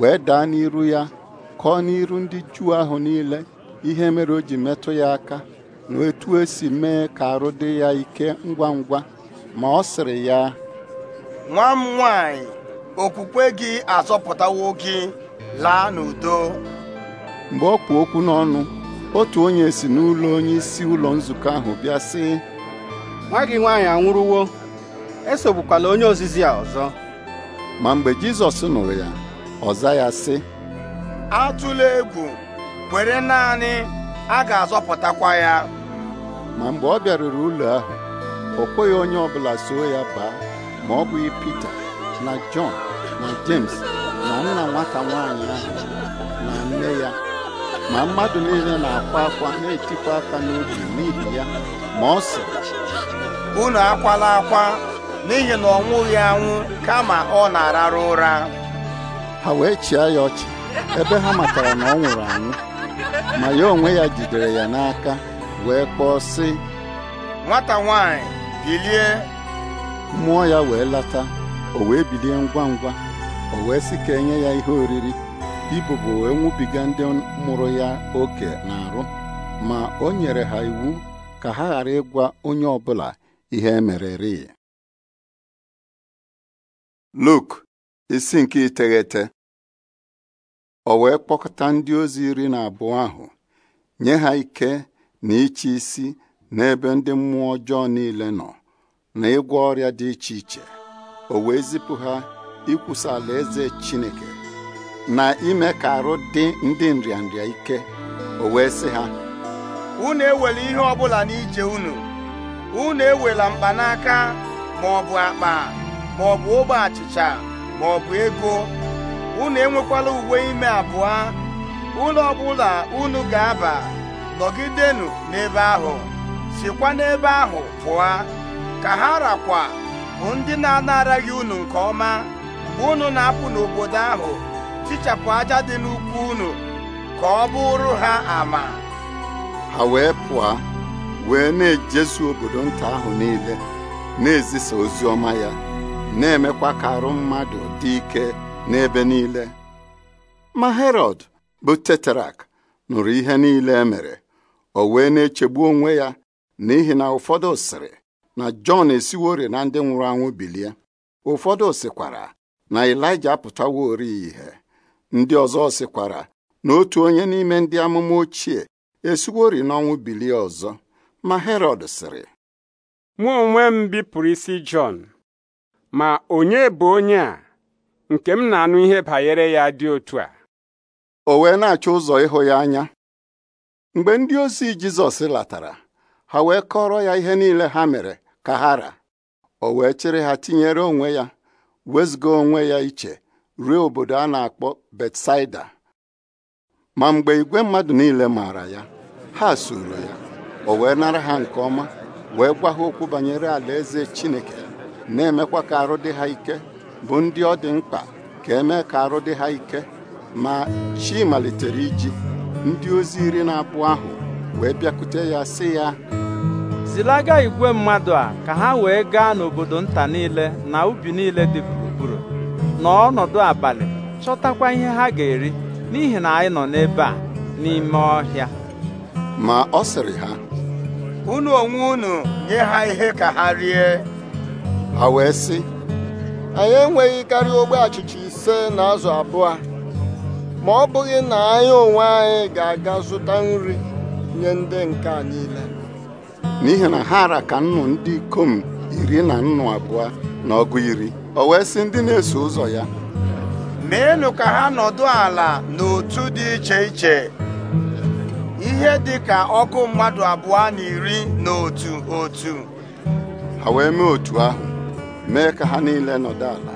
wee daa n'iru ya kọọ n'iru ndị Juu ahụ niile ihe mere o ji metụ ya aka na etu esi mee ka arụ dị ya ike ngwa ngwa ma ọ sịrị ya nwa m nwanyị okwukwe gị azọpụtawo gị laa n'udo mgbe ọ kpụ okwu n'ọnụ otu onye si n'ụlọ onye isi ụlọ nzukọ ahụ bịa sị nwa gị nwaanyị anwụrụwo esogbukwala onye ozizi a ọzọ ma mgbe Jizọs nụrụ ya ọ za ya sị atụla egwu were naanị a ga-azọpụtakwa ya ma mgbe ọ bịaruru ụlọ ahụ o kweghị onye ọbụla soo ya baa ma ọ bụghị Pita na John na James na nna nwata nwaanyị ahụ na nne ya ma mmadụ niile na-akwa akwa na-etikwa aka n'obi n'ihi ya ma ọ sị unu akwala akwa n'ihi na ọ nwụghị anwụ kama ọ na-ararụ ụra ha wee chịa ya ọchị ebe ha matara na ọ nwụrụ anwụ ma ya onwe ya jidere ya n'aka wee kpọọ sị nwata nwanyị bilie mmụọ ya wee lata o wee bilie ngwa ngwa o wee sị ka enye ya ihe oriri ibubo wee nwụbiga ndị mụrụ ya oke na-arụ ma o nyere ha iwu ka ha ghara ịgwa onye ọ bụla ihe emereri Luk isi nke iteghete o wee kpọkọta ndị ozi iri na abụọ ahụ nye ha ike na ịchị isi n'ebe ndị mmụọ ọjọọ niile nọ na ịgwọ ọrịa dị iche iche o wee zipụ ha ikwusa alaeze Chineke na ime ka arụ dị ndị nrịanrịa ike o wee sị ha unu ewela ihe ọbụla n'ije unu unu ewela mkpanaka ma ọ bụ akpa ma ọ bụ ogbe achịcha ma ọ bụ ego unu enwekwala uwe ime abụọ ụlọ ọbụla unu ga-aba nọgidenụ n'ebe ahụ sikwa n'ebe ahụ pụọ ka ha rakwa bụ ndị na-anaraghị unu nke ọma mgbe unu na-apụ n'obodo ahụ tichapụ aja dị n'ukwu unu ka ọ bụrụ ha ama ha wee pụọ wee na-ejezu obodo nta ahụ niile na-ezisa ozi ọma ya na-emekwa ka arụ mmadụ dị ike n'ebe niile ma Herọd bụ teterak nụrụ ihe niile e o wee na-echegbu onwe ya n'ihi na ụfọdụ sịrị na jọn esiwori na ndị nwụrụ anwụ bilie ụfọdụ sikwara na apụtawo apụtawori ihe ndị ọzọ sikwara na otu onye n'ime ndị amụma ochie esiwori n'ọnwụ bilie ọzọ ma herọd sịrị mụ onwe m bipụrụ isi jọn ma onye bụ onye a nke m na-anụ ihe banyere ya dị otu a o wee na-achọ ụzọ ịhụ ya anya mgbe ndị ozi jizọs latara ha wee kọrọ ya ihe niile ha mere Kahara: o wee chịrị ha tinyere onwe ya wezụga onwe ya iche ruo obodo a na-akpọ Betsaida ma mgbe igwe mmadụ niile maara ya ha soro ya o wee nara ha nke ọma wee gwa okwu banyere alaeze Chineke na-emekwa ka arụ dị ha ike bụ ndị ọ dị mkpa ka emee ka arụ dị ha ike ma chi malitere iji ndị ozi iri na abụọ ahụ wee bịakute ya sị ya zilaga igwe mmadụ a ka ha wee gaa n'obodo nta niile na ubi niile dị gburugburu n'ọnọdụ abalị chọtakwa ihe ha ga-eri n'ihi na anyị nọ n'ebe a n'ime ọhịa ma ọ sịrị ha unu onwe unu nye ha ihe ka ha rie ha wee sị anyị enweghị karịa ogbe achịcha ise na azụ abụọ ma ọ bụghị na anyị onwe anyị ga-aga zụta nri nye ndị nke a niile n'ihi na ha ara ka nnụ ndị ikom iri na nnụ abụọ na ọgụ iri o wee si ndị na-eso ụzọ ya meenụ ka ha nọdụ ala n'otu dị iche iche ihe dị ka ọkụ mmadụ abụọ na iri na otu otu ha wee mee otu ahụ mee ka ha niile nọdụ ala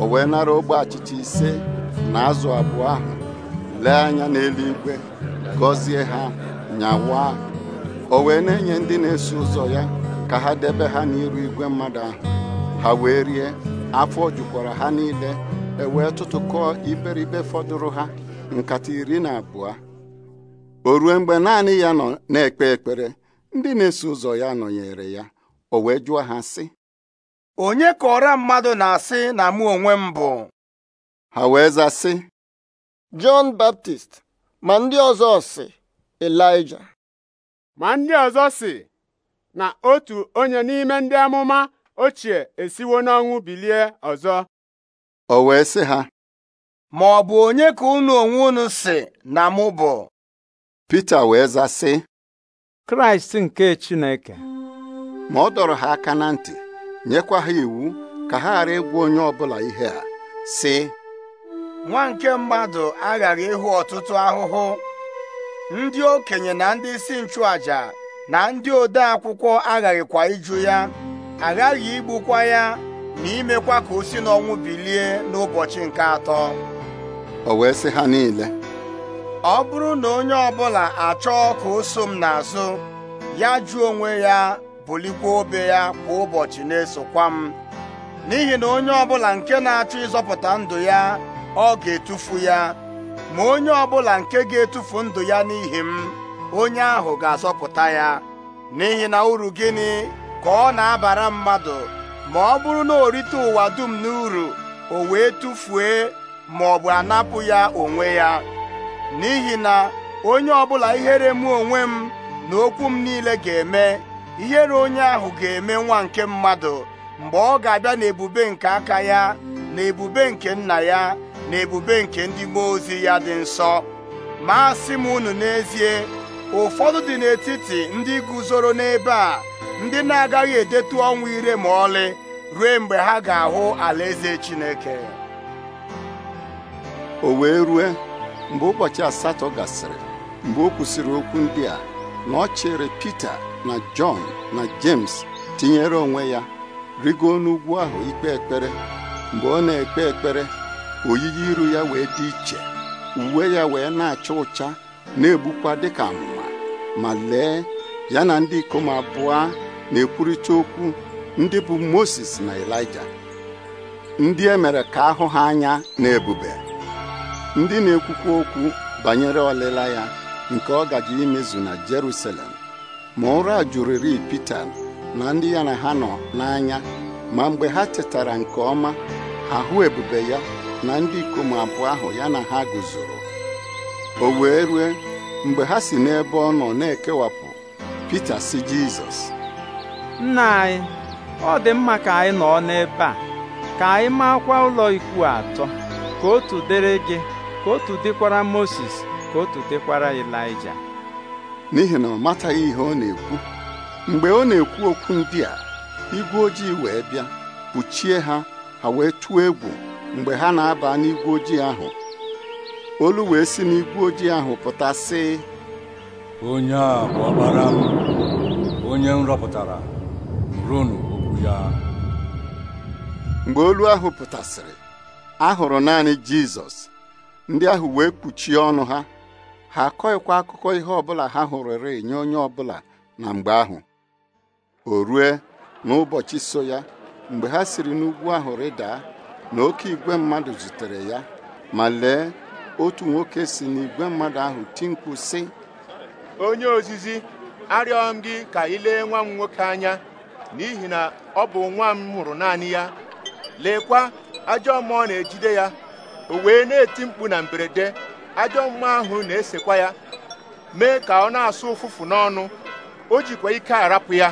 o wee nara ogbe achịcha ise na azụ abụọ ahụ lee anya n'eluigwe gọzie ha nyawa o wee na-enye ndị na-eso ụzọ ya ka ha debe ha n'iru igwe mmadụ ahụ ha wee rie afọ jukwara ha niile e wee tụtụkọọ iberibe fọdụrụ ha nkata iri na abụọ o ruo mgbe naanị ya na-ekpe ekpere ndị na-eso ụzọ ya nọnyere ya o wee jụọ ha sị onye kọrọ mmadụ na-asị na mụ onwe m bụ ha wee za sị Jọn Baptist ma ndị ọzọ si Elija ma ndị ọzọ si na otu onye n'ime ndị amụma ochie esiwo n'ọnwụ bilie ọzọ o wee sị ha ma ọ bụ onye ka unu onwe unu si na mụ bụ Pita wee za sị Kraịst nke Chineke ma ọ dọrọ ha aka na ntị nyekwa ha iwu ka ha ghara ịgwa onye ọbụla ihe a sị nwa nke mmadụ aghara ịhụ ọtụtụ ahụhụ ndị okenye na ndị isi nchụaja na ndị ode akwụkwọ aghaghịkwa ịjụ ya aghaghị igbukwa ya na imekwa ka o si n'ọnwụ bilie n'ụbọchị nke atọ o wee sị ha niile ọ bụrụ na onye ọbụla achọọ ka o so m n'azụ ya jụọ onwe ya bulikwa obe ya kwa ụbọchị na-esokwa m n'ihi na onye ọbụla nke na-achọ ịzọpụta ndụ ya ọ ga-etufu ya ma onye ọbụla nke ga-etufu ndụ ya n'ihi m onye ahụ ga-azọpụta ya n'ihi na uru gịnị ka ọ na-abara mmadụ ma ọ bụrụ na o rite ụwa dum uru o wee tụfuo ma ọ bụ anapụ ya onwe ya n'ihi na onye ọbụla ihere mụ onwe m na okwu m niile ga-eme ihere onye ahụ ga-eme nwa nke mmadụ mgbe ọ ga-abịa n'ebube nke aka ya na ebube nke nna ya na ebube nke ndị mmụọ ozi ya dị nsọ ma asị m unu n'ezie ụfọdụ dị n'etiti ndị guzoro n'ebe a ndị na-agaghị edetu ọnwụ ire ma ọlị ruo mgbe ha ga-ahụ alaeze Chineke o wee rue mgbe ụbọchị asatọ gasịrị mgbe o kwụsịrị okwu ndị a na ọ chere Pita na Jọn na James tinyere onwe ya rigo n'ugwu ahụ ikpe ekpere mgbe ọ na-ekpe ekpere oyiyi iru ya wee dị iche uwe ya wee na-acha ụcha na-egbukwa dịka amụma ma lee ya na ndị ikom abụọ na-ekwurịta okwu ndị bụ Moses na Elija ndị e mere ka ahụ ha anya na ebube ndị na-ekwukwa okwu banyere ọlịla ya nke ọ gaji imezu na Jerusalem ma ụra jụrịrị Pita na ndị ya na ha nọ n'anya ma mgbe ha tetara nke ọma ahụ ebube ya na ndị ikom abụọ ahụ ya na ha guzoro o wee rue mgbe ha si n'ebe ọ nọ na-ekewapụ Pita si Jizọs nna anyị ọ dị mma ka anyị nọ n'ebe a ka anyị maakwa ụlọ ikwu atọ ka otu dịrị gị ka otu dịkwara Moses ka otu dịkwara Ịlaịja n'ihi na ọ mataghị ihe ọ na-ekwu mgbe ọ na-ekwu okwu ndị a igwe ojii wee bịa kpuchie ha ha wee tụọ egwu mgbe ha na-aba n'igwe ojii ahụ olu wee si n'igwe ojii ahụ pụta sị onye a bụ ọkpara m onye m rọpụtara ronu okwu ya mgbe olu ahụ pụtasịrị ahụrụ naanị jizọs ndị ahụ wee kpuchie ọnụ ha ha akọghịkwa akụkọ ihe ọbụla ha hụrụrị nye onye ọbụla na mgbe ahụ o rue n'ụbọchị so ya mgbe ha siri n'ugwu ahụ rịdaa na oke igwe mmadụ zutere ya ma lee otu nwoke si n'igwe mmadụ ahụ ti si onye ozizi arịọ m gị ka ị lee nwa m nwoke anya n'ihi na ọ bụ nwa m mụrụ naanị ya leekwa ajọ ọ na-ejide ya o wee na-eti mkpu na mberede ajọ mmụọ ahụ na-esekwa ya mee ka ọ na-asụ ụfụfụ n'ọnụ o jikwa ike arapụ ya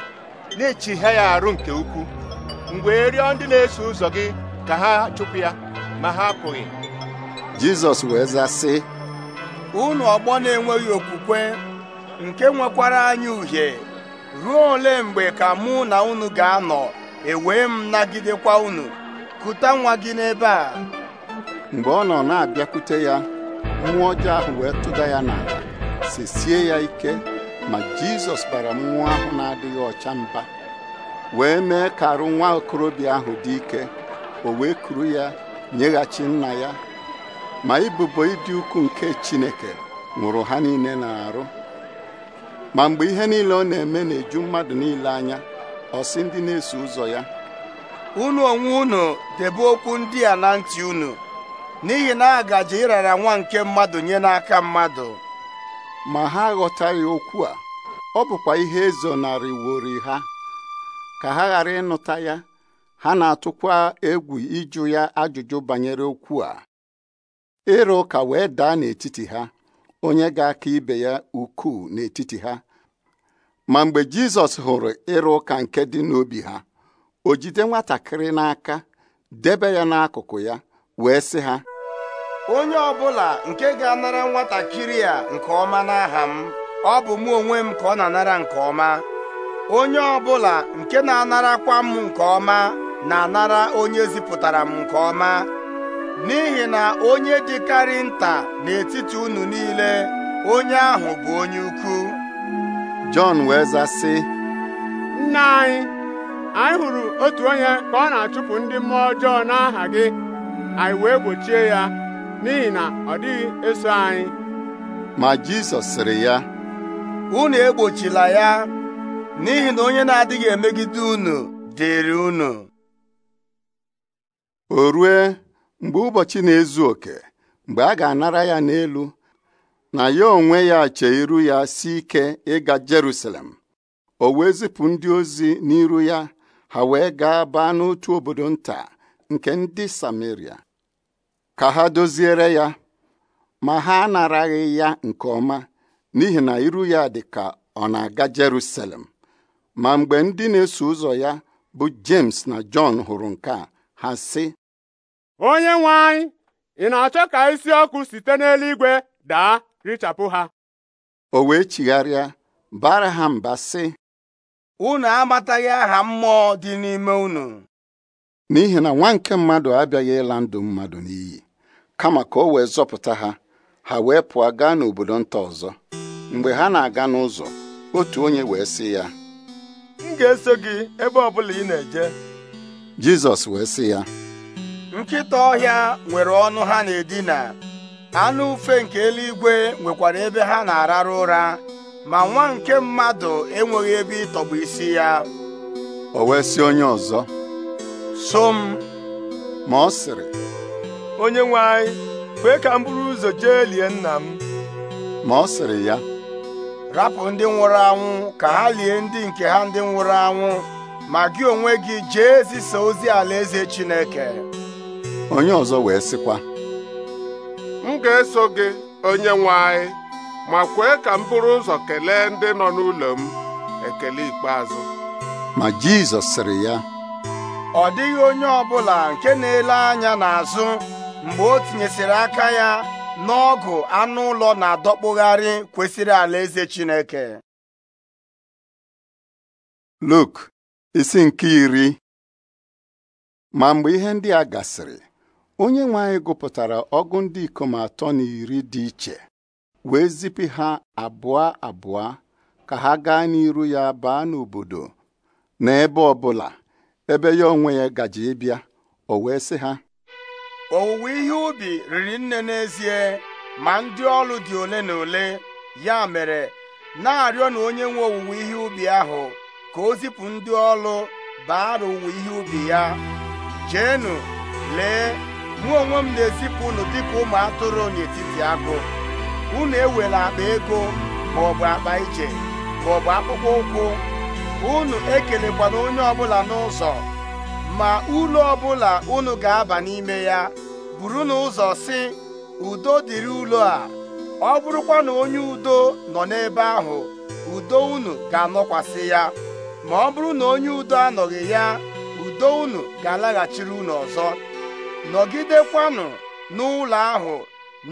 na-echihịa ya arụ nke ukwuu mgbe rịọ ndị na-eso ụzọ gị ka ha chụpụ ya ma ha apụghị jizọs wee zaa sị unu ọgbọ na-enweghị okwukwe nke nwekwara anyị uhie ruo ole mgbe ka mụ na unu ga-anọ ewee m nagidekwa unu kụta nwa gị n'ebe a mgbe ọ nọ na-abịakwute ya mmụọ ọjọọ ahụ wee tụda ya n'ala sesie ya ike ma jizọs bara mmụọ ahụ na-adịghị ọcha mba wee mee ka arụ nwa okorobịa ahụ dị ike o wee kuru ya nyeghachi nna ya ma ibubo ịdị ukwu nke Chineke nwụrụ ha niile na-arụ ma mgbe ihe niile ọ na-eme na-eju mmadụ niile anya ọ sị ndị na-eso ụzọ ya unu onwe unu debe okwu ndị a na ntị unu n'ihi na a gaje ịrara nwa nke mmadụ nye n'aka mmadụ ma ha aghọtaghị okwu a ọ bụkwa ihe wori ha ka ha ghara ịnụta ya ha na-atụkwa egwu ịjụ ya ajụjụ banyere okwu a ịrụ ụka wee daa n'etiti ha onye ga-aka ibe ya ukwuu n'etiti ha ma mgbe Jizọs hụrụ ịrụ ụka nke dị n'obi ha o jide nwatakịrị n'aka debe ya n'akụkụ ya wee sị ha onye ọbụla nke ga-anara nwatakịrị a nke ọma n'aha m ọ bụ mụ onwe m ka ọ na-anara nke ọma onye ọbụla nke na-anarakwa m nke ọma na-anara onye zipụtara m nke ọma n'ihi na onye dịkarị nta n'etiti unu niile onye ahụ bụ onye ukwu Jọn wee zasị nna anyị anyị hụrụ otu onye ka ọ na-achụpụ ndị mmụọ ọjọọ n'aha gị anyị wee gbochie ya n'ihi na ọ dịghị eso anyị ma Jisọs sịrị ya unu egbochila ya n'ihi na onye na-adịghị emegide unu dịrị unu o rue mgbe ụbọchị na-ezu oke mgbe a ga-anara ya n'elu na ya onwe ya chee iru ya si ike ịga Jerusalem o wee zipụ ndị ozi n'iru ya ha wee gaa baa n'otu obodo nta nke ndị Samaria ka ha doziere ya ma ha anaraghị ya nke ọma n'ihi na iru ya dị ka ọ na-aga Jerusalem ma mgbe ndị na-eso ụzọ ya bụ James na John hụrụ nke a ha sị onye nwe anyị ị na-achọ ka isi ọkụ site n'eluigwe daa richapụ ha o wee chigharịa bara ha mba sị unu amataghị aha mmụọ dị n'ime unu n'ihi na nwa nke mmadụ abịaghị ịla ndụ mmadụ n'iyi kama ka o wee zọpụta ha ha wee pụọ gaa n'obodo nta ọzọ mgbe ha na-aga n'ụzọ otu onye wee sị ya m ga-eso gị ebe ọ bụla ị na-eje jizọs wee sị ya nkịta ọhịa nwere ọnụ ha na-edina anụ ufe nke eluigwe nwekwara ebe ha na-arara ụra ma nwa nke mmadụ enweghị ebe ịtọgbụ isi ya o wee sị onye ọzọ so m ma ọ sịrị onye nwe anyị kwee ka m buru ụzọ jee lie nna m ma ọ sịrị ya rapụ ndị nwụrụ anwụ ka ha lie ndị nke ha ndị nwụrụ anwụ ma gị onwe gị jee zisa ozi alaeze Chineke onye ọzọ wee sịkwa m ga-eso gị onye nwe anyị ma kwee ka m bụrụ ụzọ kelee ndị nọ n'ụlọ m ekele ikpeazụ ma Jizọs sịrị ya ọ dịghị onye ọbụla nke na-ele anya n'azụ mgbe o tinyesịrị aka ya n'ọgụ anụ ụlọ na-adọkpụgharị kwesịrị alaeze Chineke Luk isi nke iri ma mgbe ihe ndị a gasịrị onye nwe gụpụtara ọgụ ndị ikom atọ na iri dị iche wee zipụ ha abụọ abụọ ka ha gaa n'iru ya baa n'obodo na ebe ọbụla ebe ya onwe ya gaji ịbịa o wee sị ha owuwe ihe ubi riri nne n'ezie ma ndị ọrụ dị ole na ole ya mere na-arịọ na onye nwe owuwe ihe ubi ahụ ka o zipụ ndị ọlụ baara ụwa ihe ubi ya jeenu lee mụ onwe m na-ezipụ unu dịka ụmụ atụrụ n'etiti agụ unu ewela akpa ego ma ọ bụ akpa ije ma ọ bụ akpụkpọ ụkwụ unu ekelekwana onye ọbụla n'ụzọ ma ụlọ ọbụla unu ga-aba n'ime ya buru n'ụzọ si udo dịrị ụlọ a ọ bụrụkwa na onye udo nọ n'ebe ahụ udo unu ga-anọkwasị ya ma ọ bụrụ na onye udo anọghị ya udo unu ga-alaghachiri unu ọzọ nọgidekwanụ n'ụlọ ahụ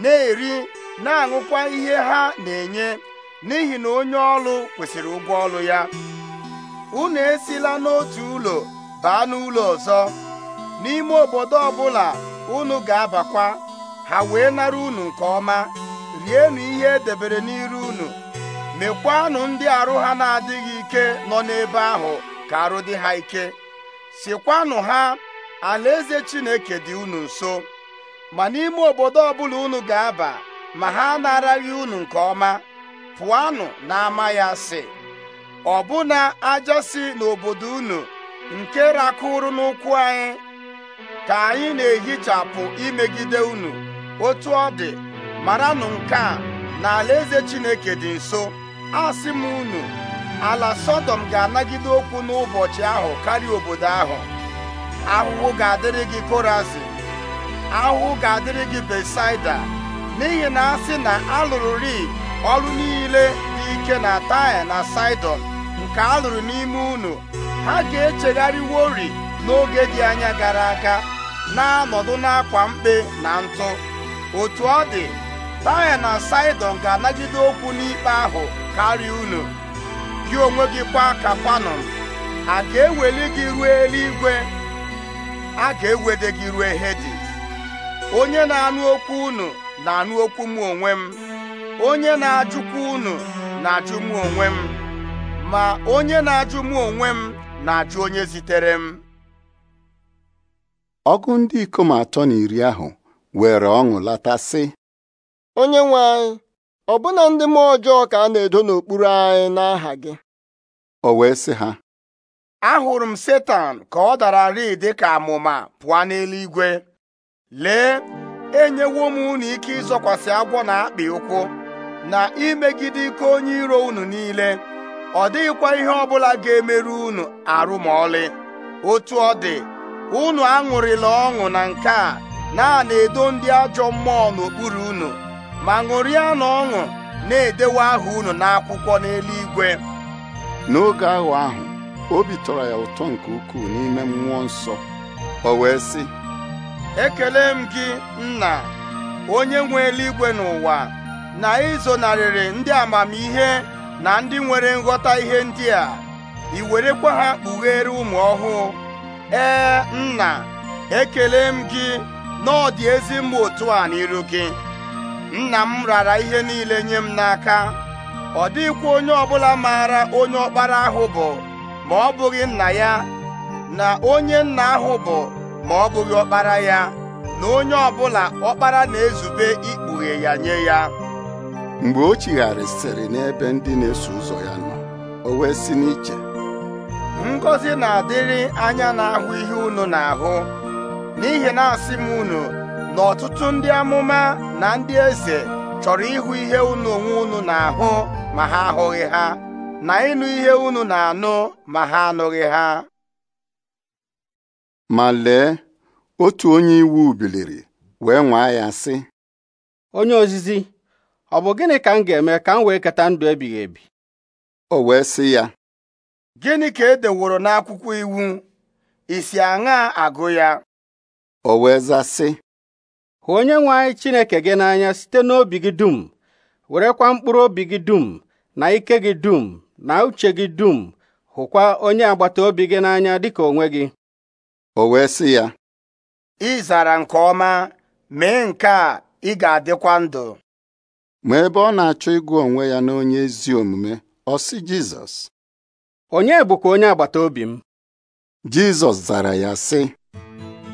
na-eri na-aṅụkwa ihe ha na-enye n'ihi na onye ọlụ kwesịrị ụgwọ ọlụ ya unu esila n'otu ụlọ baa n'ụlọ ọzọ n'ime obodo ọbụla unu ga-abakwa ha wee nara unu nke ọma rienụ ihe edebere n'iru unu mekwanụ ndị arụ ha na-adịghị ike nọ n'ebe ahụ ka arụ dị ha ike sikwanụ ha alaeze Chineke dị unu nso ma n'ime obodo ọbụla unu ga-aba ma ha anaraghị unu nke ọma pụọnụ ama ya sị ọbụna ajọ si n'obodo unu nke rakụrụ n'ụkwụ anyị ka anyị na-ehichapụ imegide unu otu ọ dị maranụ nke a na alaeze Chineke dị nso asị m unu ala sọdọm ga-anagide okwu n'ụbọchị ahụ karịa obodo ahụ ahụhụ ga-adịrị gị korazin ahụhụ ga-adịrị gị besaida n'ihi na asị na alụrụri ọrụ niile dị ike na taya na saidon nke alụrụ n'ime unu ha ga-echegharịwori n'oge dị anya gara aga na-anọdụ n'akwa mkpe na ntụ otu ọ dị taya na saidon ga-anagide okwu n'ikpe ahụ karịa unu gị onwe gị kwa ka fanọ, a ga-eweli gị ruo eluigwe a ga-ewede gị ruo hedi onye na-anụ okwu unu na-anụ okwu m onwe m onye na ajụkwu unu na-ajụ m onwe m ma onye na-ajụ m onwe m na-ajụ onye zitere m ọgụ ndị ikom atọ na iri ahụ were ọṅụ lata sị onye nwe anyị ọbụna ndị mmụọ ọjọọ ka a na-edo n'okpuru anyị n'aha gị o wee sị ha ahụrụ m setan ka ọ dara rii dị ka amụma pụọ n'eluigwe lee enyewo m unu ike ịzọkwasị agwọ na akpị ụkwụ na imegide ike onye iro unu niile ọ dịghịkwa ihe ọ bụla ga-emerụ unu arụ ma ọlị otu ọ dị unu aṅụrịla ọṅụ na nke a na-edo ndị ajọ mmụọ n'okpuru unu ma ṅụrịa na ọṅụ na-edewe aha unu n'akwụkwọ n'eluigwe n'oge ahụ ahụ obi tọrọ ya ụtọ nke ukwuu n'ime mmụọ nsọ o wee sị ekele m gị nna onye nwe eluigwe n'ụwa na ịzonarịrị ndị amamihe na ndị nwere nghọta ihe ndị a ị werekwa ha kpughere ụmụ ọhụụ ee nna ekele m gị na ọ dị ezi mma otu a n'iru gị nna m rara ihe niile nye m n'aka ọ dịghịkwa onye ọbụla maara onye ọkpara ahụ bụ ma ọ bụghị nna ya na onye nna ahụ bụ ma ọ bụghị ọkpara ya na onye ọbụla ọkpara na-ezube ikpughe ya nye ya mgbe o chigharịsịrị n'ebe ndị na-eso ụzọ ya nọ o wee si n'iche Ngozi na-adịrị anya na-ahụ ihe unu na-ahụ n'ihi na asị m unu na ọtụtụ ndị amụma na ndị eze chọrọ ịhụ ihe unu onwe unu na-ahụ ma ha ahụghị ha na ịnụ ihe unu na-anụ ma ha anụghị ha ma lee otu onye iwu biliri wee nwaa ya sị onye ozizi ọ bụ gịnị ka m ga-eme ka m wee keta ndụ ebighị ebi o wee sị ya gịnị ka e deworo n'akwụkwọ iwu isi aṅa agụ ya o wee za onye nwe anyị Chineke gị n'anya site n'obi gị dum werekwa mkpụrụ obi gị dum na ike gị dum na uche gị dum hụkwa onye agbata obi gị n'anya dịka onwe gị o wee sị ya ị zara nke ọma mee nke a ị ga-adịkwa ndụ ma ebe ọ na-achọ ịgụ onwe ya na onye ezi omume ọ sị Jizọs onye bụkwa onye agbata obi m Jizọs zara ya sị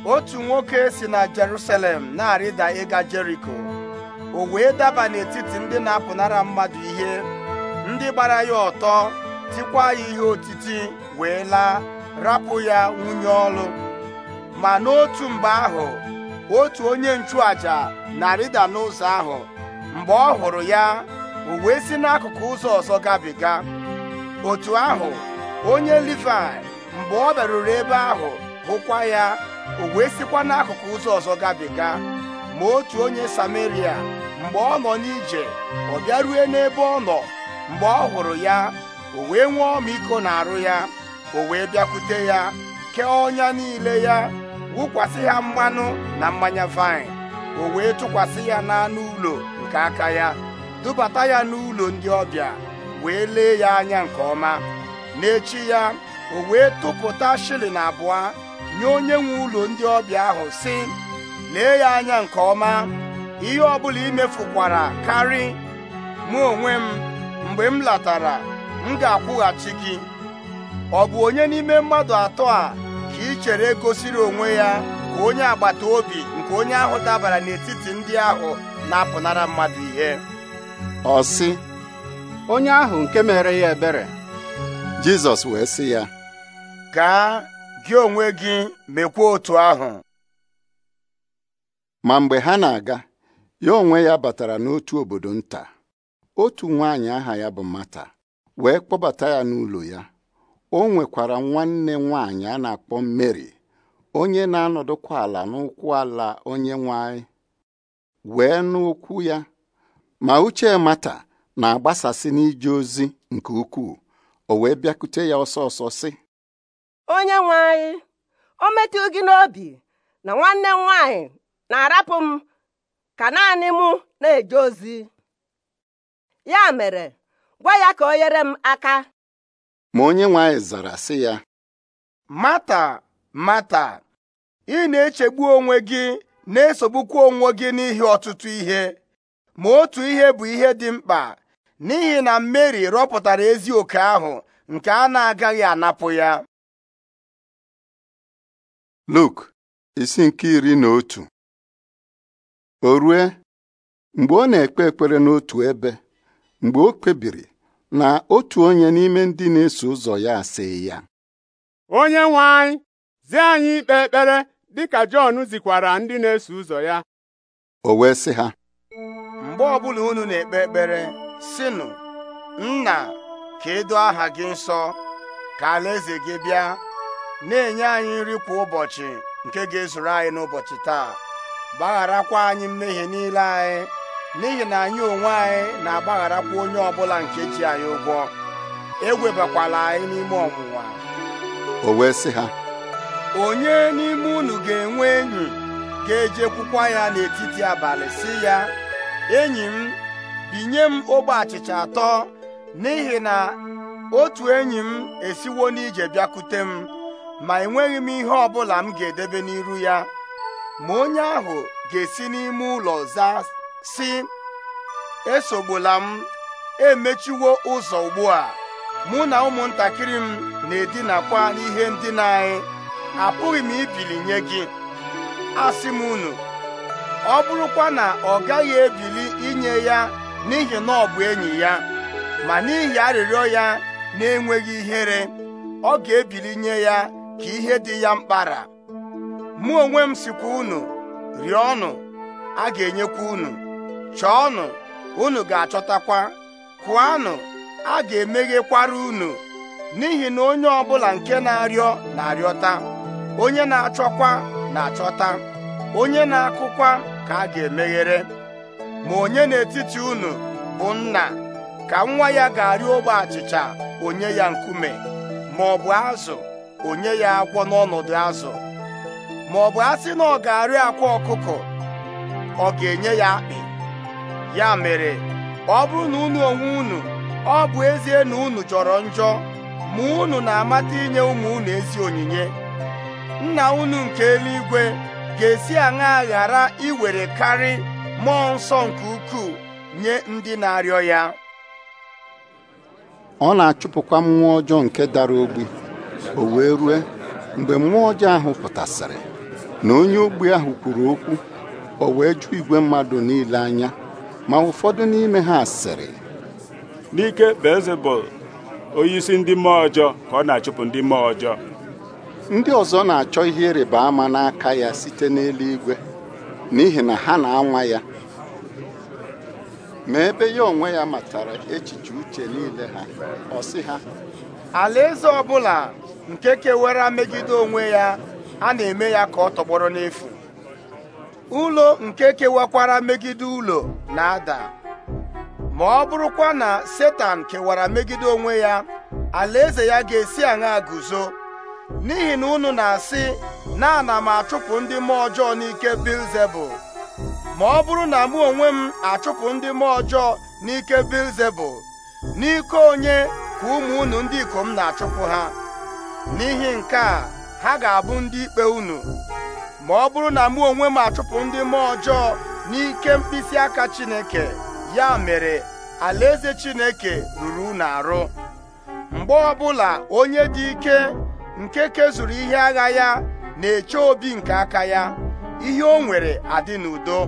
otu nwoke si na Jerusalem na-arịda ịga Jeriko o wee daba n'etiti ndị na-apụnara mmadụ ihe ndị gbara ya ọtọ tikwa ya ihe otiti wee laa rapụ ya nwunye ọlụ ma n'otu mgbe ahụ otu onye nchụaja na-arịda n'ụzọ ahụ mgbe ọ hụrụ ya o wee si n'akụkụ ụzọ ọzọ gabiga otu ahụ onye Livai mgbe ọ bịaruru ebe ahụ hụkwa ya o wee sikwa n'akụkụ ụzọ ọzọ gabiga ma otu onye Samaria mgbe ọ nọ n'ije ọ bịarue n'ebe ọ nọ mgbe ọ hụrụ ya o wee nwee ọmịiko arụ ya o wee bịakwute ya kee ọnya niile ya wụkwasị ya mmanụ na mmanya vaịn o wee tụkwasị ya n'anụ ụlọ nke aka ya dubata ya n'ụlọ ndị ọbịa wee lee ya anya nke ọma n'echi ya o wee tụpụta shilling abụọ nye onye nwe ụlọ ndị ọbịa ahụ sị lee ya anya nke ọma ihe ọ ọbụla imefukwara karị mụ onwe m mgbe m latara m ga-akwụghachi gị ọ bụ onye n'ime mmadụ atọ a ka ị chere gosiri onwe ya ka onye agbata obi nke onye ahụ dabara n'etiti ndị ahụ na-apụnara mmadụ ihe ọ sị onye ahụ nke mere ya ebere Jizọs wee sị ya gaa gị onwe gị mekwa otu ahụ ma mgbe ha na-aga ya onwe ya batara n'otu obodo nta otu nwaanyị aha ya bụ Mata wee kpọbata ya n'ụlọ ya o nwekwara nwanne nwaanyị a na-akpọ Mary onye na-anọdụkwa ala n'ụkwụ ala onye nwanyị wee n'ụkwụ ya ma uche Mata na-agbasasị n'ije ozi nke ukwuu o wee bịakute ya ọsọ ọsọ sị onye nwe o metụ gị n'obi na nwanne m nwaanyị na-arapụ m ka naanị mụ na-eje ozi ya mere gwa ya ka o nyere m aka ma onye nwanyị zara sị ya mata mata ị na-echegbu onwe gị na-esogbukwa onwe gị n'ihi ọtụtụ ihe ma otu ihe bụ ihe dị mkpa n'ihi na Meri rọpụtara ezi oke ahụ nke a na-agaghị anapụ ya Luk isi nke iri na otu o rue mgbe ọ na-ekpe ekpere n'otu ebe mgbe o kpebiri na otu onye n'ime ndị na-eso ụzọ ya asịghị ya onye nwe anyị zi anyị ikpe ekpere dị ka Jọn zikwara ndị na-eso ụzọ ya o wee sị ha mgbe ọbụla unu na-ekpe ekpere sinu nna ka e aha gị nsọ ka alaeze gị bịa na-enye anyị nri kwa ụbọchị nke ga-ezuru anyị n'ụbọchị taa gbagharakwa anyị mmehie niile anyị n'ihi na anyị onwe anyị na-agbagharakwa onye ọbụla nke ji anyị ụgwọ egwebakwala anyị n'ime ọnwụnwa o wee sị ha onye n'ime unu ga-enwe enyi ga-ejekwukwa ya n'etiti abalị si ya enyi m binye m ogbe achịcha atọ n'ihi na otu enyi m esiwo n'ije bịakute m ma enweghị m ihe ọ bụla m ga-edebe n'iru ya ma onye ahụ ga-esi n'ime ụlọ zaa si esogbula m emechiwo ụzọ ugbu a mụ na ụmụntakịrị m na-edinakwa n'ihe ndina anyị apụghị m ibili nye gị asị m unu ọ bụrụkwa na ọ gaghị ebili inye ya n'ihi na ọ bụ enyi ya ma n'ihi arịrịọ ya na-enweghị ihere ọ ga-ebili nye ya ka ihe dị ya mkpara mụ onwe m sikwa unu rịọnụ a ga-enyekwa unu chọọnụ unu ga-achọtakwa kụanụ a ga-emeghekwara unu n'ihi na onye ọbụla nke na-arịọ na-arịọta onye na-achọkwa na-achọta onye na-akụkwa ka a ga-emeghere ma onye n'etiti unu bụ nna ka nwa ya ga-arịọ ogbe achịcha onye ya nkume ma ọ bụ azụ onye ya akwọ n'ọnọdụ azụ ma ọ bụ asị na ọ ga-arị akwa ọkụkọ ọ ga-enye ya akpị ya mere ọ bụrụ na unu onwe unu ọ bụ ezie na unu jọrọ njọ ma unu na-amata inye ụmụ unu ezi onyinye nna unu nke eluigwe ga-esi aṅa ghara iwere karị mmụọ nsọ nke ukwuu nye ndị na-arịọ ya ọ na-achụpụkwa mmụọ ọjọọ nke dara ogbi o wee rue mgbe mmụọ ọjọọ ahụ pụtasịrị na onye ogbi ahụ kwuru okwu o wee jụ igwe mmadụ niile anya ma ụfọdụ n'ime ha sịrị n'ike bezebụl onye isi ndị mmụọ ọjọọ ka ọ na-achụpụ ndị mmụọ ọjọọ ndị ọzọ na-achọ ihe ịrịba ama n'aka ya site n'eluigwe n'ihi na ha na-anwa ya ma ebe ya onwe ya matara echiche uche niile ha ọ sị ha alaeze ọbụla nke kewara megide onwe ya a na-eme ya ka ọ tọgbọrọ n'efu ụlọ nke kewakwara megide ụlọ na-ada ma ọ bụrụkwa na setan kewara megide onwe ya alaeze ya ga-esi aṅa guzo n'ihi na unu na-asị na ana m achụpụ ndị mmụọ ọjọọ n'ike bilzebul ma ọ bụrụ na mụ onwe m achụpụ ndị mmụọ ọjọọ n'ike bilzebul n'ike onye ka ụmụ unu ndị ikom na-achụpụ ha n'ihi nke a ha ga-abụ ndị ikpe unu ma ọ bụrụ na mụ onwe m achụpụ ndị mmụọ ọjọọ n'ike mkpịsị aka Chineke ya mere alaeze Chineke ruru unu arụ mgbe ọbụla onye dị ike nke kezuru ihe agha ya na-eche obi nke aka ya ihe o nwere adị n'udo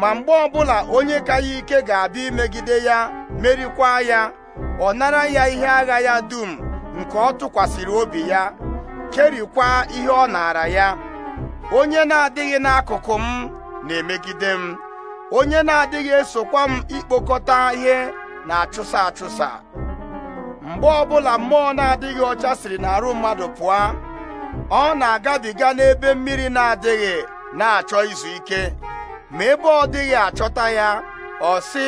ma mgbe ọbụla onye ka ya ike ga-abịa imegide ya merikwa ya ọ nara ya ihe agha ya dum nke ọ tụkwasịrị obi ya kerikwa ihe ọ naara ya onye na-adịghị n'akụkụ m na-emegide m onye na-adịghị esokwa m ikpokọta ihe na-achụsa achụsa mgbe ọbụla mmụọ na-adịghị ọcha siri n'arụ mmadụ pụọ ọ na-agabiga n'ebe mmiri na-adịghị na-achọ izu ike ma ebe ọ dịghị achọta ya ọ sị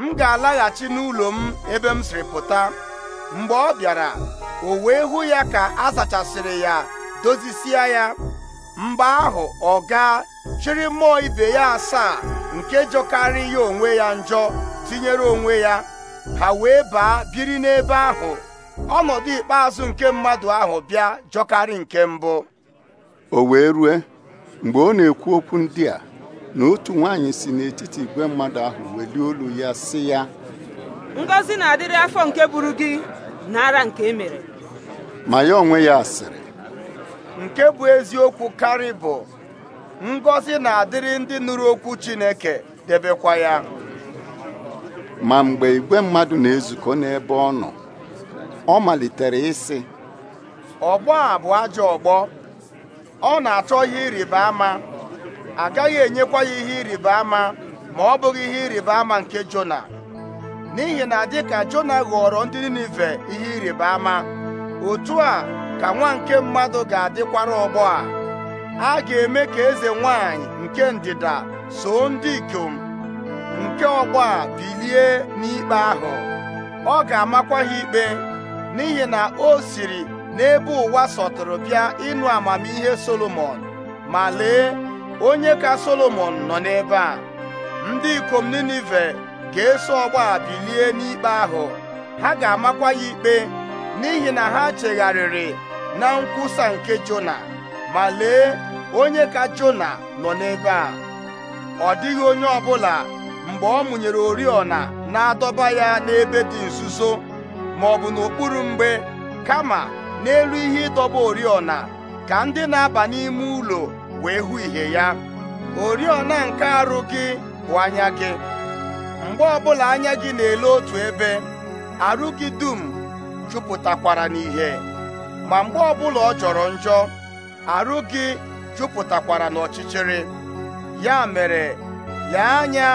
m ga-alaghachi n'ụlọ m ebe m siri pụta mgbe ọ bịara o wee ya ka a zachasịrị ya dozisie ya mgbe ahụ ọ gaa chịrị mmụọ ibe ya asaa nke jọkarị ya onwe ya njọ tinyere onwe ya ha wee baa biri n'ebe ahụ ọnọdụ ikpeazụ nke mmadụ ahụ bịa jọkarị nke mbụ o wee rue mgbe ọ na-ekwu okwu ndị a na otu nwaanyị si n'etiti igwe mmadụ ahụ welie olu ya si ya Ngozi na-adịrị afọ nke buru gị nara nke emere ma ya onwe ya sịrị nke bụ eziokwu karị bụ ngọzi na-adịrị ndị nụrụ okwu Chineke debekwa ya ma mgbe igwe mmadụ na-ezukọ n'ebe ọ nọ ọ malitere ịsị ọgbọ a bụ ajọ ọgbọ ọ na-achọ ihe ịrịba ama agaghị enyekwa ya ihe ịrịba ama ma ọ bụghị ihe ịrịba ama nke Jona n'ihi na dịka Jona ghọrọ ndị Ninive ihe ịrịba ama otu a ka nwa nke mmadụ ga-adịkwara ọgbọ a a ga-eme ka eze nwanyị nke ndịda so ndị ikom nke ọgbọ a bilie n'ikpe ahụ ọ ga-amakwa ha ikpe n'ihi na o siri n'ebe ụwa sọtụrụ bịa ịnụ amamihe Solomon ma lee onye ka Solomon nọ n'ebe a ndị ikom Ninive ka eso ọgba bilie n'ikpe ahụ ha ga-amakwa ya ikpe n'ihi na ha chegharịrị na nkwusa nke Jona ma lee onye ka Jona nọ n'ebe a ọ dịghị onye ọbụla mgbe ọ mụnyere oriọna na-adọba ya n'ebe dị nzuzo ma ọ bụ n'okpuru mgbe kama n'elu ihe ịdọba oriọna ka ndị na-aba n'ime ụlọ wee hụ ihe ya oriọna nke arụ gị bụ anya gị mgbe ọbụla anya gị na-ele otu ebe arụ gị dum jupụtakwara n'ihe ma mgbe ọbụla ọ jọrọ njọ arụ gị jupụtakwara n'ọchịchịrị ya mere ya anya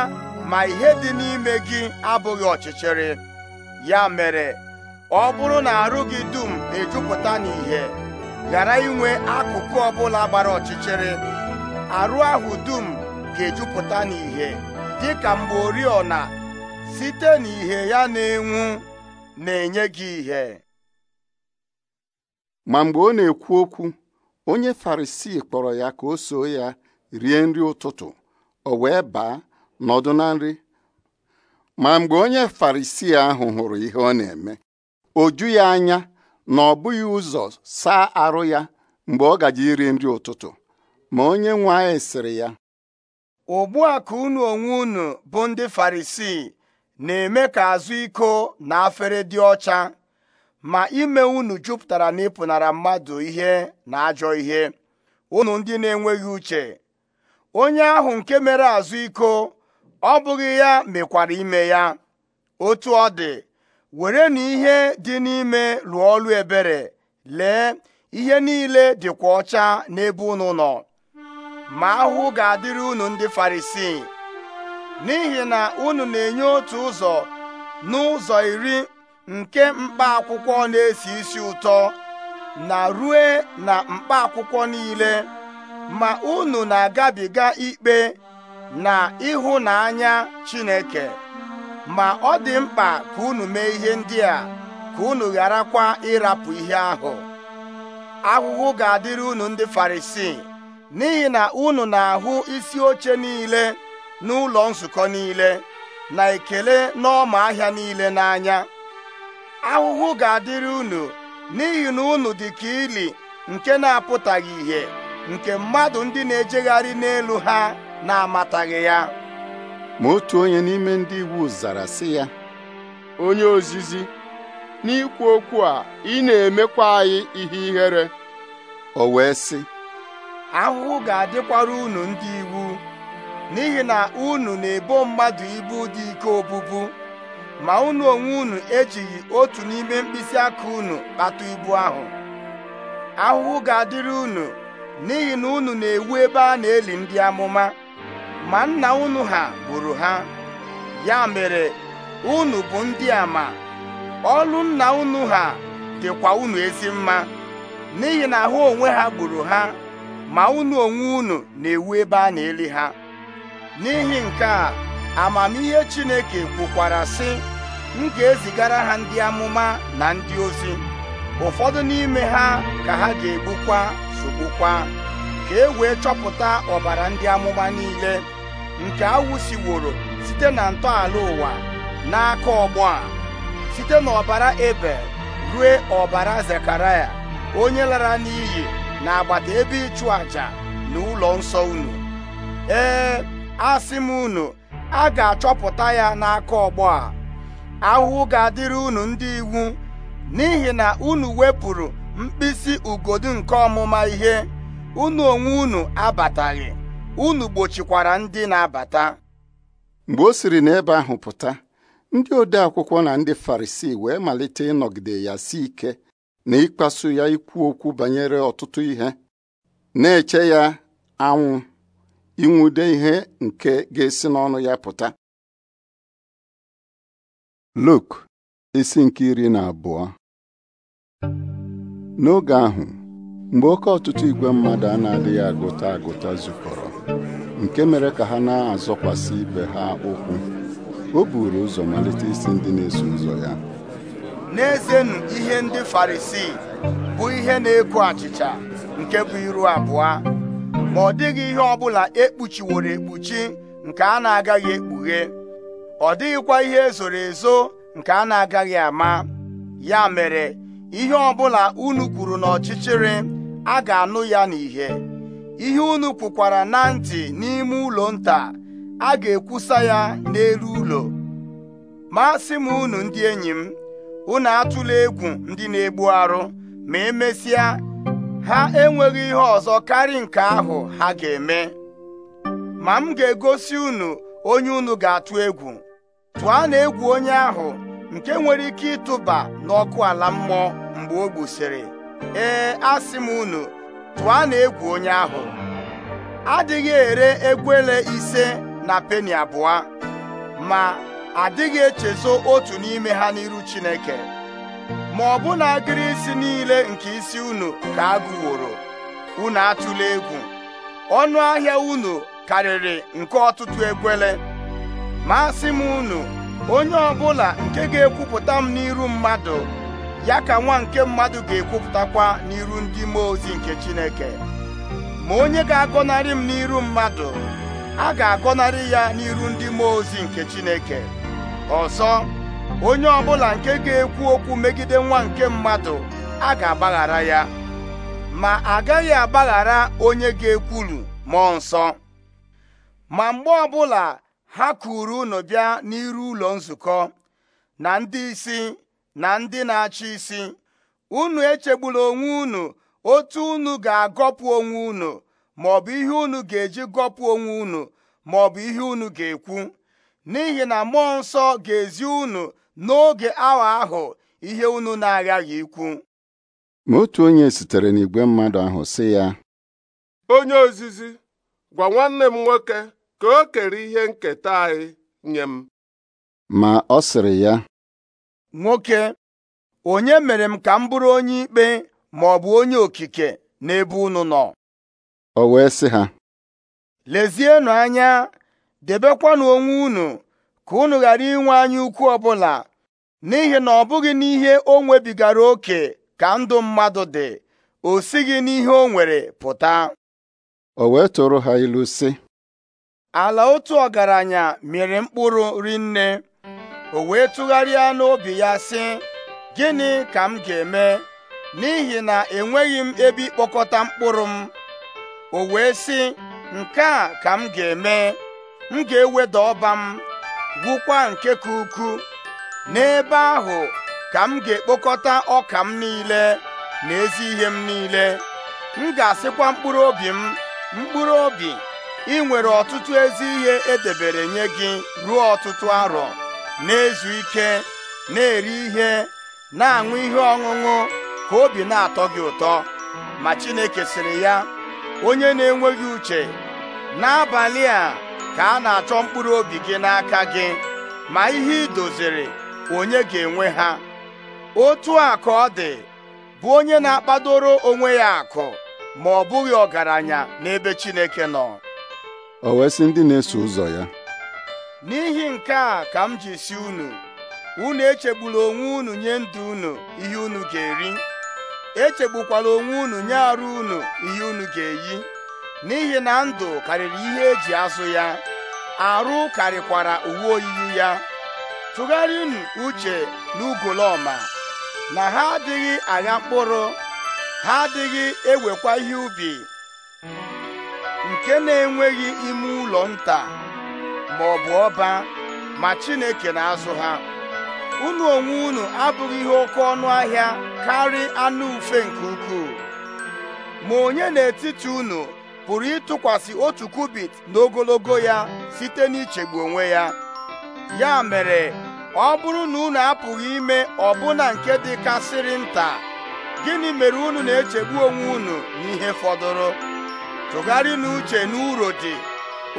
ma ihe dị n'ime gị abụghị ọchịchịrị ya mere ọ bụrụ na arụ gị dum ejupụta n'ihe ghara inwe akụkụ ọbụla gbara ọchịchịrị arụ ahụ dum ga-ejupụta n'ihe dị ka mgbe oriọna site n'ihe ya na-enwu na-enye gị ihe ma mgbe ọ na-ekwu okwu onye Farisii kpọrọ ya ka o soo ya rie nri ụtụtụ o wee baa nọdụ na nri ma mgbe onye Farisii ahụ hụrụ ihe ọ na-eme o ju ya anya na ọ bụghị ụzọ saa arụ ya mgbe ọ gaji iri nri ụtụtụ ma onye nwe anyị sịrị ya ugbu a ka unu onwe unu bụ ndị farisii na-eme ka azụ iko na afere dị ọcha ma ime unu jupụtara na ịpụnara mmadụ ihe na ajọ ihe unu ndị na-enweghị uche onye ahụ nke mere azụ iko ọ bụghị ya mekwara ime ya otu ọ dị were na ihe dị n'ime lụọ ọlụ ebere lee ihe niile dịkwa ọcha n'ebe unu nọ ma ahụhụ ga-adịrị unu ndị farisii n'ihi na unu na-enye otu ụzọ n'ụzọ iri nke mkpa akwụkwọ na-esi isi ụtọ na rue na mkpa akwụkwọ niile ma unu na-agabiga ikpe na ịhụnanya Chineke ma ọ dị mkpa ka unu mee ihe ndị a ka unu gharakwa ịrapụ ihe ahụ ahụhụ ga-adịrị unu ndị Farisii n'ihi na unu na-ahụ isi oche niile n'ụlọ nzukọ niile na ekele n'ọma ahịa niile n'anya ahụhụ ga-adịrị unu n'ihi na unu dị ka ili nke na-apụtaghị ihe nke mmadụ ndị na-ejegharị n'elu ha na-amataghị ya ma otu onye n'ime ndị iwu zara sị ya onye ozizi n'ikwu okwu a ị na-emekwa anyị ihe ihere o wee sị ahụhụ ga-adịkwara unu ndị iwu n'ihi na unu na-ebo mmadụ ibu dị ike obubu ma unu onwe unu ejighị otu n'ime mkpịsị aka unu kpata ibu ahụ ahụhụ ga-adịrị unu n'ihi na unu na-ewu ebe a na-eli ndị amụma ma nna unu ha gburu ha ya mere unu bụ ndị a ma ọlụ nna unu ha dịkwa unu ezi mma n'ihi na ahụ onwe ha gburu ha ma unu onwe unu na-ewu ebe a na-eli ha n'ihi nke a amamihe Chineke kwukwara sị m ga-ezigara ha ndị amụma na ndị ozi ụfọdụ n'ime ha ka ha ga-egbukwa sogbukwa ka e wee chọpụta ọbara ndị amụma niile nke awụsiworo site na ntọala ụwa n'aka ọgbọ a site n'ọbara Ebel rue ọbara Zekaraya onye lara n'iyi n'agbata ebe ịchụ àjà na ụlọ nsọ unu ee asị m unu a ga-achọpụta ya n'aka ọgbọ a ahụhụ ga-adịrị unu ndị iwu n'ihi na unu wepụrụ mkpịsị ugodu nke ọmụma ihe unu onwe unu abataghị unu gbochikwara ndị na-abata mgbe o siri n'ebe ahụ pụta ndị ode akwụkwọ na ndị Farisii wee malite ịnọgide ya si ike na ịkpasu ya ikwu okwu banyere ọtụtụ ihe na-eche ya anwụ inwude ihe nke ga-esi n'ọnụ ya pụta Luk isi nke iri na abụọ n'oge ahụ mgbe oke ọtụtụ igwe mmadụ a na-adịghị agụta agụta zukọrọ nke mere ka ha na-azọkwasị ibe ha ụkwụ o buru ụzọ malite isi ndị na-eso ụzọ ya n'ezenụ ihe ndị farisii bụ ihe na-eko achịcha nke bụ iru abụọ ma ọ dịghị ihe ọbụla ekpuchiworo ekpuchi nke a na-agaghị ekpughe ọ dịghịkwa ihe ezoro ezo nke a na-agaghị ama ya mere ihe ọbụla unu kwuru n'ọchịchịrị a ga-anụ ya n'ihe ihe unu kwukwara na ntị n'ime ụlọ nta a ga-ekwusa ya n'elu ụlọ ma sị m unu ndị enyi m unu atụla egwu ndị na-egbu arụ ma emesịa ha enweghị ihe ọzọ karị nke ahụ ha ga-eme ma m ga-egosi unu onye unu ga-atụ egwu tụọ na egwu onye ahụ nke nwere ike ịtụba n'ọkụ ala mmụọ mgbe o gbusịrị ee asị m unu tụọ na egwu onye ahụ adịghị ere egwele ise na peni abụọ ma adịghị echezo otu n'ime ha n'iru Chineke ma ọ bụ na agịrị isi niile nke isi unu ka a unu atụla egwu ọnụ ahịa unu karịrị nke ọtụtụ ekwele ma asị m unu onye ọbụla nke ga-ekwupụta m n'iru mmadụ ya ka nwa nke mmadụ ga-ekwupụtakwa n'iru ndị mmụọ ozi nke Chineke ma onye ga-agọnarị m n'iru mmadụ a ga-agọnarị ya n'iru ndị mmụọ ozi nke Chineke ọzọ onye ọbụla nke ga-ekwu okwu megide nwa nke mmadụ a ga-agbaghara ya ma agaghị agbaghara onye ga-ekwulu mmụọ nsọ ma mgbe ọbụla ha kuru unu bịa n'iru ụlọ nzukọ na ndị isi na ndị na-achị isi unu echegbula onwe unu otu unu ga-agọpụ onwe unu maọbụ ihe unu ga-eji gọpụ onwe unu maọbụ ihe unu ga-ekwu n'ihi na mmụọ nsọ ga-ezi unu n'oge awa ahụ ihe unu na-aghaghị ikwu ma otu onye sitere n'igwe mmadụ ahụ sị ya onye ozizi gwa nwanne m nwoke ka o kere ihe nketa anyị nye m ma ọ sịrị ya nwoke onye mere m ka m bụrụ onye ikpe ma ọ bụ onye okike n'ebe unu nọ o wee sị ha lezienụ anya debekwanụ onwe unu ka unu ghara inwe anya ukwu ọbụla n'ihi na ọ bụghị n'ihe o nwebigara oke ka ndụ mmadụ dị o sighị n'ihe o nwere pụta o wee tụrụ ha ilu sị ala otu ọgaranya mere mkpụrụ rinne o wee tụgharịa n'obi ya sị gịnị ka m ga-eme n'ihi na enweghị m ebe ịkpọkọta mkpụrụ m o wee sị nke a ka m ga-eme m ga-eweda ọba m gwụkwa nke ka ukwu n'ebe ahụ ka m ga-ekpokọta ọka m niile na ezi ihe m niile m ga-asịkwa mkpụrụ obi m mkpụrụ obi ị nwere ọtụtụ ezi ihe edebere nye gị ruo ọtụtụ arọ na-ezu ike na-eri ihe na-aṅụ ihe ọṅụṅụ ka obi na-atọ gị ụtọ ma Chineke sịrị ya onye na-enweghị uche n'abalị a ka a na-achọ mkpụrụ obi gị n'aka gị ma ihe ị doziri onye ga-enwe ha otu a ka ọ dị bụ onye na-akpadoro onwe ya akụ ma ọ bụghị ọgaranya n'ebe Chineke nọ o wee ndị na-eso ụzọ ya n'ihi nke a ka m ji si unu unu echegbula onwe unu nye ndụ unu ihe unu ga-eri echegbukwala onwe unu nye arụ unu ihe unu ga-eyi n'ihi na ndụ karịrị ihe eji azụ ya arụ karịkwara uwe oyiyi ya tụgharịnụ uche n'ugolọma na ha adịghị agha mkpụrụ ha adịghị ewekwa ihe ubi nke na-enweghị ime ụlọ nta ma ọ bụ ọba ma Chineke na-azụ ha unu onwe unu abụghị ihe oke ọnụ ahịa karị anụ ufe nke ukwuu ma onye n'etiti unu pụrụ ịtụkwasị otu kubit n'ogologo ya site n'ichegbu onwe ya ya mere ọ bụrụ na unu apụghị ime ọbụna nke dị kasịrị nta gịnị mere unu na-echegbu onwe unu n'ihe fọdụrụ tụgharị n'uche n'uro dị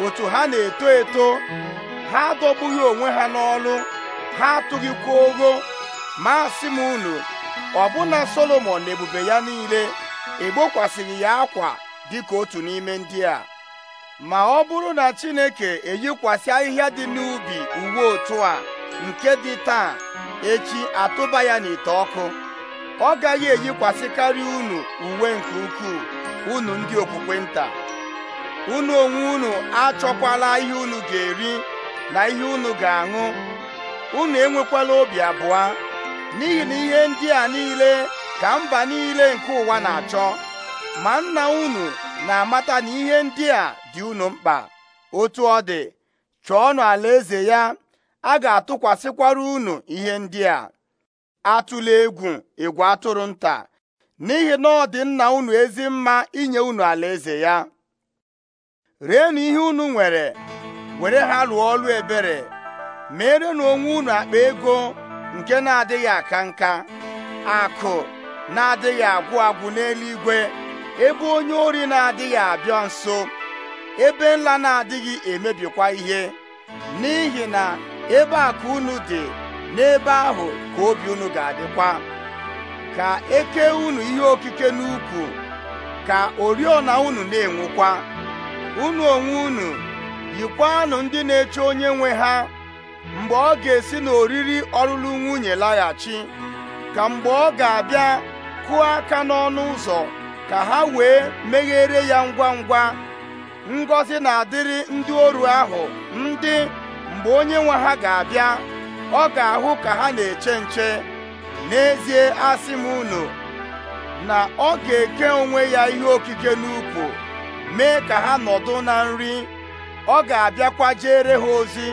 otu ha na-eto eto ha adọgbughị onwe ha n'ọlụ ha atụghịkwa ogo masị m unu ọbụna Solomon na ebube ya niile egbokwasịghị ya akwa dịka otu n'ime ndị a ma ọ bụrụ na Chineke eyikwasị ahịhịa dị n'ubi uwe otu a nke dị taa echi atụba ya n'ite ọkụ ọ gaghị karịa unu uwe nke ukwuu unu ndị okpukpe nta unu onwe unu achọkwala ihe unu ga-eri na ihe unu ga-aṅụ unu enwekwala obi abụọ n'ihi na ihe ndị a niile ka mba niile nke ụwa na-achọ ma nna unu na-amata na ihe ndị a dị unu mkpa otu ọ dị chọọnụ eze ya a ga-atụkwasịkwara unu ihe ndị a atụla egwu ịgwa atụrụ nta n'ihi na ọ dị nna unu ezi mma inye unu alaeze ya rienụ ihe unu nwere were ha lụọ ọlụ ebere na onwe unu akpa ego nke na-adịghị aka nka akụ na-adịghị agwụ agwụ n'eluigwe ebe onye ori na-adịghị abịa nso ebe nla na-adịghị emebikwa ihe n'ihi na ebe akụ unu dị n'ebe ahụ ka obi unu ga-adịkwa ka eke unu ihe okike n'ukwu ka oriọna unu na enwekwa unu onwe unu yikwanụ ndị na-eche onye nwe ha mgbe ọ ga-esi n'oriri ọlụlụ nwunye laghachi ka mgbe ọ ga-abịa kụọ aka n'ọnụ ụzọ ka ha wee meghere ya ngwa ngwa ngọzi na-adịrị ndị oru ahụ ndị mgbe onye nwe ha ga-abịa ọ ga-ahụ ka ha na-eche nche n'ezie asị m unu na ọ ga-eke onwe ya ihe okike n'ukwu mee ka ha nọdụ na nri ọ ga-abịakwa jere ha ozi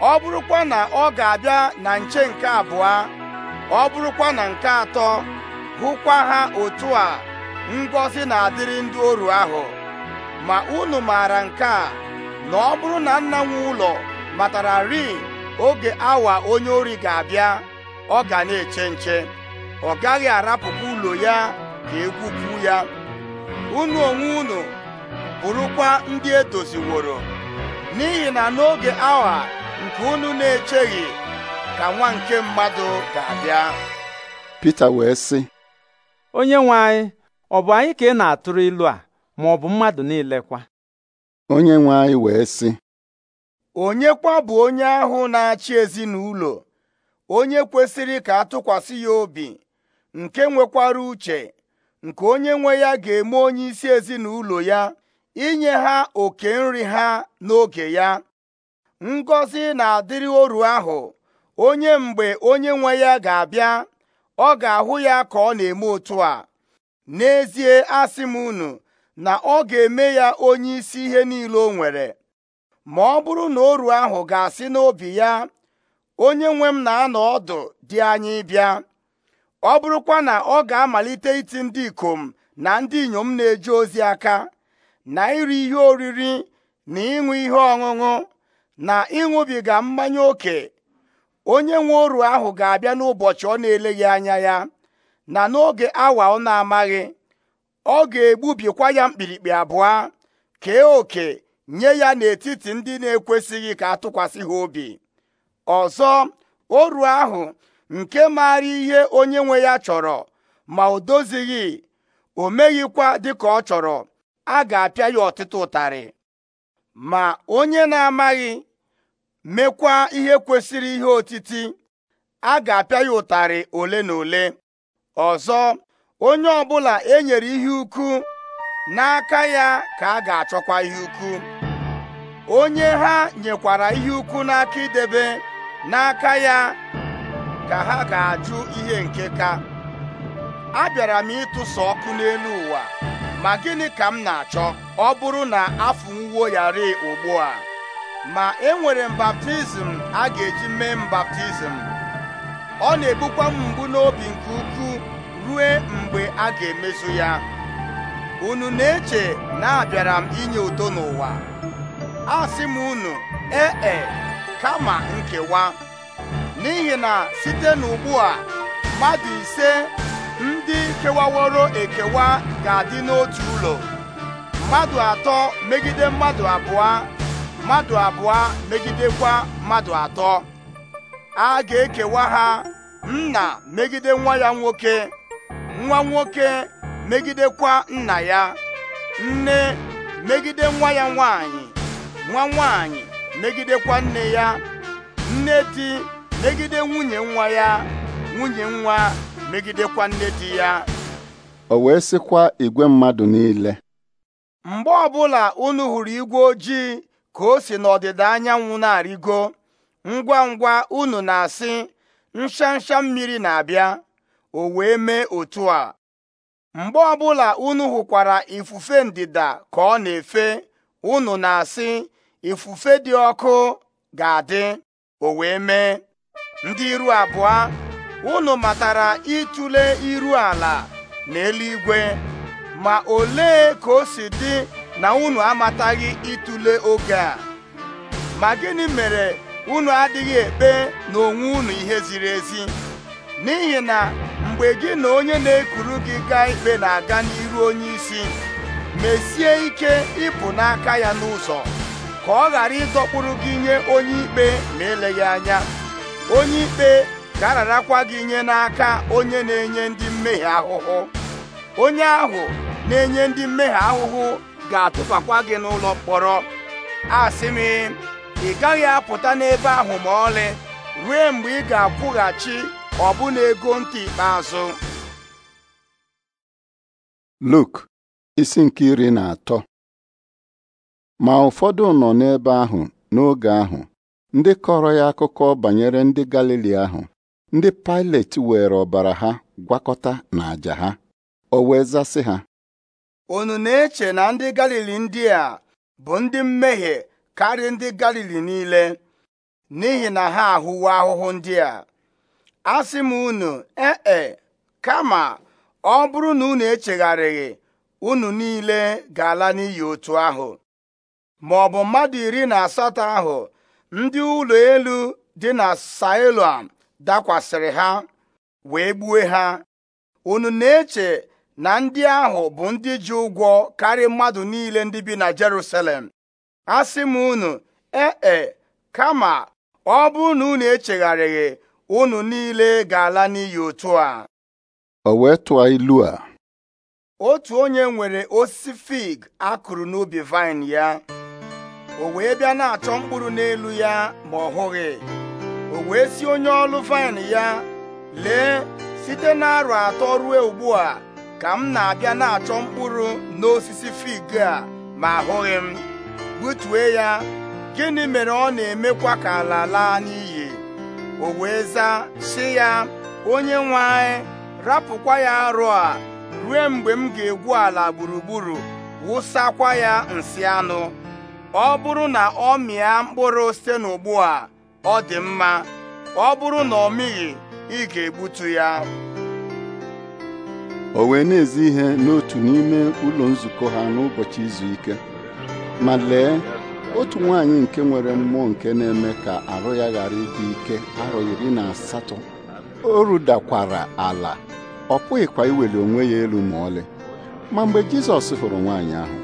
ọ bụrụkwa na ọ ga-abịa na nche nke abụọ ọ bụrụkwa na nke atọ hụkwa ha otu a ngọzi na-adịrị ndị oru ahụ ma unu maara nke a na ọ bụrụ na nna nwe ụlọ ri oge awa onye ori ga-abịa ọ ga na-eche nche ọ gaghị arapụkwa ụlọ ya ka egwupu ya unu onwe unu bụrụkwa ndị edoziworo n'ihi na n'oge awa nke unu na-echeghị ka nwa nke mmadụ ga-abịa Pita wee sị onye nwe anyị ọ bụ anyị ka ị na-atụrụ ilu a ma ọ bụ mmadụ niile kwa onye nwe anyị wee sị onye kwa bụ onye ahụ na-achị ezinụlọ onye kwesịrị ka atụkwasị ya obi nke nwekwara uche nke onye nwe ya ga-eme onye isi ezinụlọ ya inye ha oke nri ha n'oge ya Ngozi na-adịrị oru ahụ onye mgbe onye nwe ya ga-abịa ọ ga-ahụ ya ka ọ na-eme otu a n'ezie asị m unu na ọ ga-eme ya onye isi ihe niile o nwere ma ọ bụrụ na oru ahụ ga-asị n'obi ya onye nwe m na-anọ ọdụ dị anyị bịa ọ bụrụkwa na ọ ga-amalite iti ndị ikom na ndị inyom na-eje ozi aka na iri ihe oriri na ịṅụ ihe ọṅụṅụ na ịṅụbiga mmanya ókè onye nwe oru ahụ ga-abịa n'ụbọchị ọ na-eleghị anya ya na n'oge awa ọ na-amaghị ọ ga-egbubikwa ya mkpirikpi abụọ kee oke nye ya n'etiti ndị na-ekwesịghị ka atụkwasị ha obi ọzọ oru ahụ nke maara ihe onye nwe ya chọrọ ma o dozighị o meghịkwa dịka ọ chọrọ a ga-apịa ya ọtụtụ ụtarị ma onye na-amaghị mekwa ihe kwesịrị ihe otiti a ga-apịa ya ụtarị ole na ole ọzọ onye ọbụla e nyere ihe ukwu n'aka ya ka a ga-achọkwa ihe ukwu onye ha nyekwara ihe ukwu n'aka idebe n'aka ya ka ha ga-ajụ ihe nke ka abịara m ịtụsa ọkụ n'elu ụwa ma gịnị ka m na-achọ ọ bụrụ na afọ ya rịị ugbu a ma enwere m baptizim a ga-eji mee m baptizim ọ na-ebukwa m mgbu n'obi nke ukwuu rue mgbe a ga-emezu ya unu na-eche na abịara m inye udo n'ụwa a sị m unu ee e, kama nkewa n'ihi na site n'ugbu a mmadụ ise ndị kewaworo ekewa ga-adị n'otu ụlọ mmadụ atọ megide mmadụ abụọ mmadụ abụọ megidekwa mmadụ atọ a ga-ekewa ha nna megide nwa ya nwoke nwa nwoke megidekwa nna ya nne megide nwa ya nwanyị nwa nwanyị megidekwa nne ya nne di megide nwunye nwa ya nwunye nwa megidekwa nne di ya o wee sịkwa igwe mmadụ niile mgbe ọbụla unu hụrụ igwe ojii ka o si n'ọdịda anyanwụ na-arịgo ngwa ngwa unu na-asị nshansha mmiri na-abịa o wee mee otu a mgbe ọbụla unu hụkwara ifufe ndịda ka ọ na-efe unu na-asị ifufe dị ọkụ ga-adị o wee mee ndị iru abụọ unu matara ịtụle iru ala na eluigwe ma ole ka o si dị na unu amataghị ịtụle oge a ma gịnị mere unu adịghị ekpe na onwe unu ihe ziri ezi n'ihi na mgbe gị na onye na-ekuru gị gaa ikpe na-aga n'iru onye isi mesie ike ịpụ n'aka ya n'ụzọ ka ọ ghara ịdọkpụrụ gị nye onye ikpe ma eleghị anya onye ikpe ga ararakwa gị nye n'aka onye na-enye ndị mmehie ahụhụ onye ahụ na-enye ndị mmehie ahụhụ ga-atụfakwa gị n'ụlọ mkpọrọ asị m ị gaghị apụta n'ebe ahụ ma ọlị ruo mgbe ị ga-akwụghachi ọbụna ego ntị ikpeazụ Luk isi nke iri na atọ ma ụfọdụ nọ n'ebe ahụ n'oge ahụ ndị kọrọ ya akụkọ banyere ndị Galili ahụ ndị Pilet were ọbara ha gwakọta na àja ha o wee zasị ha unu na-eche na ndị Galili ndị a bụ ndị mmehie karịa ndị galili niile n'ihi na ha ahụwo ahụhụ ndị a asị m unu ee e, kama ọ bụrụ na unu echegharịghị unu niile ga-ala n'iyi otu ahụ ma ọ bụ mmadụ iri na asatọ ahụ ndị ụlọ elu dị na Siloam dakwasịrị ha wee gbue ha unu na-eche na ndị ahụ bụ ndị ji ụgwọ karịa mmadụ niile ndị bi na Jerusalem asị m unu ee e, kama ọ bụ na unu echegharịghị unu niile ga-ala n'iyi otu a o wee tụọ ilu a otu onye nwere osisi fig akụrụ n'ubi vaịn ya o wee bịa na-achọ mkpụrụ n'elu ya ma ọ hụghị o wee si onye ọlụ vaịn ya lee site na arọ atọ ruo ugbu a ka m na-abịa na-achọ mkpụrụ n'osisi fig a ma ahụghị m gbutue ya gịnị mere ọ na-emekwa ka ala laa n'iyi o wee zaa si ya onye nwe anyị rapụkwa ya arụ a ruo mgbe m ga-egwu ala gburugburu wụsakwa ya nsị anụ ọ bụrụ na ọ mịa mkpụrụ site n'ugbu a ọ dị mma ọ bụrụ na ọ mịghị ị ga-egbutu ya o wee na-ezi ihe n'otu n'ime ụlọ nzukọ ha n'ụbọchị izu ike ma lee otu nwaanyị nke nwere mmụọ nke na-eme ka arụ ya ghara ịdị ike arụ iri na asatọ o rudakwara ala ọ pụghịkwa iweli onwe ya elu ma ọlị ma mgbe Jizọs hụrụ nwaanyị ahụ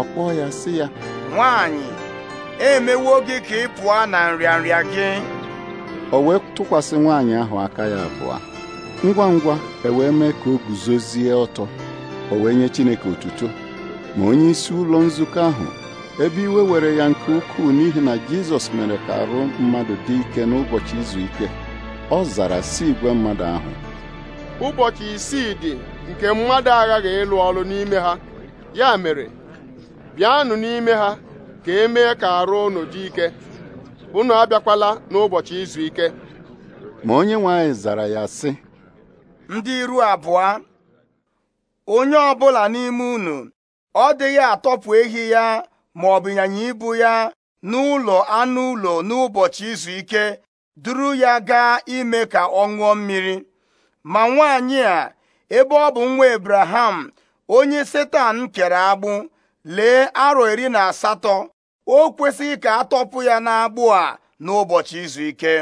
ọ kpọọ ya sị ya nwaanyị emewo gị ka ị pụọ na nrịanrịa gị o wee tụkwasị nwaanyị ahụ aka ya abụọ ngwa ngwa e wee mee ka o guzozie ọtọ o wee nye Chineke otuto ma onye isi ụlọ nzukọ ahụ ebe iwe were ya nke ukwuu n'ihi na Jizọs mere ka arụ mmadụ dị ike n'ụbọchị izu ike ọ zara si igwe mmadụ ahụ ụbọchị isii dị nke mmadụ aghaghị ịlụ ọrụ n'ime ha ya mere bịanụ n'ime ha ka e mee ka arụ unu dị ike unu abịakwala n'ụbọchị izu ike ma onye nwanyị zara ya sị ndị iru abụọ onye ọbụla n'ime unu ọ dịghị atọpụ ehi ya ma ọ bụ ịnyịnya ibu ya n'ụlọ anụ ụlọ n'ụbọchị izu ike duru ya gaa ime ka ọ ṅụọ mmiri ma nwaanyị a ebe ọ bụ nwa Abraham onye Setan kere agbụ lee arọ iri na asatọ o kwesịghị ka a tọpụ ya n'agbụ a n'ụbọchị izu ike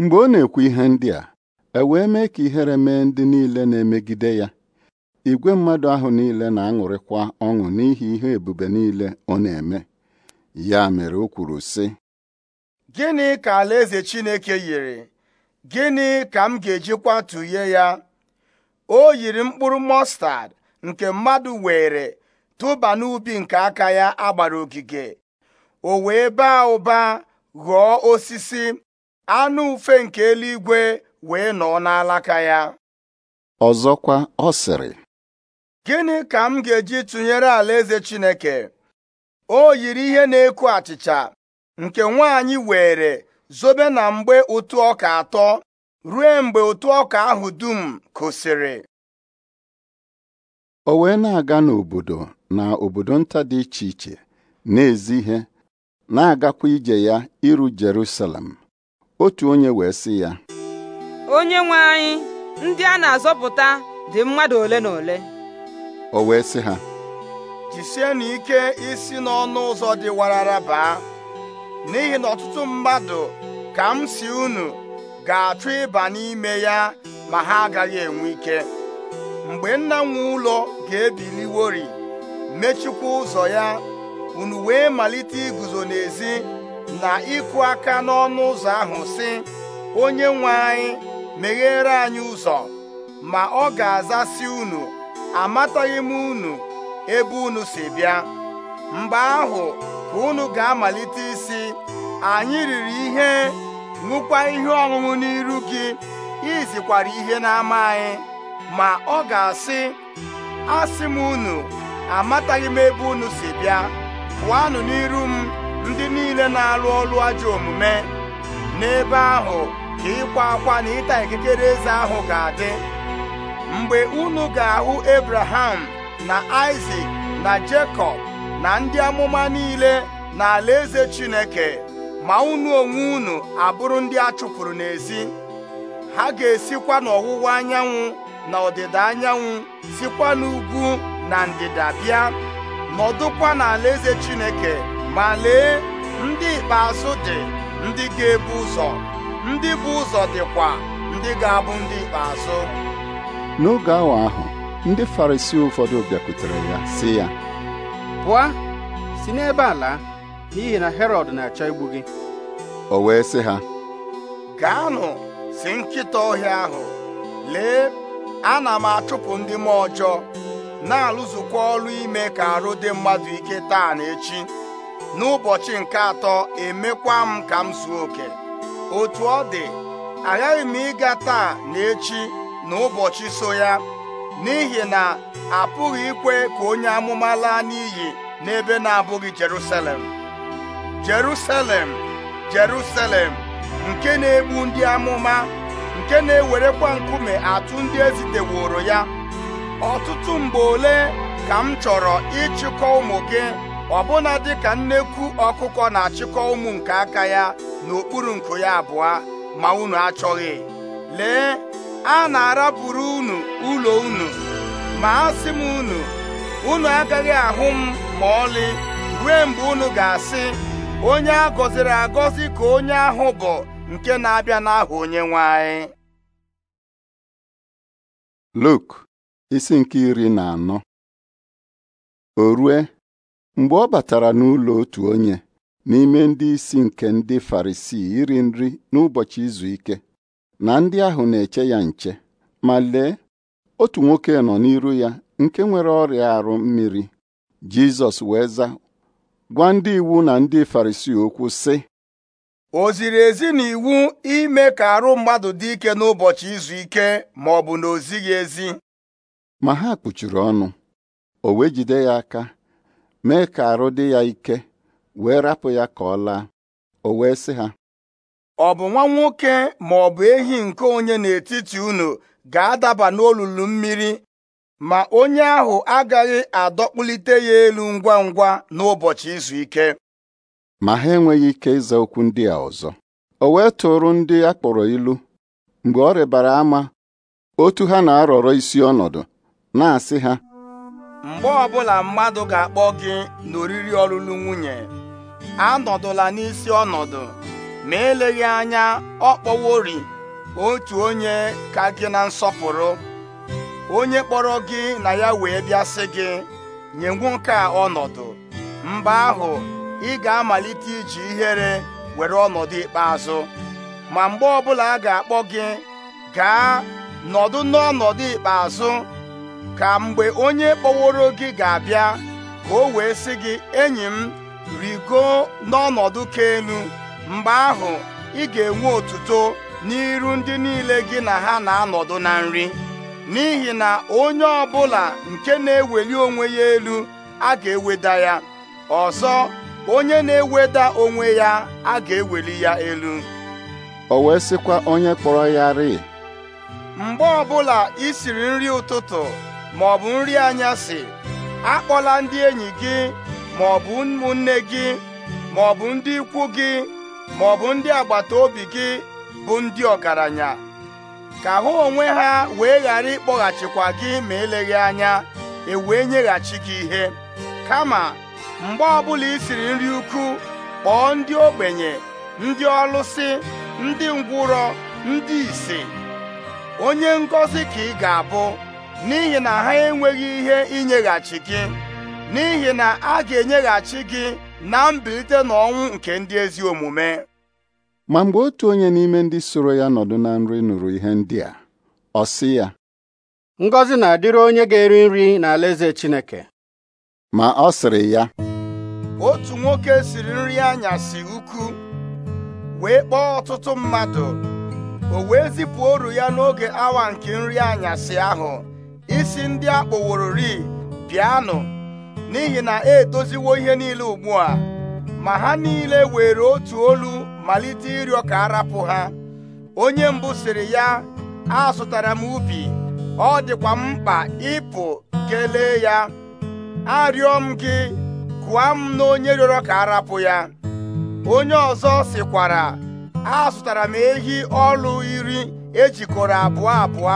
mgbe ọ na-ekwu ihe ndị a e wee mee ka ihere mee ndị niile na-emegide ya igwe mmadụ ahụ niile na-aṅụrịkwa ọṅụ n'ihi ihe ebube niile ọ na-eme ya mere o kwuru sị gịnị ka alaeze Chineke yiri gịnị ka m ga-ejikwa tụnye ya o yiri mkpụrụ mọstad nke mmadụ were tụba n'ubi nke aka ya agbara ogige o wee baa ụba ghọọ osisi anụ ufe nke eluigwe wee nọ n'alaka ya ọzọkwa ọ sịrị gịnị ka m ga-eji tụnyere alaeze Chineke o yiri ihe na-eku achịcha nke nwaanyị were zobe na mgbe ụtụ ọka atọ ruo mgbe ụtụ ọka ahụ dum kụsịrị o wee na-aga n'obodo na obodo nta dị iche iche na-ezi ihe na-agakwa ije ya iru Jerusalem otu onye wee sị ya onye nwe anyị ndị a na-azọpụta dị mmadụ ole na ole o wee sị ha jisienụ ike isi n'ọnụ ụzọ dị warara baa n'ihi na ọtụtụ mmadụ ka m si unu ga-achọ ịba n'ime ya ma ha agaghị enwe ike mgbe nna nwe ụlọ ga-ebiliwori mechikwa ụzọ ya unu wee malite iguzo n'ezi na ịkụ aka n'ọnụ ụzọ ahụ sị onye nwe anyị meghere anyị ụzọ ma ọ ga si unu amataghị m unu ebe unu si bịa mgbe ahụ ka unu ga-amalite isi anyị riri ihe ṅụkwa ihe ọṅụṅụ n'iru gị izikwara ihe n'ama anyị ma ọ ga-asị asị m unu amataghị m ebe unu si bịa pụọnụ n'iru m ndị niile na-alụ ọrụ ajọ omume n'ebe ahụ ka ịkwa akwa na ịta ikikere eze ahụ ga-adị mgbe unu ga-ahụ Abraham na Isaac na Jekọb na ndị amụma niile na eze Chineke ma unu onwe unu abụrụ ndị a chụpụrụ n'ezi ha ga-esikwa n'ọwụwa anyanwụ na ọdịda anyanwụ sikwa n'ugwu na ndịda bịa nọdụkwa n'alaeze Chineke ma lee ndị ikpeazụ dị ndị ga-ebu ụzọ ndị bụ ụzọ dịkwa ndị ga-abụ ndị ikpeazụ n'oge awa ahụ ndị Farisii ụfọdụ bịakwutere ya sị ya pụọ si n'ebe a laa n'ihi na Herọd na-achọ igbu gị o wee sị ha gaanụ si nkịta ọhịa ahụ lee ana m achụpụ ndị m ọjọọ na-alụzukwa ọrụ ime ka arụ dị mmadụ ike taa na echi n'ụbọchị nke atọ emekwa m ka m zuo oke otu ọ dị aghaghị m ịga taa na echi n'ụbọchị so ya n'ihi na apụghị ikwe ka onye amụma laa n'iyi n'ebe na-abụghị Jerusalem Jerusalem Jerusalem nke na-egbu ndị amụma nke na-ewerekwa nkume atụ ndị eziteworo ya ọtụtụ mgbe ole ka m chọrọ ịchịkọ ụmụ gị ọbụna dịka nnekwu ọkụkọ na-achịkọ ụmụ nke aka ya n'okpuru nku ya abụọ ma unu achọghị lee a na araburu unu ụlọ unu ma a sị m unu unu agaghị ahụ m ma ọlị ruo mgbe unu ga-asị onye a gọziri agọzi ka onye ahụ bụ nke na-abịa n'aha onyenwe anyị Luk isi nke iri na anọ o rue mgbe ọ batara n'ụlọ otu onye n'ime ndị isi nke ndị Farisii iri nri n'ụbọchị izu ike na ndị ahụ na-eche ya nche ma lee otu nwoke nọ n'iru ya nke nwere ọrịa arụ mmiri Jizọs wee zaa gwa ndị iwu na ndị Farisii okwu sị o ziri ezi na iwu ime ka arụ mmadụ dị ike n'ụbọchị izu ike ma ọ bụ na o ezi ma ha kpuchiri ọnụ o wee jide ya aka mee ka arụ dị ya ike wee rapụ ya ka ọ laa o wee sị ha ọ bụ nwa nwoke ma ọ bụ ehi nke onye n'etiti unu ga-adaba n'olulu mmiri ma onye ahụ agaghị adọkpụlite ya elu ngwa ngwa n'ụbọchị izu ike ma ha enweghị ike ịza okwu ndị a ọzọ o wee tụrụ ndị a kpọrọ ilu mgbe ọ rịbara ama otu ha na-arọrọ isi ọnọdụ na-asị ha mgbe ọbụla mmadụ ga-akpọ gị n'oriri ọlụlụ nwunye anọdụla n'isi ọnọdụ ma eleghị anya ọ kpọworị otu onye ka gị na nsọpụrụ onye kpọrọ gị na ya wee bịa gị nye nwoke a ọnọdụ mgbe ahụ ị ga-amalite iji ihere were ọnọdụ ikpeazụ ma mgbe ọbụla a ga-akpọ gị gaa nọdụ n'ọnọdụ ikpeazụ ka mgbe onye kpọworo gị ga-abịa ka o wee sị gị enyi m rigo n'ọnọdụ ka elu mgbe ahụ ị ga-enwe otuto n'iru ndị niile gị na ha na-anọdụ na nri n'ihi na onye ọbụla nke na-eweli onwe ya elu a ga-eweda ya ọzọ onye na-eweda onwe ya a ga-eweli ya elu o wee sịkwa onye kpọrọ ya rịị mgbe ọbụla ị siri nri ụtụtụ ma ọ bụ nri anyasị akpọla ndị enyi gị ma ọ bụ ụmụnne gị ma ọ bụ ndị ikwu gị ma ọ bụ ndị agbata obi gị bụ ndị ọgaranya ka hụ onwe ha wee ghara ịkpọghachikwa gị ma eleghị anya e wee nyeghachi gị ihe kama mgbe ọbụla i siri nri ukwu kpọọ ndị ogbenye ndị ọlụsị ndị ngwụrọ ndị ise onye ngọzi ka ị ga-abụ n'ihi na ha enweghị ihe inyeghachi gị n'ihi na a ga-enyeghachi gị na mbilite n'ọnwụ nke ndị ezi omume ma mgbe otu onye n'ime ndị soro ya nọdụ na nri nụrụ ihe ndị a ọ sị ya Ngozi na-adịrị onye ga-eri nri n'alaeze Chineke ma ọ sịrị ya otu nwoke siri nri anyasị ukwu wee kpọọ ọtụtụ mmadụ o wee zipụ ya n'oge awa nke nri anyasị ahụ isi ndị akpọworori bịanụ n'ihi na e doziwo ihe niile ugbu a ma ha niile were otu olu malite ịrịọ ka arapụ ha onye mbụ sịrị ya azụtara m ubi ọ dịkwa mkpa ịpụ kelee ya arịọ m gị kụọ m na onye rịọrọ ka arapụ ya onye ọzọ sịkwara azụtara m ehi ọlụ iri ejikọrọ abụọ abụọ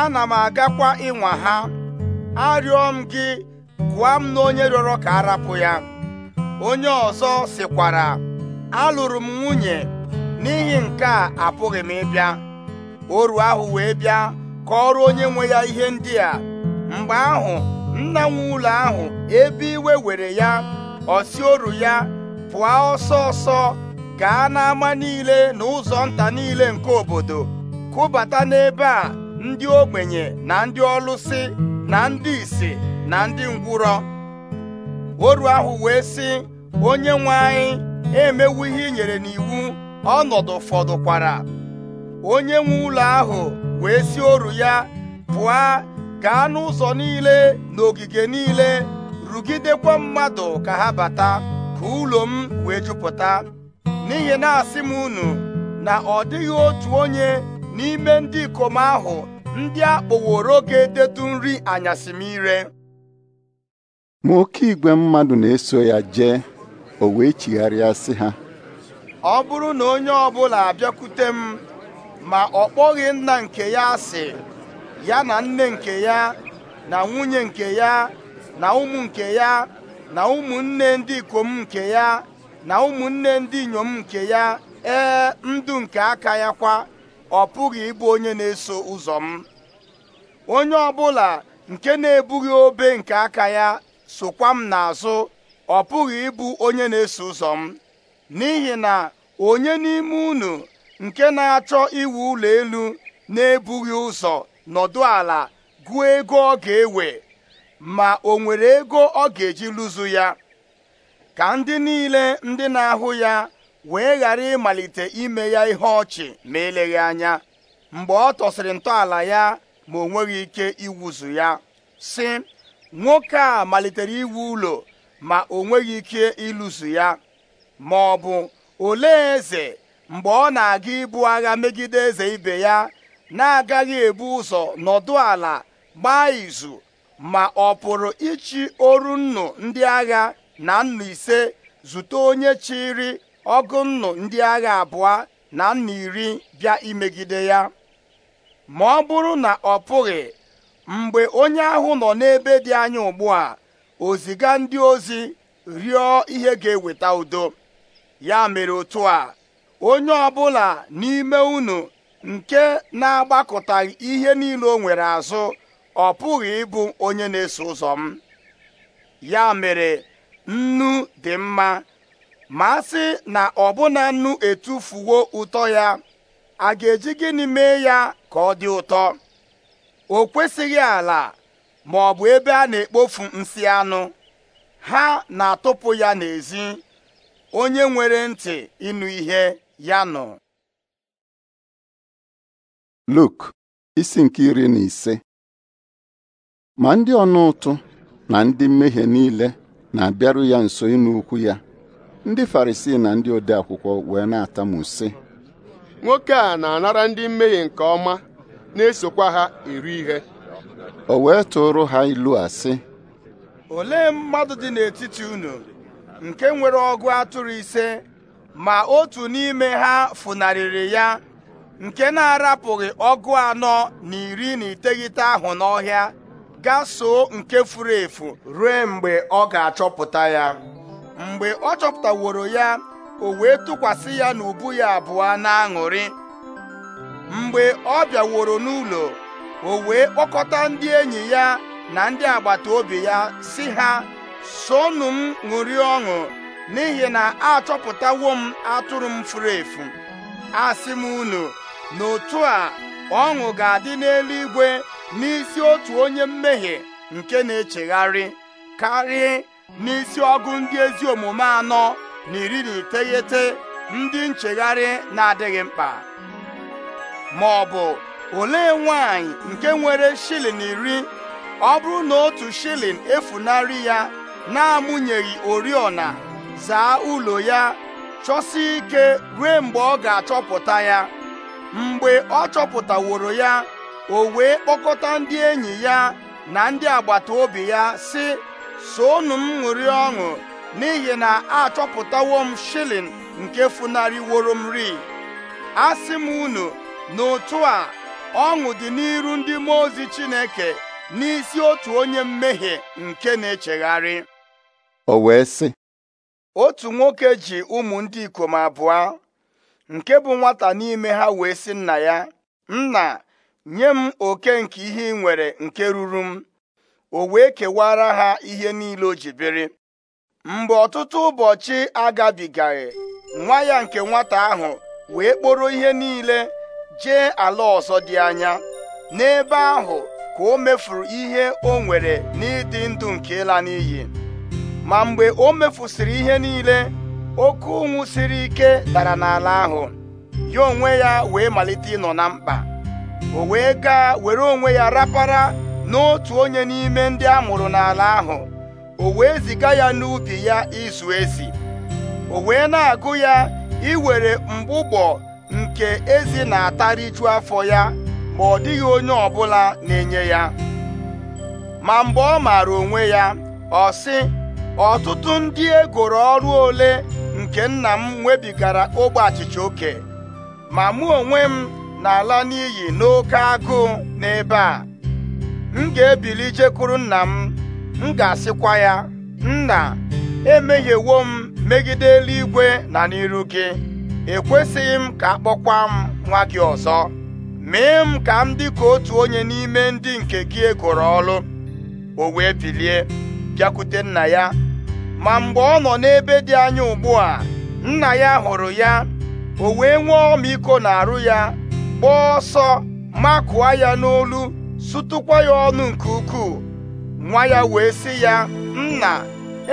ana m agakwa ịnwa ha arịọ m gị gụa m na onye rịọrọ ka a rapụ ya onye ọzọ sịkwara alụrụ m nwunye n'ihi nke a apụghị m ịbịa oru ahụ wee bịa ka kọọrọ onye nwe ya ihe ndị a mgbe ahụ nna nwe ahụ ebe iwe were ya ọsi oru ya pụọ ọsọ ọsọ gaa n'ama niile na ụzọ nta niile nke obodo kụbata n'ebe a ndị ogbenye na ndị ọlụsị na ndị isi na ndị ngwụrọ oru ahụ wee sị onye nwe anyị emewu ihe nyere n'iwu ọnọdụ fọdụkwara onye nwe ụlọ ahụ wee si oru ya pụọ gaa n'ụzọ niile na ogige niile rugidekwa mmadụ ka ha bata ka ụlọ m wee jupụta n'ihi na-asị m unu na ọ dịghị otu onye n'ime ndị ikom ahụ ndị akpọworo ga-edetu nri anyasị m ire ma oke igwe mmadụ na-eso ya jee o wee chigharịa sị ha ọ bụrụ na onye ọbụla abịakwute m ma ọ kpọghị nna nke ya asị ya na nne nke ya na nwunye nke ya na ụmụ nke ya na ụmụnne ndị ikom nke ya na ụmụnne ndị inyom nke ya ee ndụ nke aka ya kwa ọ pụghị ịbụ onye na-eso ụzọ m onye ọbụla nke na-ebughị obe nke aka ya sokwa m n'azụ ọ pụghị ịbụ onye na-eso ụzọ m n'ihi na onye n'ime unu nke na-achọ iwu ụlọ elu na-ebughị ụzọ nọdụ ala gụọ ego ọ ga-ewe ma o nwere ego ọ ga-eji lụzu ya ka ndị niile ndị na-ahụ ya wee ghara ịmalite ime ya ihe ọchị ma eleghị anya mgbe ọ tọsịrị ntọala ya ma o nweghị ike iwuzu ya sị nwoke a malitere iwu ụlọ ma o nweghị ike ịlụso ya ma ọ bụ olee eze mgbe ọ na-aga ibu agha megide eze ibe ya na-agaghị ebu ụzọ nọdụ ala gbaa izu ma ọ pụrụ ịchị oru nnụ ndị agha na nnụ ise zute onye chịrị ọgụ nnụ ndị agha abụọ na nnụ iri bịa imegide ya ma ọ bụrụ na ọ pụghị mgbe onye ahụ nọ n'ebe dị anya ugbu a o ndị ozi rịọ ihe ga-eweta udo ya mere otu a onye ọ bụla n'ime unu nke na-agbakọtaghị ihe niile o nwere azụ ọ pụghị ịbụ onye na-eso ụzọ m ya mere nnu dị mma ma a sị na ọbụna nnu etufuwo ụtọ ya a ga-eji gịnị mee ya ka ọ dị ụtọ o kwesịghị ala ma ọ bụ ebe a na-ekpofu nsị anụ ha na-atụpụ ya n'ezi onye nwere ntị ịnụ ihe ya nọ Luk isi nke iri na ise ma ndị ọnụ ụtụ na ndị mmehie niile na-abịaru ya nso inu ukwu ya ndị Farisii na ndị ode akwụkwọ wee na-atamu sị nwoke a na-anara ndị mmehie nke ọma na-esokwa ha eri ihe o wee tụrụ ha ilu a olee mmadụ dị n'etiti unu nke nwere ọgụ atụrụ ise ma otu n'ime ha funarịrị ya nke na-arapụghị ọgụ anọ na iri na iteghete ahụ n'ọhịa gaa so nke furu efu ruo mgbe ọ ga-achọpụta ya mgbe ọ chọpụtaworo ya o wee tụkwasị ya n'ubu ya abụọ na aṅụrị mgbe ọ bịaworo n'ụlọ o wee kpọkọta ndị enyi ya na ndị agbata obi ya si ha sonụ m ṅụrie ọṅụ n'ihi na achọpụtawo m atụrụ m furu efu asị m unu na otu a ọṅụ ga-adị n'eluigwe n'isi otu onye mmehie nke na-echegharị karịa n'isi ọgụ ndị ezi omume anọ na iri na iteghete ndị nchegharị na-adịghị mkpa ma ọ bụ olee nwanyị nke nwere shilin iri ọ bụrụ na otu shilin efunarị ya na-amụnyeghị oriọna zaa ụlọ ya chọsie ike ruo mgbe ọ ga-achọpụta ya mgbe ọ chọpụtaworo ya o wee kpọkọta ndị enyi ya na ndị agbata obi ya si soonụ m ṅụrị ọṅụ n'ihi na achọpụtawo m shilin nke funarịworo m ri asị m unu n'ụtụ a ọṅụ dị n'iru ndị mmụọ ozi Chineke n'isi otu onye mmehie nke na-echegharị o wee sị otu nwoke ji ụmụ ndị ikom abụọ nke bụ nwata n'ime ha wee sị nna ya nna nye m oke nke ihe ị nwere nke ruru m o wee kewara ha ihe niile o ji biri mgbe ọtụtụ ụbọchị agabigaghị nwa ya nke nwata ahụ wee kporo ihe niile jee ala ọzọ dị anya n'ebe ahụ ka o mefuru ihe o nwere n'ịdị ndụ nke ịla n'iyi ma mgbe o mefusịrị ihe niile oke ụnwụ siri ike dara n'ala ahụ ya onwe ya wee malite ịnọ na mkpa o wee gaa were onwe ya rapara n'otu onye n'ime ndị a mụrụ n'ala ahụ o wee ziga ya n'ubi ya izu ezi o wee na-agụ ya iwere mgbụgbọ nke ezi na atariju afọ ya ma ọ dịghị onye ọbụla na-enye ya ma mgbe ọ maara onwe ya ọ sị ọtụtụ ndị egoro ọrụ ole nke nna m nwebigara ogbe achịcha oke ma mụ onwe m na n'iyi n'oke agụụ n'ebe a m ga-ebili jekwuru nna m m ga-asịkwa ya nna emehiewo m megide eluigwe na n'iru gị ekwesịghị m ka akpọkwa m nwa gị ọzọ mee m ka m dị ka otu onye n'ime ndị nke gị egoro ọlụ o wee bilie bịakwute nna ya ma mgbe ọ nọ n'ebe dị anya ugbu a nna ya hụrụ ya o wee nwee ọmịiko arụ ya gbaa ọsọ makụọ ya n'olu sụtụkwa ya ọnụ nke ukwuu nwa ya wee sị ya nna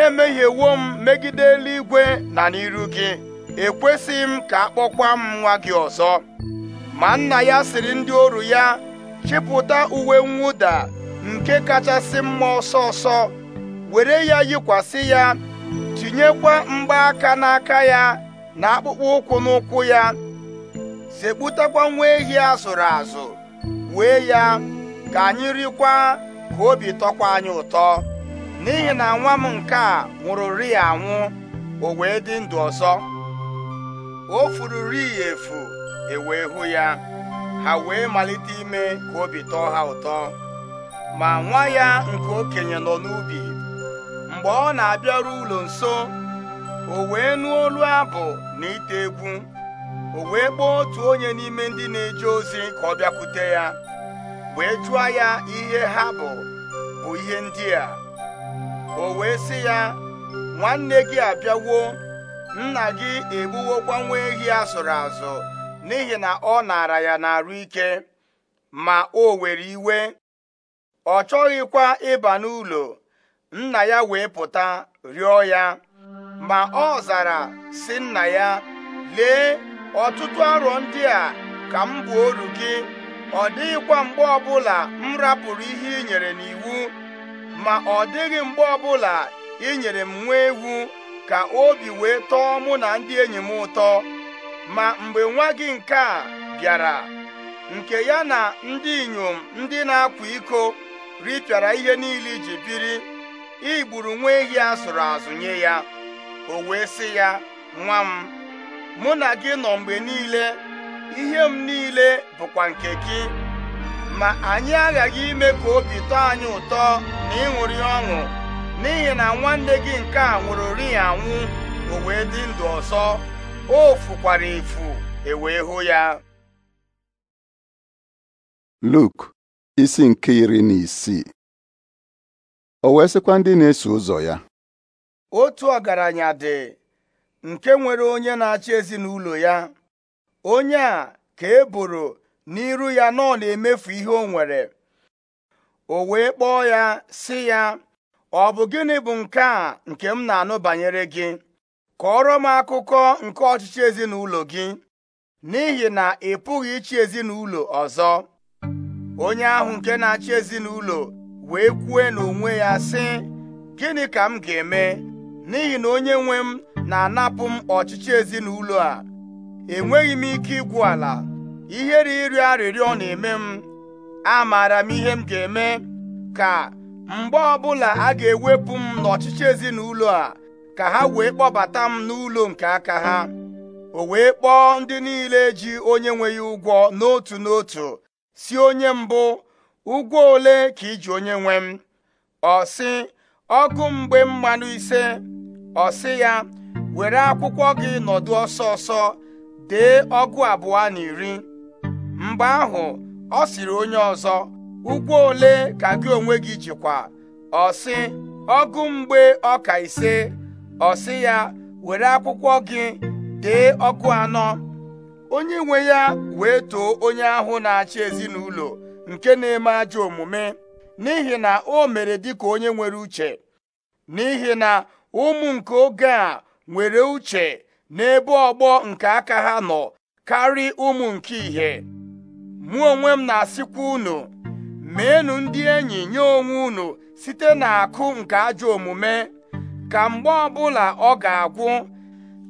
emehiewo m megide eluigwe na n'iru gị ekwesịghị m ka akpọkwa m nwa gị ọzọ ma nna ya siri ndị oru ya chịpụta uwe mwụda nke kachasị mma ọsọ ọsọ were ya yikwasị ya tinyekwa mgbaaka n'aka ya na akpụkpọ ụkwụ n'ụkwụ ya sekputakwa nwa ehi azụrụ azụ wee ya ka anyị rikwa ka obi tọkwa anyị ụtọ n'ihi na nwa m nke a ri ya anwụ o wee dị ndụ ọzọ o ya efu ewee hụ ya ha wee malite ime ka obi tọọ ha ụtọ ma nwa ya nke okenye nọ n'ubi mgbe ọ na-abịaru ụlọ nso o wee nụọ olu abụ na ite egwu o wee kpọọ otu onye n'ime ndị na-eje ozi ka ọ bịakwute ya wee jụọ ya ihe ha bụ bụ ihe ndị a o wee sị ya nwanne gị abịawo nna gị egbuwokwa nwa ehi a azụ n'ihi na ọ nara ya n'arụ ike ma o were iwe ọ chọghịkwa ịba n'ụlọ nna ya wee pụta rịọ ya ma ọ zara si nna ya lee ọtụtụ arọ ndị a ka m bụ oru gị ọ dịghịkwa mgbe ọbụla m rapụrụ ihe i nyere n'iwu ma ọ dịghị mgbe ọbụla ị nyere m nwa ewu ka obi wee tọọ mụ na ndị enyi m ụtọ ma mgbe nwa gị nke a bịara nke ya na ndị inyom ndị na-akwa iko ripịara ihe niile iji biri igburu nwa ehi a zụrụ azụ nye ya o wee sị ya nwa m mụ na gị nọ mgbe niile ihe m niile bụkwa nke gị ma anyị aghaghị ime ka obi tọọ anyị ụtọ na ịṅụrị ọṅụ n'ihi na nwanne gị nke a nwụrụ ri anwụ o wee dị ndụ ọsọ o fukwara efu e wee hụ ya Luk isi nke iri na isii o wee sịkwa ndị na-eso ụzọ ya otu ọgaranya dị nke nwere onye na-achị ezinụlọ ya onye a ka e boro n'iru ya nọ na-emefu ihe o nwere o wee kpọọ ya sị ya ọ bụ gịnị bụ nke a nke m na-anụ banyere gị kọọrọ m akụkọ nke ọchịchị ezinụlọ gị n'ihi na ị pụghị ịchị ezinụlọ ọzọ onye ahụ nke na-achị ezinụlọ wee kwue n'onwe ya sị gịnị ka m ga-eme n'ihi na onye nwe m na-anapụ m ọchịchị ezinụlọ a enweghị m ike igwu ala ihere ịrịọ arịrịọ na-eme m amaara m ihe m ga-eme ka mgbe ọbụla a ga-ewepụ m n'ọchịchị ezinụlọ a ka ha wee kpọbata m n'ụlọ nke aka ha o wee kpọọ ndị niile ji onye nwe ya ụgwọ n'otu n'otu si onye mbụ ụgwọ ole ka iji onye nwe m ọ sị ọgụ mgbe mmanụ ise ọ sị ya were akwụkwọ gị nọdụ ọsọ ọsọ dee ọgụ abụọ na iri mgbe ahụ ọ sịrị onye ọzọ ụgwọ ole ka gị onwe gị jikwa ọsị ọgụ mgbe ọka ise ọsị ya were akwụkwọ gị dee ọkụ anọ onye nwe ya wee too onye ahụ na-achị ezinụlọ nke na-eme ajọ omume n'ihi na o mere dịka onye nwere uche n'ihi na ụmụ nke oge a nwere uche n'ebe ọgbọ nke aka ha nọ karị ụmụ nke ìhè mụ onwe m na-asịkwa unu meenụ ndị enyi nye onwe unu site n'akụ nke ajọ omume ka mgbe ọbụla ọ ga-agwụ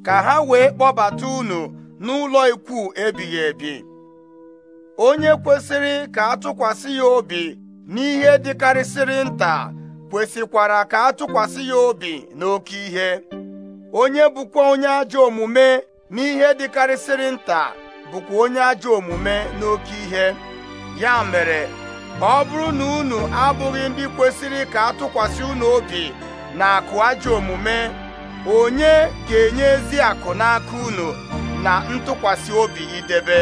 ka ha wee kpọbata unu n'ụlọ ikwu ebighị ebi onye kwesịrị ka atụkwasị ya obi n'ihe dịkarịsịrị nta kwesịkwara ka atụkwasị ya obi n'oke ihe onye bụkwa onye ajọ omume n'ihe dịkarịsịrị nta bụkwa onye ajọ omume n'oke ihe ya mere ọ bụrụ na unu abụghị ndị kwesịrị ka atụkwasị unu obi na akụ ajọ omume onye ga-enye ezi akụ n'aka unu na ntụkwasị obi idebe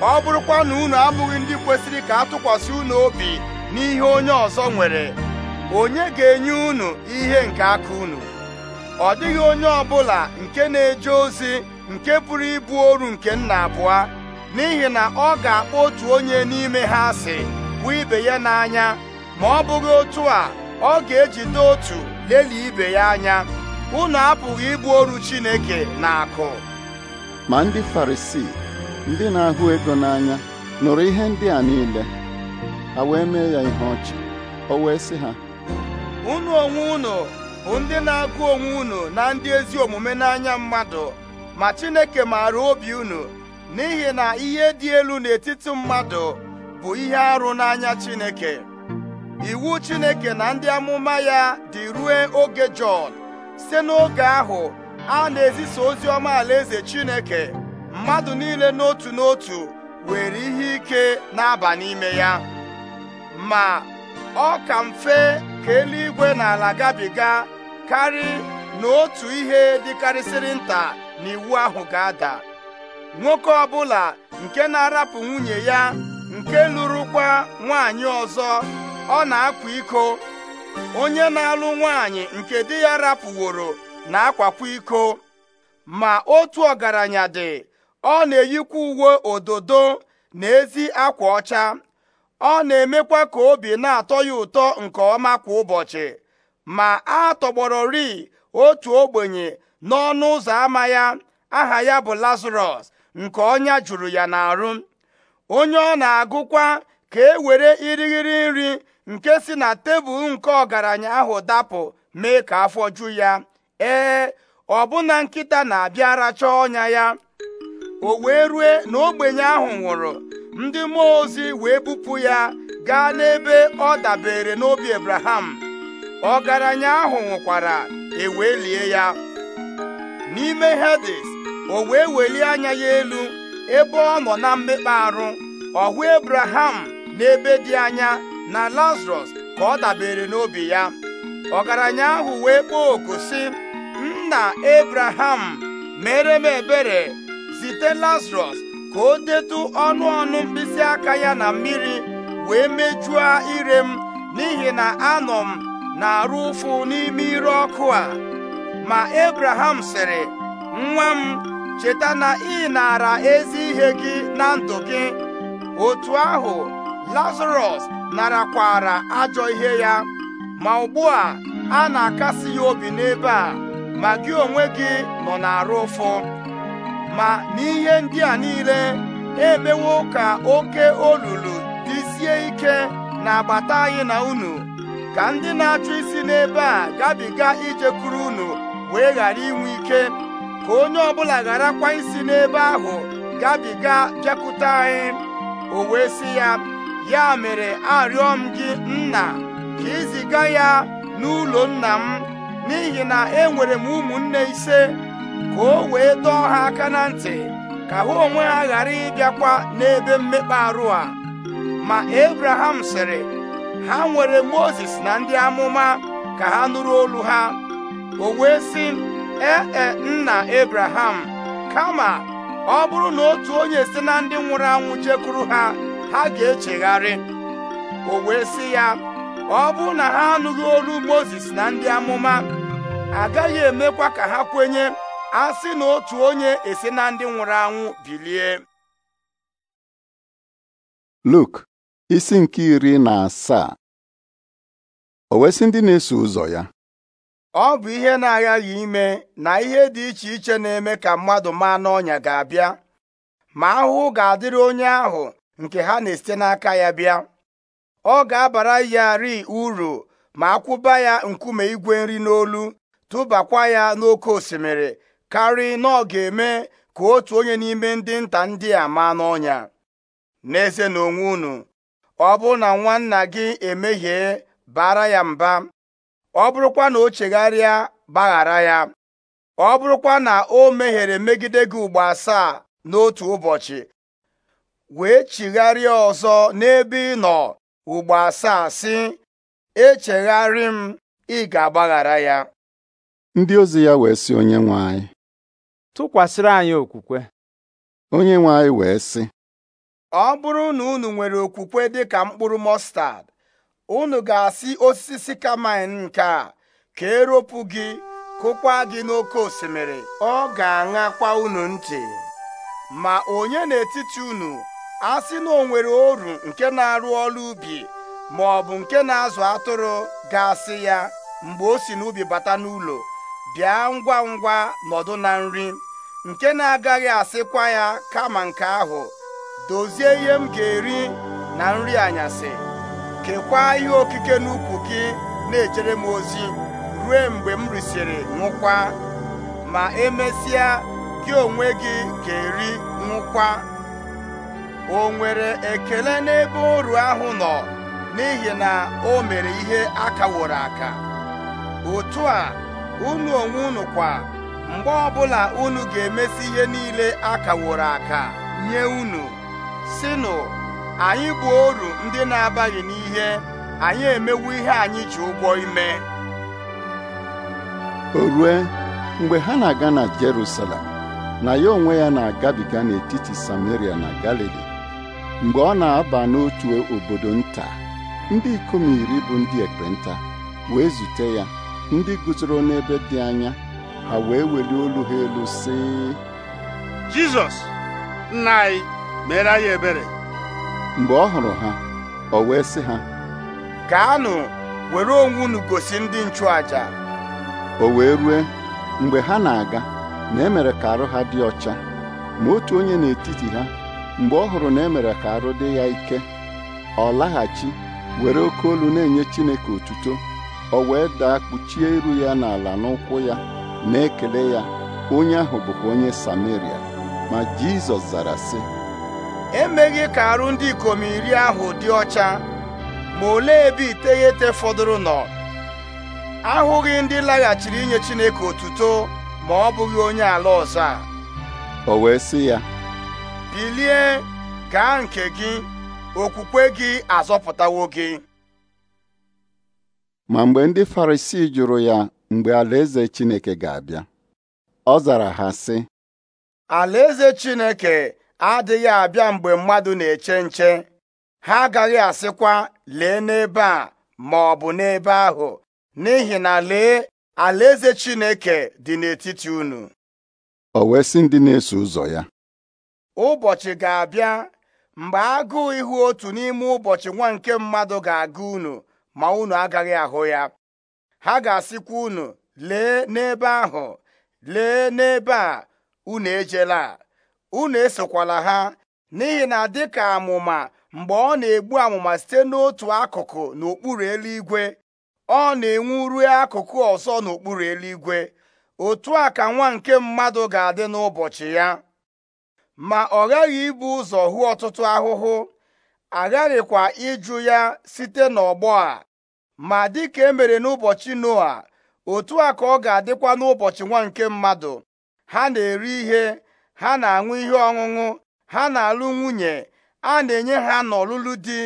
ọ bụrụkwa na unu abụghị ndị kwesịrị ka atụkwasị unu obi n'ihe onye ọzọ nwere onye ga-enye unu ihe nke aka unu ọ dịghị onye ọbụla nke na-eje ozi nke pụrụ ịbụ oru nke nna abụọ n'ihi na ọ ga-akpọ otu onye n'ime ha asị bụ ibe ya n'anya ma ọ bụghị otu a ọ ga-ejide otu lelie ibe ya anya unu apụghị ịbụ oru Chineke na akụ ma ndị Farisii ndị na-ahụ ego n'anya nụrụ ihe ndị a niile ha wee mee ya ihe ọchị o wee sị ha unu onwe unu bụ ndị na-agụ onwe unu na ndị ezi omume n'anya mmadụ ma Chineke maara obi unu n'ihi na ihe dị elu n'etiti mmadụ bụ ihe arụ n'anya Chineke iwu Chineke na ndị amụma ya dị ruo oge Jọn site n'oge ahụ a na-ezisa ozi ọma alaeze Chineke mmadụ niile n'otu n'otu were ihe ike na-aba n'ime ya ma ọ ka mfe ka eluigwe na ala gabiga karị n'otu ihe dịkarịsịrị nta na iwu ahụ ga-ada nwoke ọbụla nke na-arapụ nwunye ya nke lụrụkwa nwaanyị ọzọ ọ na-akwa iko onye na-alụ nwaanyị nke di ya rapụworo na-akwakwa iko ma otu ọgaranya dị ọ na-eyikwa uwe ododo na ezi akwa ọcha ọ na-emekwa ka obi na-atọ ya ụtọ nke ọma kwa ụbọchị ma a ri otu ogbenye n'ọnụ ụzọ ámá ya aha ya bụ lazarọs nke ọnya jụrụ ya n'arụ onye ọ na-agụkwa ka e were irighiri nri nke si na tebụl nke ọgaranya ahụ dapụ mee ka afọ ju ya ee ọbụna nkịta na abịara chọọ ọnya ya o wee rue na ogbenye ahụ nwụrụ ndị mmụọ ozi wee bupụ ya gaa n'ebe ọ dabere n'obi Abraham ọgaranya ahụ nwụkwara e wee lie ya n'ime Hades o wee welie anya ya elu ebe ọ nọ na mmekpa arụ ọhụ hụ Abraham n'ebe dị anya na lazarus ka ọ dabere n'obi ya ọgaranya ahụ wee kpọọ oku sị nna Abraham mere m ebere zite Lazarọs ka o detu ọnụ ọnụ mkpịsị aka ya na mmiri wee mejuo ire m n'ihi na anọ m na-arụ ụfụ n'ime ire ọkụ a ma Abraham sịrị nwa m cheta na ị nara ezi ihe gị na ndụ gị otu ahụ lazarọs narakwara ajọ ihe ya ma ugbu a na-akasi ya obi n'ebe a ma gị onwe gị nọ na arụ ụfụ ma n'ihe ndị a niile emewo ka oke olulu dịzie ike na-agbata anyị na unu ka ndị na-achụ isi n'ebe a gabiga ijekwuru unu wee ghara inwe ike ka onye ọbụla gharakwa isi n'ebe ahụ gabiga bịakwute anyị o wee sị ya ya mere arịọ m gị nna ka iziga ya n'ụlọ nna m n'ihi na enwere m ụmụnne ise ka o wee dọọ ha aka na ntị ka ha onwe ha ghara ịbịakwa n'ebe mmekpa arụ a ma ebraham sịrị ha nwere Mozis na ndị amụma ka ha nụrụ olu ha o wee sị ee e, nna Abraham kama ọ bụrụ na otu onye si na ndị nwụrụ anwụ jekwuru ha ha ga-echegharị o wee sị ya ọ bụrụ na ha anụghị olu Mozis na ndị amụma agaghị emekwa ka ha kwenye a sị na otu onye esi na ndị nwụrụ anwụ bilie Luk isi nke iri na asaa o wee ndị na-eso ụzọ ya ọ bụ ihe na-aghaghị ime na ihe dị iche iche na-eme ka mmadụ maa n'ọnya ga-abịa ma ahụhụ ga-adịrị onye ahụ nke ha na-esite n'aka ya bịa ọ ga-abara ya ri uru ma akwụba ya nkume igwe nri n'olu tụbakwa ya n'oke osimiri karị na ọ ga-eme ka otu onye n'ime ndị nta ndị a maa n'ọnya n'eze na onwe unu ọ bụ na nwanna gị emehie bara ya mba ọ bụrụkwa na o chegharịa gbaghara ya ọ bụrụkwa na o meghere megide gị ugbo asaa n'otu ụbọchị wee chigharịa ọzọ n'ebe ị nọ ugbo asaa sị echegharị m ị ga-agbaghara ya ndị ozi ya wee sị onye nwe anyị tụkwasịrị anyị okwukwe onye nwe anyị wee sị ọ bụrụ na unu nwere okwukwe dị ka mkpụrụ mọstad unu ga-asị osisi sikamin nke a ka eropụ gị kụkwa gị n'oké osimiri ọ ga-aṅakwa unu ntị ma onye n'etiti unu asị na o nwere oru nke na-arụ ọrụ ubi ma ọ bụ nke na-azụ atụrụ ga-asị ya mgbe o si n'ubi bata n'ụlọ bịa ngwa ngwa nọdụ na nri nke na-agaghị asịkwa ya kama nke ahụ dozie ihe m ga-eri na nri anyasị kekwaa ihe okike n'ukwu gị na-ejere m ozi ruo mgbe m risịrị nwụkwa, ma emesịa gị onwe gị ka eri nwụkwa. o nwere ekele n'ebe oru ahụ nọ n'ihi na o mere ihe aka wụrụ aka otu a unu onwe unu kwa mgbe ọbụla unu ga-emesi ihe niile akaworo aka nye unu sinụ anyị bụ oru ndị na-abaghị n'ihe anyị emewo ihe anyị ji ụgwọ ime o rue mgbe ha na-aga na Jerusalem na ya onwe ya na-agabiga n'etiti Samaria na Galili mgbe ọ na-aba n'otu obodo nta ndị ikom iri bụ ndị ekpenta wee zute ya ndị guzoro n'ebe dị anya ha wee welie olu ha elu sị Jizọs nna anyị mere anyị ebere mgbe ọ hụrụ ha ọ wee sị ha gaanụ were onwe unu gosi ndị nchụaja o wee rue mgbe ha na-aga na emere ka arụ ha dị ọcha ma otu onye n'etiti ha mgbe ọ hụrụ na emere ka arụ dị ya ike ọ laghachi were oke olu na-enye Chineke otuto ọ wee daa kpuchie iru ya n'ala n'ụkwụ ya na-ekele ya onye ahụ bụkwa onye Sameria ma Jizọs zara sị emeghị ka arụ ndị ikom iri ahụ dị ọcha ma olee ebe iteghete fọdụrụ nọ ahụghị ndị laghachiri inye Chineke otuto ma ọ bụghị onye ala ọzọ a o wee sị ya bilie gaa nke gị okwukwe gị azọpụtawo gị ma mgbe ndị Farisii jụrụ ya mgbe alaeze Chineke ga-abịa ọ zara ha sị alaeze Chineke adịghị abịa mgbe mmadụ na-eche nche ha agaghị asịkwa lee n'ebe a ma ọ bụ n'ebe ahụ n'ihi na lee alaeze Chineke dị n'etiti unu o wee sị ndị na-eso ụzọ ya ụbọchị ga-abịa mgbe agụụ ihu otu n'ime ụbọchị nwa nke mmadụ ga aga unu ma unu agaghị ahụ ya ha ga-asịkwa unu lee n'ebe ahụ lee n'ebe a unu ejela unu esokwala ha n'ihi na dịka amụma mgbe ọ na-egbu amụma site n'otu akụkụ n'okpuru eluigwe ọ na-enwu ruo akụkụ ọzọ n'okpuru eluigwe otu a ka nwa nke mmadụ ga-adị n'ụbọchị ya ma ọ ghaghị ibu ụzọ hụ ọtụtụ ahụhụ aghaghịkwa ịjụ ya site n'ọgbọ a ma dịka emere n'ụbọchị noa otu a ka ọ ga-adịkwa n'ụbọchị nwa nke mmadụ ha na-eri ihe ha na-aṅụ ihe ọṅụṅụ ha na-alụ nwunye a na-enye ha n'ọlụlụ di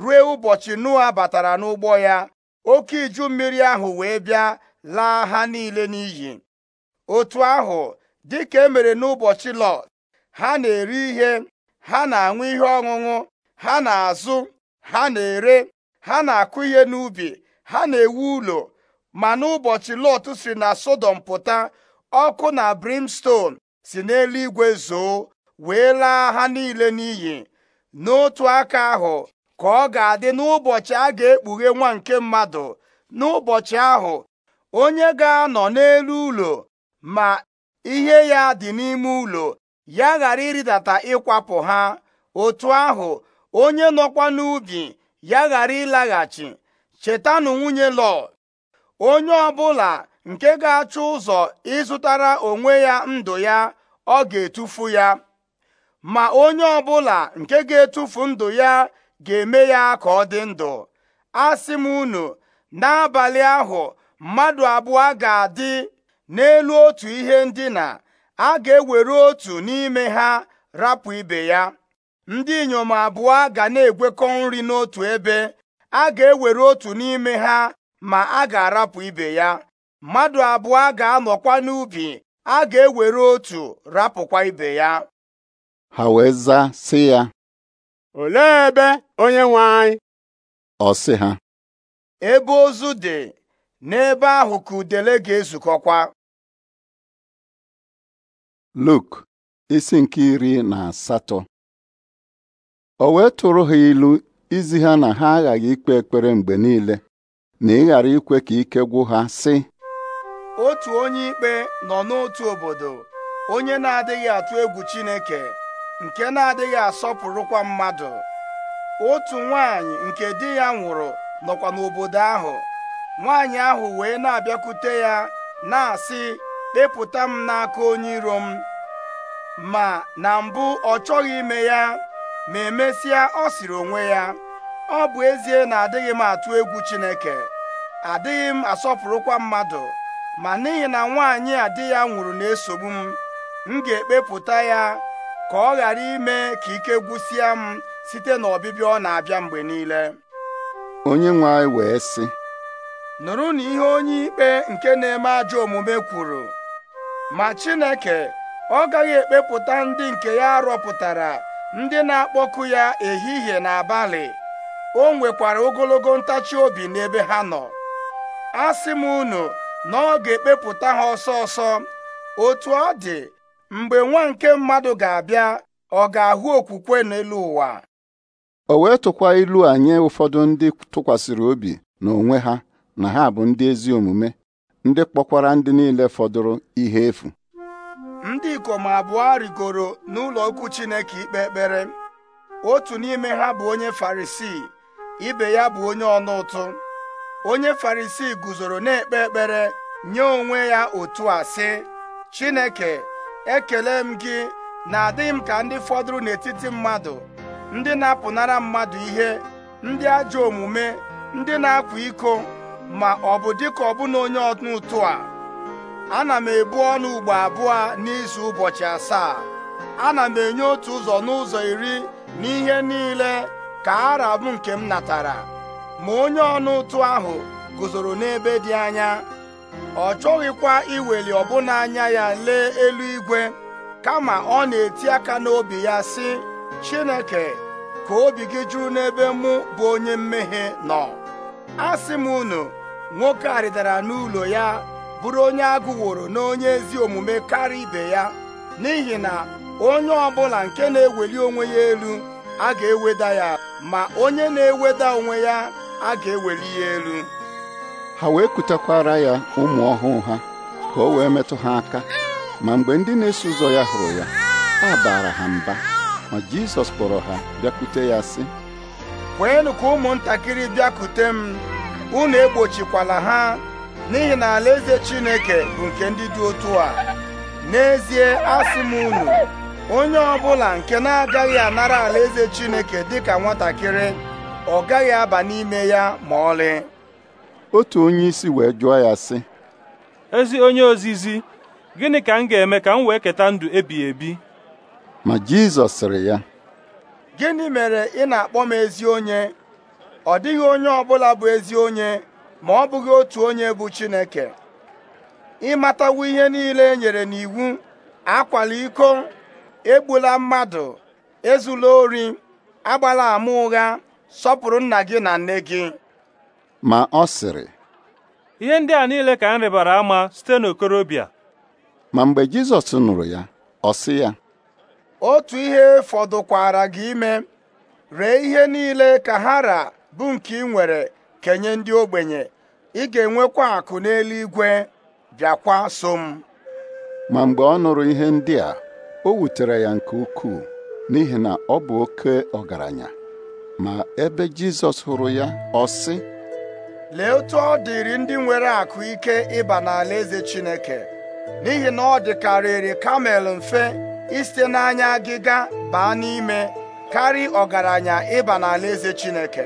ruo ụbọchị Noa batara n'ụgbọ ya oke iju mmiri ahụ wee bịa laa ha niile n'iyi otu ahụ dịka emere n'ụbọchị Lọt ha na-eri ihe ha na-aṅụ ihe ọṅụṅụ ha na-azụ ha na-ere ha na-akụ ihe n'ubi ha na-ewu ụlọ ma n'ụbọchị Lọt si na Sodom pụta ọkụ na brimstone si n'eluigwe zoo wee laa ha niile n'iyi n'otu aka ahụ ka ọ ga-adị n'ụbọchị a ga-ekpughe nwa nke mmadụ n'ụbọchị ahụ onye ga-anọ n'elu ụlọ ma ihe ya dị n'ime ụlọ ya ghara ịrịdata ịkwapụ ha otu ahụ onye nọkwa n'ubi ya ghara ịlaghachi chetanụ nwunye lọ onye ọbụla nke ga-achọ ụzọ ịzụtara onwe ya ndụ ya ọ ga-etufu ya ma onye ọbụla nke ga-etufu ndụ ya ga-eme ya ka ọ dị ndụ asị m unu n'abalị ahụ mmadụ abụọ ga-adị n'elu otu ihe ndina a ga-ewere otu n'ime ha rapụ ibe ya ndị inyom abụọ ga na-egwekọ nri n'otu ebe a ga-ewere otu n'ime ha ma a ga-arapụ ibe ya mmadụ abụọ ga-anọkwa n'ubi a ga-ewere otu rapụkwa ibe ya ha wee zaa sị ya olee ebe onye nwe anyị ọ sị ha ebe ozu dị n'ebe ahụ ka udele ga-ezukọkwa Luk isi nke iri na asatọ o wee tụrụ ha ilu izi ha na ha aghaghị ikpe ekpere mgbe niile na ịghara ikwe ka ike gwụ ha sị otu onye ikpe nọ n'otu obodo onye na-adịghị atụ egwu Chineke nke na-adịghị asọpụrụkwa mmadụ otu nwanyị nke di ya nwụrụ nọkwa n'obodo ahụ nwanyị ahụ wee na-abịakwute ya na-asị kpepụta m n'aka onye iro m ma na mbụ ọ chọghị ime ya ma emesịa ọ sịrị onwe ya ọ bụ ezie na adịghị m atụ egwu Chineke adịghị m asọpụrụkwa mmadụ ma n'ihi na nwaanyị a di ya nwụrụ na-esogbu m m ga-ekpepụta ya ka ọ ghara ime ka ike gwụsịa m site na ọbịbịa ọ na-abịa mgbe niile onye nwe anyị wee sị nụrụ na ihe onye ikpe nke na-eme ajọ omume kwuru ma Chineke ọ gaghị ekpepụta ndị nke ya rọpụtara ndị na-akpọku ya ehihie na abalị o nwekwara ogologo ntachi obi n'ebe ha nọ asị m unu na ọ ga-ekpepụta ha ọsọ ọsọ otu ọ dị mgbe nwa nke mmadụ ga-abịa ọ ga-ahụ okwukwe n'elu ụwa o wee tụkwa ilu a nye ụfọdụ ndị tụkwasịrị obi n'onwe ha na ha bụ ndị ezi omume ndị kpọkwara ndị niile fọdụrụ ihe efu ndị ikom abụọ rigoro n'ụlọ okwu Chineke ikpe ekpere otu n'ime ha bụ onye Farisii ibe ya bụ onye ọnụ ụtụ onye farisi guzoro na-ekpe ekpere nye onwe ya otu a sị Chineke ekele m gị na adịghị m ka ndị fọdụrụ n'etiti mmadụ ndị na-apụnara mmadụ ihe ndị ajọ omume ndị na-akwa iko ma ọ bụ dịka ọbụna onye ọnụ a ana m ebu ọnụ ugbo abụọ n'izu ụbọchị asaa ana m enye otu ụzọ n'ụzọ iri n'ihe niile ka ara m nke m natara ma onye ọnụ ụtụ ahụ guzoro n'ebe dị anya ọ chọghịkwa iweli ọbụna anya ya lee eluigwe kama ọ na-eti aka n'obi ya sị Chineke ka obi gị juru n'ebe mụ bụ onye mmehie nọ asị m unu nwoke arịdara n'ụlọ ya bụrụ onye agụworo n'onye ezi omume karịa ibe ya n'ihi na onye ọbụla nke na-eweli onwe ya elu a ga-eweda ya ma onye na-eweda onwe ya a ga-eweli ya elu ha wee kutakwara ya ụmụ ọhụụ ha ka o wee metụ ha aka ma mgbe ndị na-eso ụzọ ya hụrụ ya a baara ha mba ma Jizọs kpọrọ ha bịakute ya sị kweenụ ka ụmụntakịrị bịakute m unu egbochikwala ha n'ihi na alaeze Chineke bụ nke ndị dị otu a n'ezie asị m unu onye ọbụla nke na-agaghị anara alaeze Chineke dịka nwatakịrị ọ gaghị aba n'ime ya ma ọlị otu onye isi wee jụọ ya sị ezi onye ozizi gịnị ka m ga-eme ka m wee keta ndụ ebighị ebi ma Jizọs sịrị ya gịnị mere ị na-akpọ m ezi onye ọ dịghị onye ọbụla bụ ezi onye ma ọ bụghị otu onye bụ Chineke ịmatawo ihe niile e nyere n'iwu akwala iko egbula mmadụ ezula ori agbala ama ụgha sọpụrụ nna gị na nne gị ma ọ sịrị ihe ndị a niile ka m rịbara ama site n'okorobịa ma mgbe Jizọs nụrụ ya ọ sị ya otu ihe fọdụkwara gị ime ree ihe niile ka ha ra bụ nke ị nwere kenye ndị ogbenye ị ga-enwekwa akụ n'eluigwe bịakwa so m ma mgbe ọ nụrụ ihe ndị a o wutere ya nke ukwuu n'ihi na ọ bụ oke ọgaranya ma ebe Jizọs hụrụ ya ọ sị lee otu ọ dịrị ndị nwere akụ ike ịba n'ala eze Chineke n'ihi na ọ dịkarịrị kamel mfe isite n'anya agịga baa n'ime karị ọgaranya ịba n'ala eze Chineke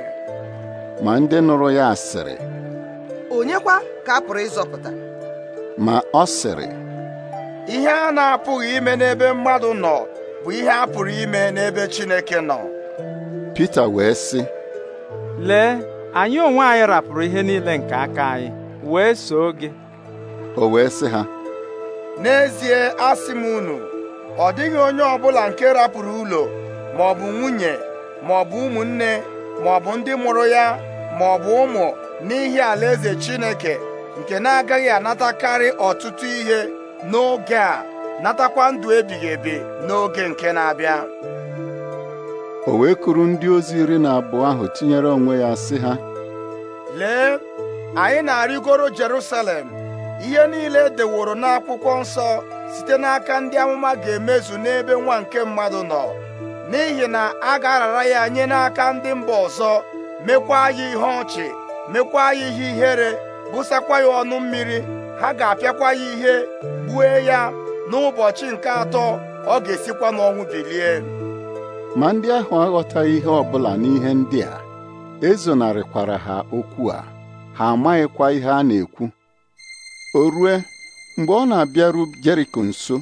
ma ndị nụrụ ya asịrị onyekwa ka a pụrụ ịzọpụta ma ọ sịrị ihe a na-apụghị ime n'ebe mmadụ nọ bụ ihe a pụrụ ime n'ebe Chineke nọ Pita wee sị lee anyị onwe anyị rapụrụ ihe niile nke aka anyị wee soo gị o wee sị ha n'ezie asị m unu ọ dịghị onye ọ bụla nke rapụrụ ụlọ ma ọ bụ nwunye ma ọ bụ ụmụnne ma ọ bụ ndị mụrụ ya ma ọ bụ ụmụ n'ihi alaeze Chineke nke na-agaghị anatakarị ọtụtụ ihe n'oge a natakwa ndụ ebighị ebi n'oge nke na-abịa o wee kuru ndị ozi iri na abụọ ahụ tinyere onwe ya sị ha lee anyị na-arịgoro Jerusalem ihe niile e deworo n'akwụkwọ nsọ site n'aka ndị amụma ga-emezu n'ebe nwa nke mmadụ nọ n'ihi na a ga-arara ya nye n'aka ndị mba ọzọ mekwa ya ihe ọchị mekwa ya ihe ihere bụsakwa ya ọnụ mmiri ha ga-apịakwa ya ihe gbue ya n'ụbọchị nke atọ ọ ga-esikwa n'ọnwụ bilie ma ndị ahụ aghọtaghị ihe ọ bụla n'ihe ndị a e zonarịkwara ha okwu a ha amaghịkwa ihe a na-ekwu o rue mgbe ọ na-abịaru Jeriko nso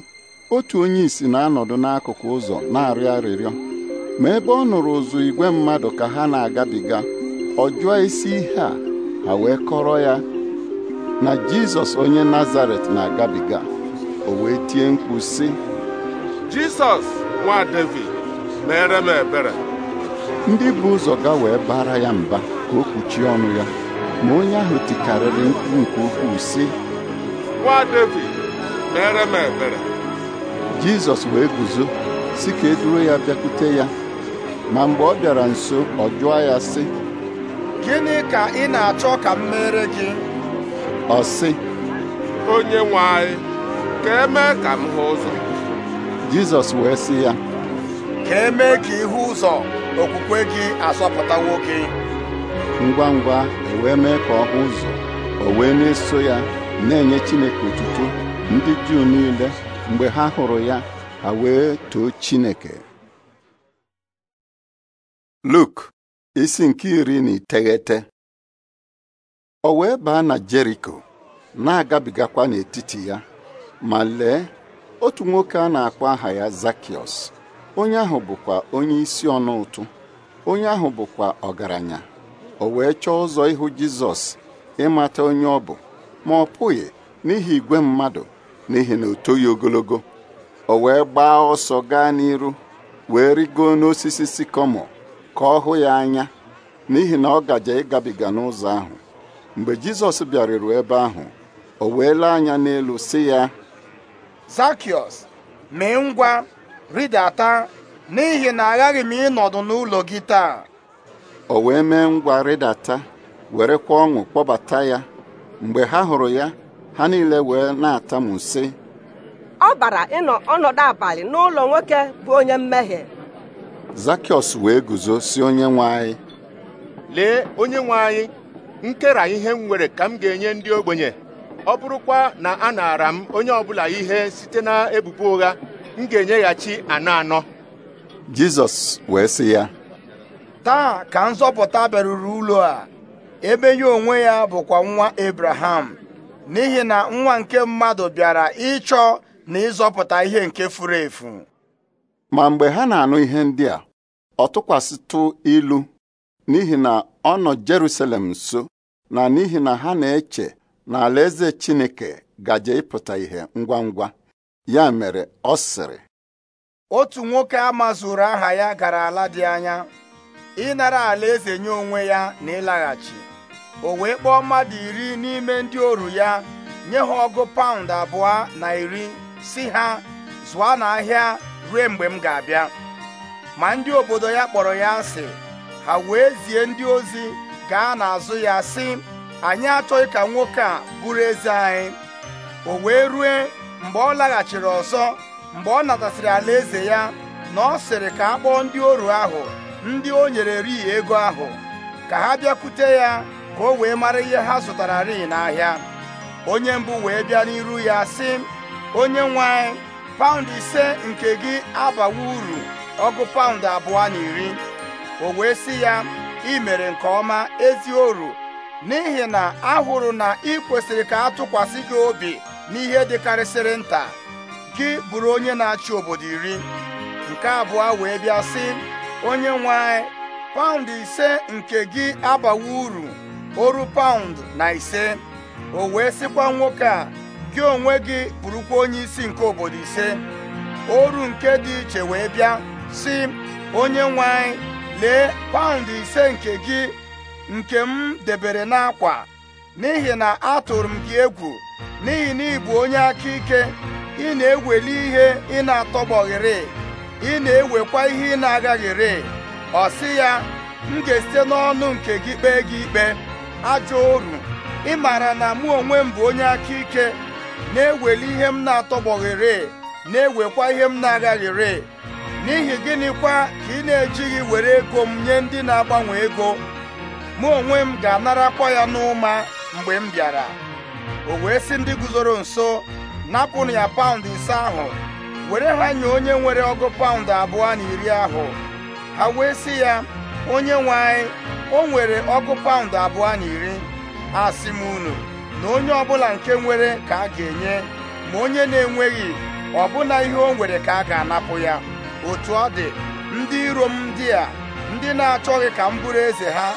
otu onye isi na-anọdụ n'akụkụ ụzọ na-arịọ arịrịọ ma ebe ọ nụrụ ụzụ igwe mmadụ ka ha na-agabiga ọ jụọ isi ihe a ha wee kọrọ ya na Jizọs onye Nazaret na-agabiga o wee tie mkpu sị Jizọs nwa David mere m ebere ndị bụ ụzọ ga wee bara ya mba ka o kpuchie ọnụ ya ma onye ahụ tikarịrị mkpu nke ukwuu sị nwa David mere m ebere Jizọs wee guzo si ka eduru ya bịakwute ya ma mgbe ọ bịara nso ọ jụọ ya sị gịnị ka ị na-achọ ka m mere gị ọ sị onye nwe anyị ka e ka m hụ ụzọ Jizọs wee sị ya ka emee ka ihu ụzọ okwukwe gị asọpụta nwoke. ngwa ngwa ewee mee ka ọ hụ ụzọ o wee na-eso ya na-enye Chineke otuto ndị Juu niile mgbe ha hụrụ ya ha wee too Chineke Luk isi nke iri na iteghete o wee baa na Jeriko na-agabigakwa n'etiti ya ma lee otu nwoke a na-akpọ aha ya zakios. onye ahụ bụkwa onye isi ọnụ ụtụ onye ahụ bụkwa ọgaranya o wee chọọ ụzọ ịhụ jizọs ịmata onye ọ bụ ma ọ pụghị n'ihi igwe mmadụ n'ihi na o ogologo o wee gbaa ọsọ gaa n'iru wee rigoo n'osisi sikọmọ ka ọ hụ ya anya n'ihi na ọ gaje ịgabiga n'ụzọ ahụ mgbe jizọs bịaruru ebe ahụ o wee anya n'elu sị ya mee ngwa rịdata n'ihi na aghaghị m ịnọdụ n'ụlọ gị taa o wee mee ngwa rịdata werekwa ọṅụ kpọbata ya mgbe ha hụrụ ya ha niile wee na m nsi ọ bara ịnọ ọnọdụ abalị n'ụlọ nwoke bụ onye mmehie Zakiọs wee guzo si onye nwe anyị lee onye nwe anyị nkera ihe m nwere ka m ga-enye ndị ogbenye ọ bụrụkwa na a naara m onye ọbụla ihe site na ebubo ụgha m ga-enyeghachi anọ anọ Jizọs wee sị ya taa ka nzọpụta bịaruru ụlọ a ebe ya onwe ya bụkwa nwa Abraham n'ihi na nwa nke mmadụ bịara ịchọ na ịzọpụta ihe nke furu efu ma mgbe ha na-anụ ihe ndị a ọ tụkwasịtụ ilu n'ihi na ọ nọ Jerusalem nso na n'ihi na ha na-eche na alaeze Chineke gaje ịpụta ihe ngwa ngwa ya mere ọ sịrị otu nwoke a mazuru aha ya gara ala dị anya ịnara ala eze nye onwe ya na ịlaghachi o wee kpọọ mmadụ iri n'ime ndị oru ya nye ha ọgụ paụnd abụọ na iri si ha zụọ n'ahịa ruo mgbe m ga-abịa ma ndị obodo ya kpọrọ ya asị ha wee zie ndị ozi gaa n'azụ ya sị anyị achọghị ka nwoke a bụrụ eze anyị o wee rue mgbe ọ laghachiri ọzọ mgbe ọ natasịrị alaeze ya na ọ sịrị ka a kpọọ ndị oru ahụ ndị o nyere rii ego ahụ ka ha bịakwute ya ka o wee mara ihe ha zụtara ri n'ahịa onye mbụ wee bịa n'iru ya sị onye nwanyị paụndụ paụnd ise nke gị abawa uru ọgụ paụnd abụọ na iri o wee sị ya ị mere nke ọma ezi oru n'ihi na ahụrụ na ị kwesịrị ka a tụkwasị gị obi n'ihe dịkarịsịrị nta gị bụrụ onye na-achị obodo iri nke abụọ wee bịa sị onye nwe anyị paụnd ise nke gị abawa uru oru paụndụ na ise o wee sịkwa nwoke a gị onwe gị bụrụkwa onye isi nke obodo ise oru nke dị iche wee bịa sị onye nwe lee paụnd ise nke gị nke m debere n'akwa n'ihi na atụrụ m gị egwu n'ihi na ị bụ onye aka ike ị na-eweli ihe ị na-atọgbọghịrị ị na-ewekwa ihe ị na-agaghịrị ọ sị ya m ga-esite n'ọnụ nke gị kpee gị ikpe ajọ oru ị maara na mụ onwe m bụ onye aka ike na-eweli ihe m na-atọgbọghịrị na-ewekwa ihe m na-agaghịrị n'ihi gịnịkwa ka ị na-ejighị were ego m nye ndị na-agbanwe ego mụ onwe m ga-anarakwa ya n'ụma mgbe m bịara o wee sị ndị guzoro nso napụnụ ya paụndụ ise ahụ were ha nye onye nwere ọgụ paụndụ abụọ na iri ahụ ha wee si ya onye nwe anyị o nwere ọgụ paụndụ abụọ na iri a m unu na onye ọbụla nke nwere ka a ga-enye ma onye na-enweghị ọbụna ihe o nwere ka a ga-anapụ ya otu ọ dị ndị iro m ndị a ndị na-achọghị ka m bụrụ eze ha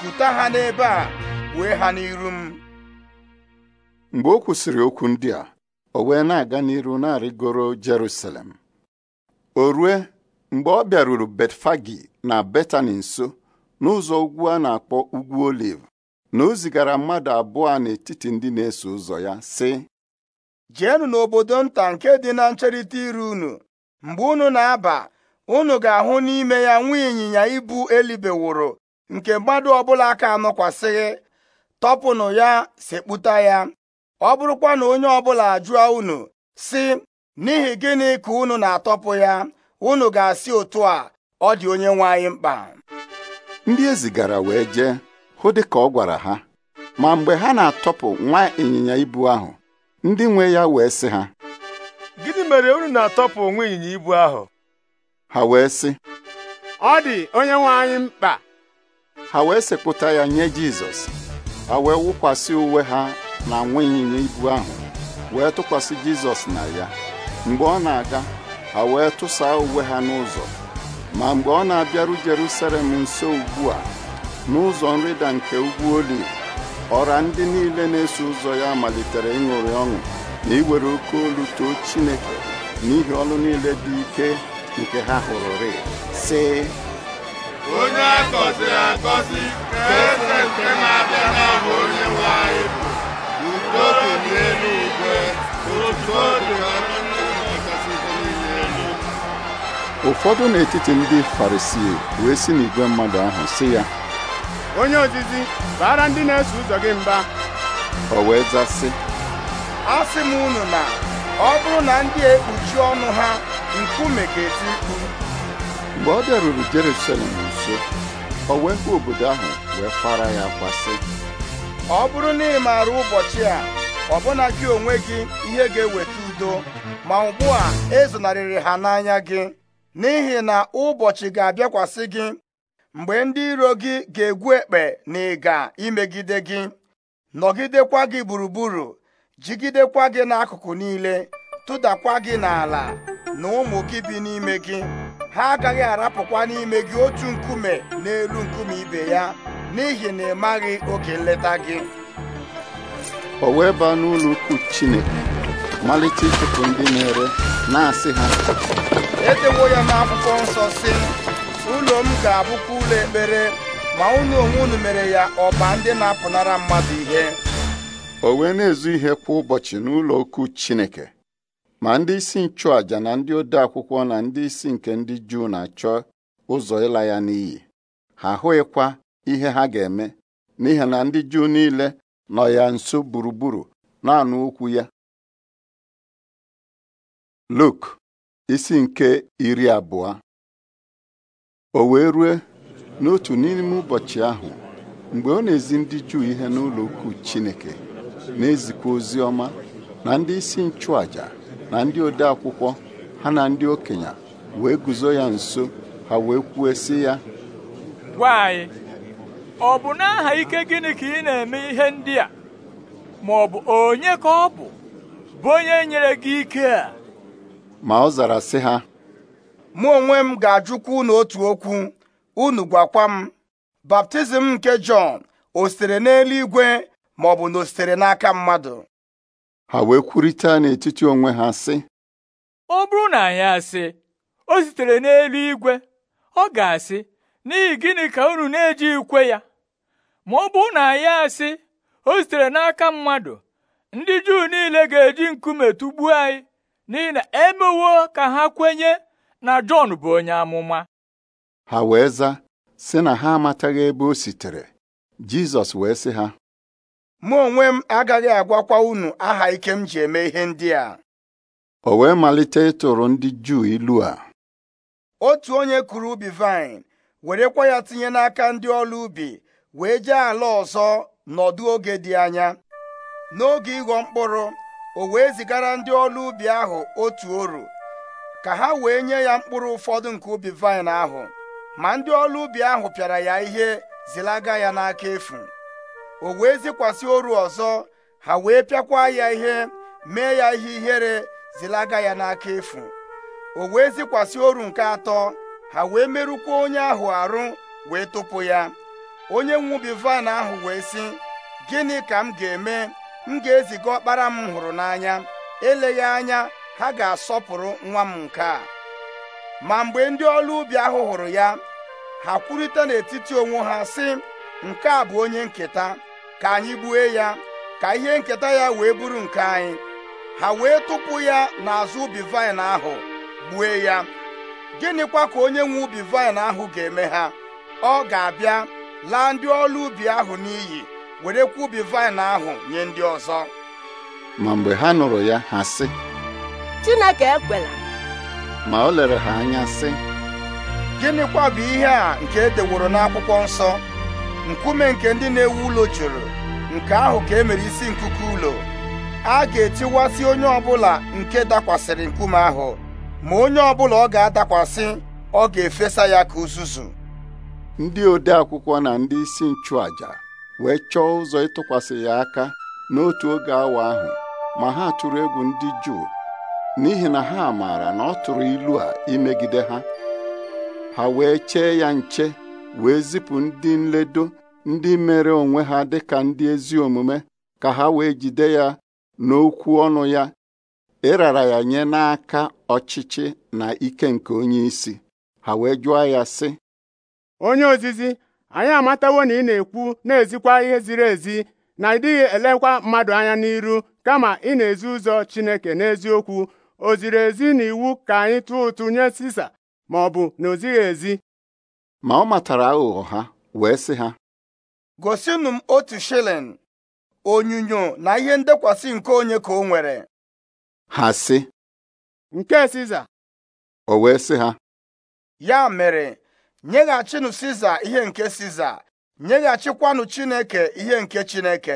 kuta ha n'ebe a wee ha n'iru m mgbe o kwụsịrị okwu ndị a o wee na-aga n'iru na-arịgoro Jerusalem o rue mgbe ọ bịaruru Betfagi na Betani nso n'ụzọ ugwu a na-akpọ Ugwu Oliv na o zigara mmadụ abụọ n'etiti ndị na-eso ụzọ ya sị jeenụ n'obodo nta nke dị na ncherịta iru unu mgbe unu na-aba unu ga-ahụ n'ime ya nwa ịnyịnya ibu wụrụ nke mmadụ ọbụla aka anọkwasịghị tọpụnụ ya sekpụta ya ọ bụrụkwa na onye ọbụla ajụọ unu si n'ihi gịnị ka unu na-atọpụ ya unu ga-asị otu a ọ dị onye nwe anyị mkpa ndị e zigara wee jee hụ dị ka ọ gwara ha ma mgbe ha na-atọpụ nwa ịnyịnya ibu ahụ ndị nwe ya wee sị ha gịnị mere unu na-atọpụ nwa ịnyịnya ibu ahụ ha wee sị ọ dị onye nwe anyị mkpa ha wee sekpụta ya nye Jizọs ha wee wụkwasị uwe ha na nwa ịnyịnya ibu ahụ wee tụkwasị Jizọs na ya mgbe ọ na-aga ha wee tụsaa uwe ha n'ụzọ ma mgbe ọ na-abịaru Jerusalem nso ugbu a n'ụzọ nrịda nke ugwu oli ọra ndị niile na-eso ụzọ ya malitere ịṅụrị ọṅụ na iwere oke olu too Chineke n'ihi ọlụ niile dị ike nke ha hụrụrị sị onye akọziri akọzi ka eze nke na-abịa n'aha onye nwe dị dị elu ụfọdụ n'etiti ndị farisii wee si n'igwe mmadụ ahụ si ya onye ozizi bara ndị na-eso ụzọ gị mba o wee zasị a sị m unu na ọ bụrụ na ndị ekpuchi ọnụ ha nkume ga-eti mkpu mgbe ọ bịaruru Jerusalem nso o wee hụ obodo ahụ wee kwara ya kwasị ọ bụrụ na ị maara ụbọchị a ọbụna gị onwe gị ihe ga-eweta udo ma ugbu a ezonarịrị ha n'anya gị n'ihi na ụbọchị ga-abịakwasị gị mgbe ndị iro gị ga-egwu ekpe na ịga imegide gị nọgidekwa gị gburugburu jigidekwa gị n'akụkụ niile tụdakwa gị n'ala na ụmụ gị bi n'ime gị ha agaghị arapụkwa n'ime gị otu nkume n'elu nkume ibe ya n'ihi na ị maghị oge nleta gị o wee baa n'ụlọ ukwu Chineke malite ịchụpụ ndị na-ere na-asị ha edewo ya n'akwụkwọ nsọ si. ụlọ m ga-abụkwa ụlọ ekpere ma ụlọ onwe unu mere ya ọba ndị na-apụnara mmadụ ihe o wee na-ezu ihe kwa ụbọchị n'ụlọ ukwu Chineke ma ndị isi nchụàjà na ndị ode akwụkwọ na ndị isi nke ndị Juu na-achọ ụzọ ịla ya n'iyi ha ahụghịkwa ihe ha ga-eme n'ihi na ndị Juu niile nọ ya nso gburugburu na-anụ okwu ya Luk isi nke iri abụọ o wee rue n'otu n'ime ụbọchị ahụ mgbe ọ na-ezi ndị Juu ihe n'ụlọ ukwu Chineke na-ezikwa ozi ọma na ndị isi nchụàjà na ndị ode akwụkwọ ha na ndị okenye wee guzo ya nso ha wee kwuo sị ya gwa anyị ọ bụ n'aha ike gịnị ka ị na-eme ihe ndị a ma ọ bụ onye ka ọ bụ bụ onye nyere gị ike a ma ọ zara sị ha mụ onwe m ga-ajụkwa unu otu okwu unu gwakwa m baptizim nke Jọn o sitere n'eluigwe ma ọ bụ na o sitere n'aka mmadụ ha wee kwurịta n'etiti onwe ha sị ọ bụrụ na anyị asị o sitere n'eluigwe ọ ga-asị n'ihi gịnị ka unu na-eji ikwe ya ma ọ bụrụ na ya asị o sitere n'aka mmadụ ndị juu niile ga-eji nkume tụgbuo anyị n'ihi na emewo ka ha kwenye na Jọn bụ onye amụma ha wee za sị na ha amataghị ebe o sitere Jizọs wee sị ha mụ onwe m agaghị agwakwa unu aha ike m ji eme ihe ndị a o wee malite ịtụrụ ndị Juu ilu a otu onye kụrụ ubi vine werekwa ya tinye n'aka ndị ọrụ ubi wee jee ala ọzọ nọdụ oge dị anya n'oge ịghọ mkpụrụ o wee zigara ndị ọrụ ubi ahụ otu oru ka ha wee nye ya mkpụrụ ụfọdụ nke ubi vaịn ahụ ma ndị ọrụ ubi ahụ pịara ya ihe zilaga ya n'aka efu o wee zikwasị oru ọzọ ha wee pịakwa ya ihe mee ya ihe ihere zilaga ya n'aka efu o wee zikwasị oru nke atọ ha wee merụkwa onye ahụ arụ wee tụpụ ya onye nwubi vaịn ahụ wee sị gịnị ka m ga-eme m ga-eziga ọkpara m hụrụ n'anya eleghị anya ha ga-asọpụrụ nwa m nke a ma mgbe ndị ọrụ ubi ahụ hụrụ ya ha kwurịta n'etiti onwe ha sị nke a bụ onye nketa ka anyị gbue ya ka ihe nketa ya wee bụrụ nke anyị ha wee tụpụ ya n'azụ ubi vaịn ahụ gbue ya gịnịkwa ka onye nwe ubi vaịn ahụ ga-eme ha ọ ga-abịa laa ndị ọrụ ubi ahụ n'iyi werekwa ubi vaịn ahụ nye ndị ọzọ ma mgbe ha nụrụ ya ha sị Chineke ekwela ma o lere ha anya sị gịnịkwa bụ ihe a nke e deworo n'akwụkwọ nsọ nkume nke ndị na-ewu ụlọ jụrụ nke ahụ ka e mere isi nkuku ụlọ a ga-etiwasị onye ọbụla nke dakwasịrị nkume ahụ ma onye ọbụla ọ ga-adakwasị ọ ga-efesa ya ka uzuzu ndị ode akwụkwọ na ndị isi nchụàjà wee chọọ ụzọ ịtụkwasị ya aka n'otu oge awa ahụ ma ha tụrụ egwu ndị Juu n'ihi na ha maara na ọ tụrụ ilu a imegide ha ha wee chee ya nche wee zipụ ndị nledo ndị mere onwe ha dị ka ndị ezi omume ka ha wee jide ya n'okwu ọnụ ya ịrara ya nye n'aka ọchịchị na ike nke onye isi ha wee jụọ ya sị onye ozizi anyị amatawo na ị na-ekwu na-ezikwa ihe ziri ezi na ịdịghị elekwa mmadụ anya n'iru kama ị na-ezi ụzọ Chineke n'eziokwu o ziri ezi na iwu ka anyị tụọ ụtụ nye Sisa ma ọ bụ na o ezi ma ọ matara aghụghọ ha wee sị ha gosinụ m otu shilling onyinyo na ihe ndekwasị nke onye ka o nwere ha si. nke Siza o wee sị ha ya mere nyeghachinụ siza ihe nke siza nyeghachikwanụ chineke ihe nke chineke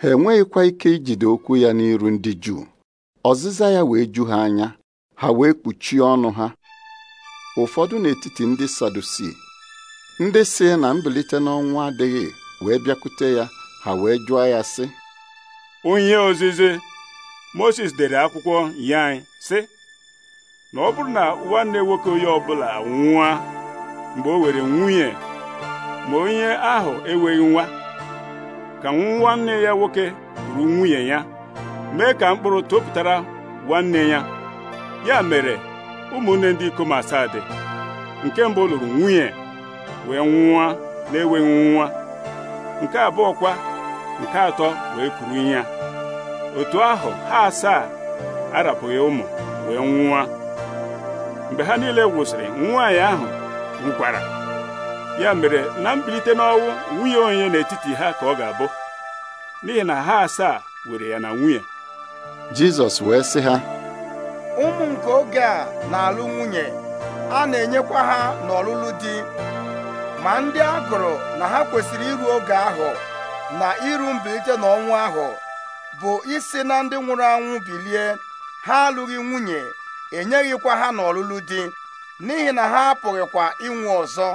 ha enweghịkwa ike ijide okwu ya n'iru ndị juu ọzịza ya wee ju ha anya ha wee kpuchie ọnụ ha ụfọdụ n'etiti ndị sadusi ndị si na mbilite n'ọnwụ adịghị wee bịakwute ya ha wee jụọ ya sị onye ozizi Moses dere akwụkwọ sị na ọ bụrụ na nwanne nwoke onye ọbụla nwụọ mgbe o were nwunye ma onye ahụ enweghị nwa ka nwanne ya nwoke ruru nwunye ya mee ka mkpụrụ topụtara nwanne ya ya mere ụmụnne ndị ikom asaa dị nke mbụ lụrụ nwunye wee nwa na-enweghị nwa nke abụọ kwa nke atọ wee kuru ya otu ahụ ha asaa arapụghị ụmụ wee nwa mgbe ha niile wụsịrị nwaanyị ahụ Nkwara ya mere na mbilite n'ọnwụ nwunye onye n'etiti ha ka ọ ga-abụ n'ihi na ha asaa were ya na nwunye Jizọs wee sị ha ụmụ nke oge a na-alụ nwunye a na-enyekwa ha n'ọlụlụ di ma ndị a gụrụ na ha kwesịrị iru oge ahụ na iru mbilite n'ọnwụ ahụ bụ isi na ndị nwụrụ anwụ bilie ha alụghị nwunye enyeghịkwa ha n'ọlụlụ di n'ihi na ha apụghịkwa ịnwụ ọzọ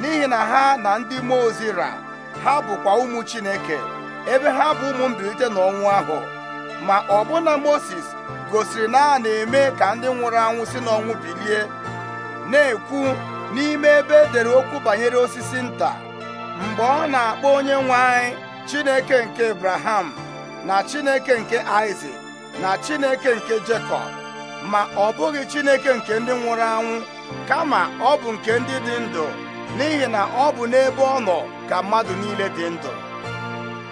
n'ihi na ha na ndị mmụọ ozi ra ha bụkwa ụmụ Chineke ebe ha bụ ụmụ mbilite n'ọnwụ ahụ ma ọbụna Moses gosiri na a na-eme ka ndị nwụrụ anwụ si n'ọnwụ bilie na-ekwu n'ime ebe edere okwu banyere osisi nta mgbe ọ na-akpọ onye nwe anyị Chineke nke Abraham na Chineke nke Isaac na Chineke nke Jekọb ma ọ bụghị Chineke nke ndị nwụrụ anwụ kama ọ bụ nke ndị dị ndụ n'ihi na ọ bụ n'ebe ọ nọ ka mmadụ niile dị ndụ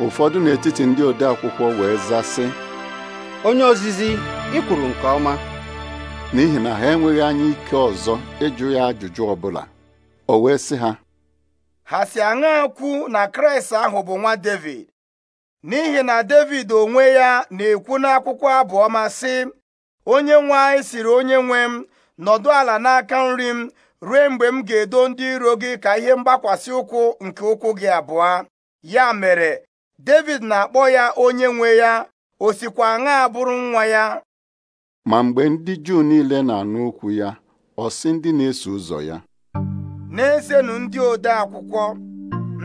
ụfọdụ n'etiti ndị ode akwụkwọ wee zasị onye ozizi ị kwuru nke ọma n'ihi na ha enweghị anya ike ọzọ ịjụ ya ajụjụ ọbụla o wee sị ha ha si aṅa kwu na kraịst ahụ bụ nwa david n'ihi na david onwe ya na-ekwu n'akwụkwọ abụ ọma sị onye nwe anyị siri onye nwe m nọdụ ala n'aka nri m rue mgbe m ga-edo ndị iro gị ka ihe mgbakwasị ụkwụ nke ụkwụ gị abụọ ya mere David na-akpọ ya onye nwe ya o sikwa aṅa bụrụ nwa ya ma mgbe ndị Juu niile na-anụ okwu ya ọ sị ndị na-eso ụzọ ya na-esenu ndị ode akwụkwọ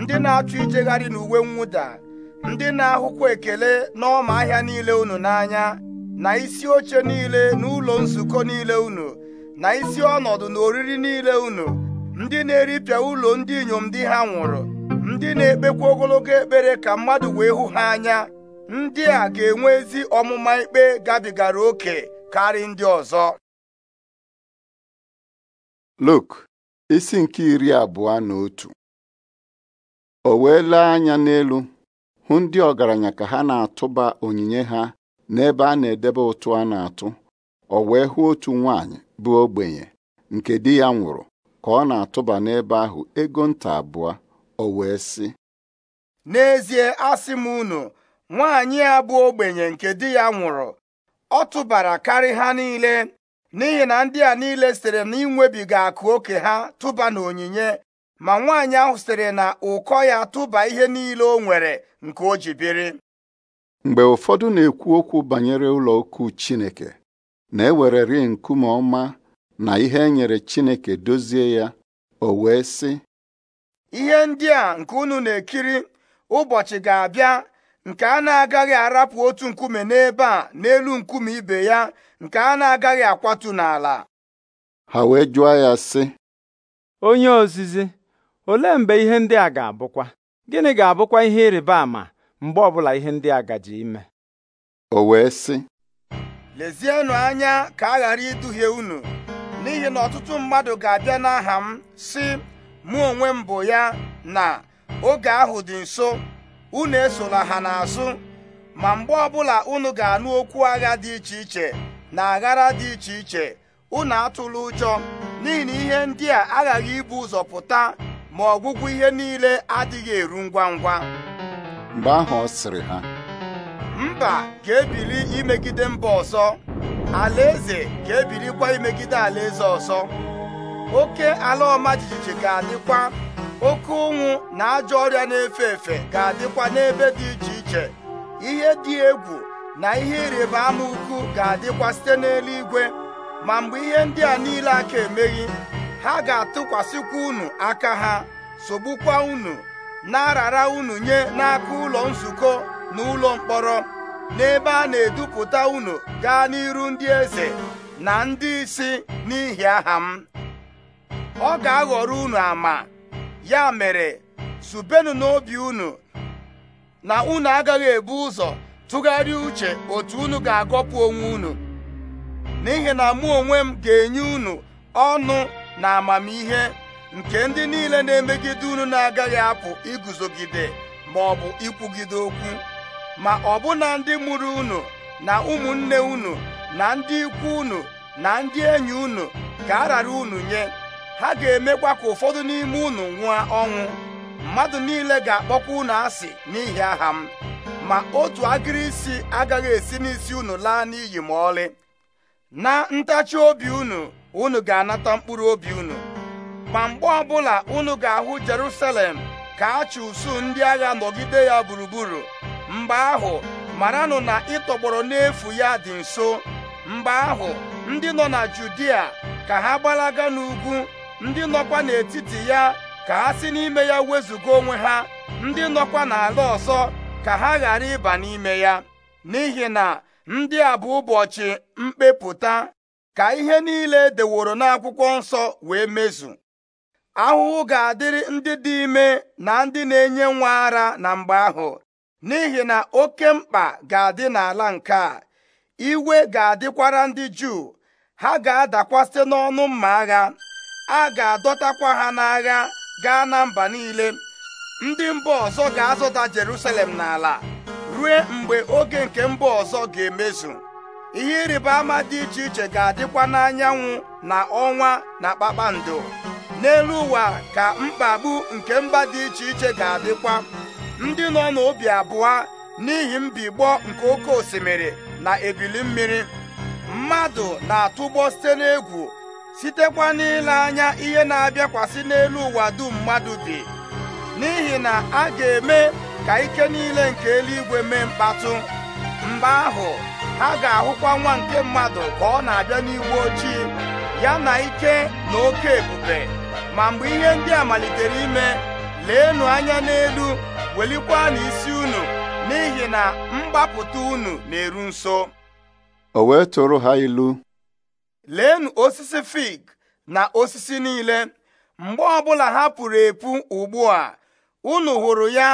ndị na-achọ ijegharị n'uwe mwụda ndị na-ahụkwa ekele n'ọma ahịa niile unu n'anya na isi oche niile n'ụlọ nzukọ niile unu na isi ọnọdụ na oriri niile unu ndị na-eripịa ụlọ ndị inyom di ha nwụrụ ndị na-ekpekwa ogologo ekpere ka mmadụ wee hụ ha anya ndị a ga-enwe ezi ọmụma ikpe gabigara oke karị ndị ọzọ Luk isi nke iri abụọ na otu o wee lee anya n'elu hụ ndị ọgaranya ka ha na-atụba onyinye ha n'ebe a na-edebe ụtụ a na-atụ o wee hụ otu nwaanyị bụ ogbenye nke di ya nwụrụ ka ọ na-atụba n'ebe ahụ ego nta abụọ o wee sị n'ezie asị m unu nwaanyị a bụ ogbenye nke di ya nwụrụ ọ tụbara karị ha niile n'ihi na ndị a niile sitere na inwebiga akụ oke ha tụba na onyinye ma nwaanyị ahụ sitere na ụkọ ya tụba ihe niile o nwere nke o ji mgbe ụfọdụ na-ekwu okwu banyere ụlọ ukwu Chineke na-ewereri nkume ọma na ihe e nyere Chineke dozie ya o wee sị ihe ndị a nke unu na-ekiri ụbọchị ga-abịa nke a na-agaghị arapụ otu nkume n'ebe a n'elu nkume ibe ya nke a na-agaghị akwatu n'ala ha wee jụọ ya sị onye ozizi olee mgbe ihe ndị a ga-abụkwa gịnị ga-abụkwa ihe ịrịba ama mgbe ọbụla ihe ndị a gaji ime o wee sị lezienụ anya ka a ghara iduhie unu n'ihi na ọtụtụ mmadụ ga-abịa n'aha m si, mụ onwe m bụ ya na oge ahụ dị nso unu esola ha n'azụ ma mgbe ọbụla unu ga-anụ okwu agha dị iche iche na aghara dị iche iche unu atụla ụjọ n'ihi na ihe ndị a aghaghị ibu ụzọ pụta ma ọgwụgwụ ihe niile adịghị eru ngwa ngwa mgbe ahụ ọ sịrị ha mba ga-ebili imegide mba ọzọ alaeze ga-ebilikwa imegide alaeze ọzọ oke ala ọma jijiji ga-adịkwa oke ụnwụ na ajọ ọrịa na-efe efe ga-adịkwa n'ebe dị iche iche ihe dị egwu na ihe ịrịba ama ukwu ga-adịkwa site n'eluigwe ma mgbe ihe ndị a niile aka emeghị ha ga-atụkwasịkwa unu aka ha sogbukwa unu na-arara unu nye n'aka ụlọ nzukọ na ụlọ mkpọrọ n'ebe a na-edupụta unu gaa n'iru ndị eze na ndị isi n'ihi aha m ọ ga-aghọrọ unu ama ya mere zubenu n'obi unu na unu agaghị ebu ụzọ tụgharịa uche otu unu ga-agọpụ onwe unu n'ihi na mụ onwe m ga-enye unu ọnụ na amamihe nke ndị niile na-emegide unu na-agaghị apụ iguzogide ma ọ bụ ikwugide okwu ma ọbụna ndị mụrụ unu na ụmụnne unu na ndị ikwu unu na ndị enyi unu ka a rara unu nye ha ga-emekwa ka ụfọdụ n'ime unu nwụọ ọnwụ mmadụ niile ga-akpọkwa unu asị n'ihi aha m ma otu agịrị isi agaghị esi n'isi unu laa n'iyi ma ọlị na ntachi obi unu unu ga-anata mkpụrụ obi unu ma mgbe ọbụla unu ga-ahụ Jerusalem ka a chụ usuu ndị agha nọgide ya gburugburu mgbe ahụ maranụ na ịtọgbọrọ n'efu ya dị nso mgbe ahụ ndị nọ na Judia ka ha gbalaga n'ugwu ndị nọkwa n'etiti ya ka ha si n'ime ya wezụga onwe ha ndị nọkwa n'ala ọzọ ka ha ghara ịba n'ime ya n'ihi na ndị a bụ ụbọchị mkpepụta ka ihe niile deworo n'akwụkwọ nsọ wee mezu ahụhụ ga-adịrị ndị dị ime na ndị na-enye nwa ara na mgbe ahụ n'ihi na oke mkpa ga-adị n'ala nke a iwe ga-adịkwara ndị juu ha ga adakwasị n'ọnụ mma agha a ga-adọtakwa ha n'agha gaa na mba niile ndị mba ọzọ ga azụta Jerusalem n'ala ruo mgbe oge nke mba ọzọ ga-emezu ihe ịrịba ama dị iche iche ga-adịkwa n'anyanwụ na ọnwa na kpakpando n'elu ụwa ka mkpagbu nke mba dị iche iche ga-adịkwa ndị nọ n'obi abụọ n'ihi mbigbọ nke oke osimiri na ebili mmiri mmadụ na-atụgbọ site n'egwu sitekwa n'ile anya ihe na-abịakwasị n'elu ụwa dum mmadụ bi n'ihi na a ga-eme ka ike niile nke eluigwe mee mkpatụ mgbe ahụ ha ga-ahụkwa nwa nke mmadụ ka ọ na-abịa n'iwu ojii ya na ike na oke ebube ma mgbe ihe ndị a malitere ime leenụ anya n'elu welikwanụ isi unu n'ihi na mgbapụta unu na-eru nso o wee tụrụ ha ilu leenụ osisi fig na osisi niile mgbe ọbụla ha pụrụ epu ugbu a unu hụrụ ya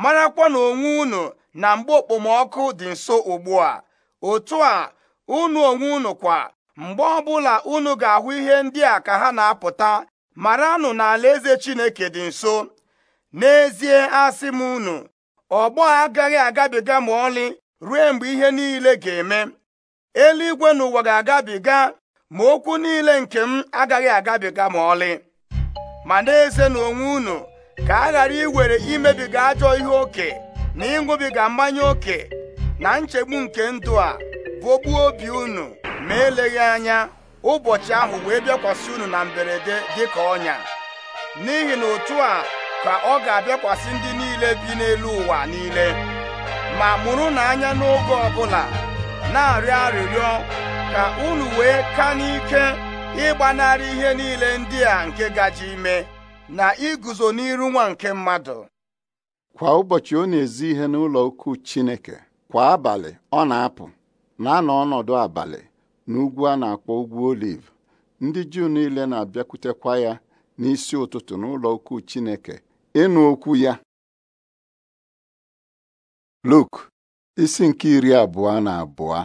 marakwa na onwe unu na mgbe okpomọkụ dị nso ugbu a otu a unu onwe unu kwa mgbe ọbụla unu ga-ahụ ihe ndị a ka ha na-apụta maranụ na alaeze Chineke dị nso n'ezie asị m unu ọgbọ agaghị agabiga ma ọlị ruo mgbe ihe niile ga-eme eluigwe na ụwa ga-agabiga ma okwu niile nke m agaghị agabiga ma ọlị ma na-eze na onwe unu ka a ghara iwere imebiga ajọ ihe oke na ịṅụbiga mmanya oke na nchegbu nke ndụ a bụ obi unu ma eleghị anya ụbọchị ahụ wee bịakwasị unu na mberede dịka ọnya n'ihi na otu a ka ọ ga-abịakwasị ndị niile bi n'elu ụwa niile ma mụrụ n'anya n'oge ọbụla na-arịọ arịrịọ ka unu wee ka n'ike ịgbanarị ihe niile ndị a nke gaji ime na iguzo n'iru nwa nke mmadụ kwa ụbọchị ọ na-ezi ihe n'ụlọ ukwu Chineke kwa abalị ọ na-apụ na-anọ ọnọdụ abalị n'ugwu a na-akpọ ugwu oliv ndị Juu niile na-abịakwutekwa ya n'isi ụtụtụ n'ụlọ ukwu Chineke ịnụ okwu ya Luk isi nke iri abụọ na abụọ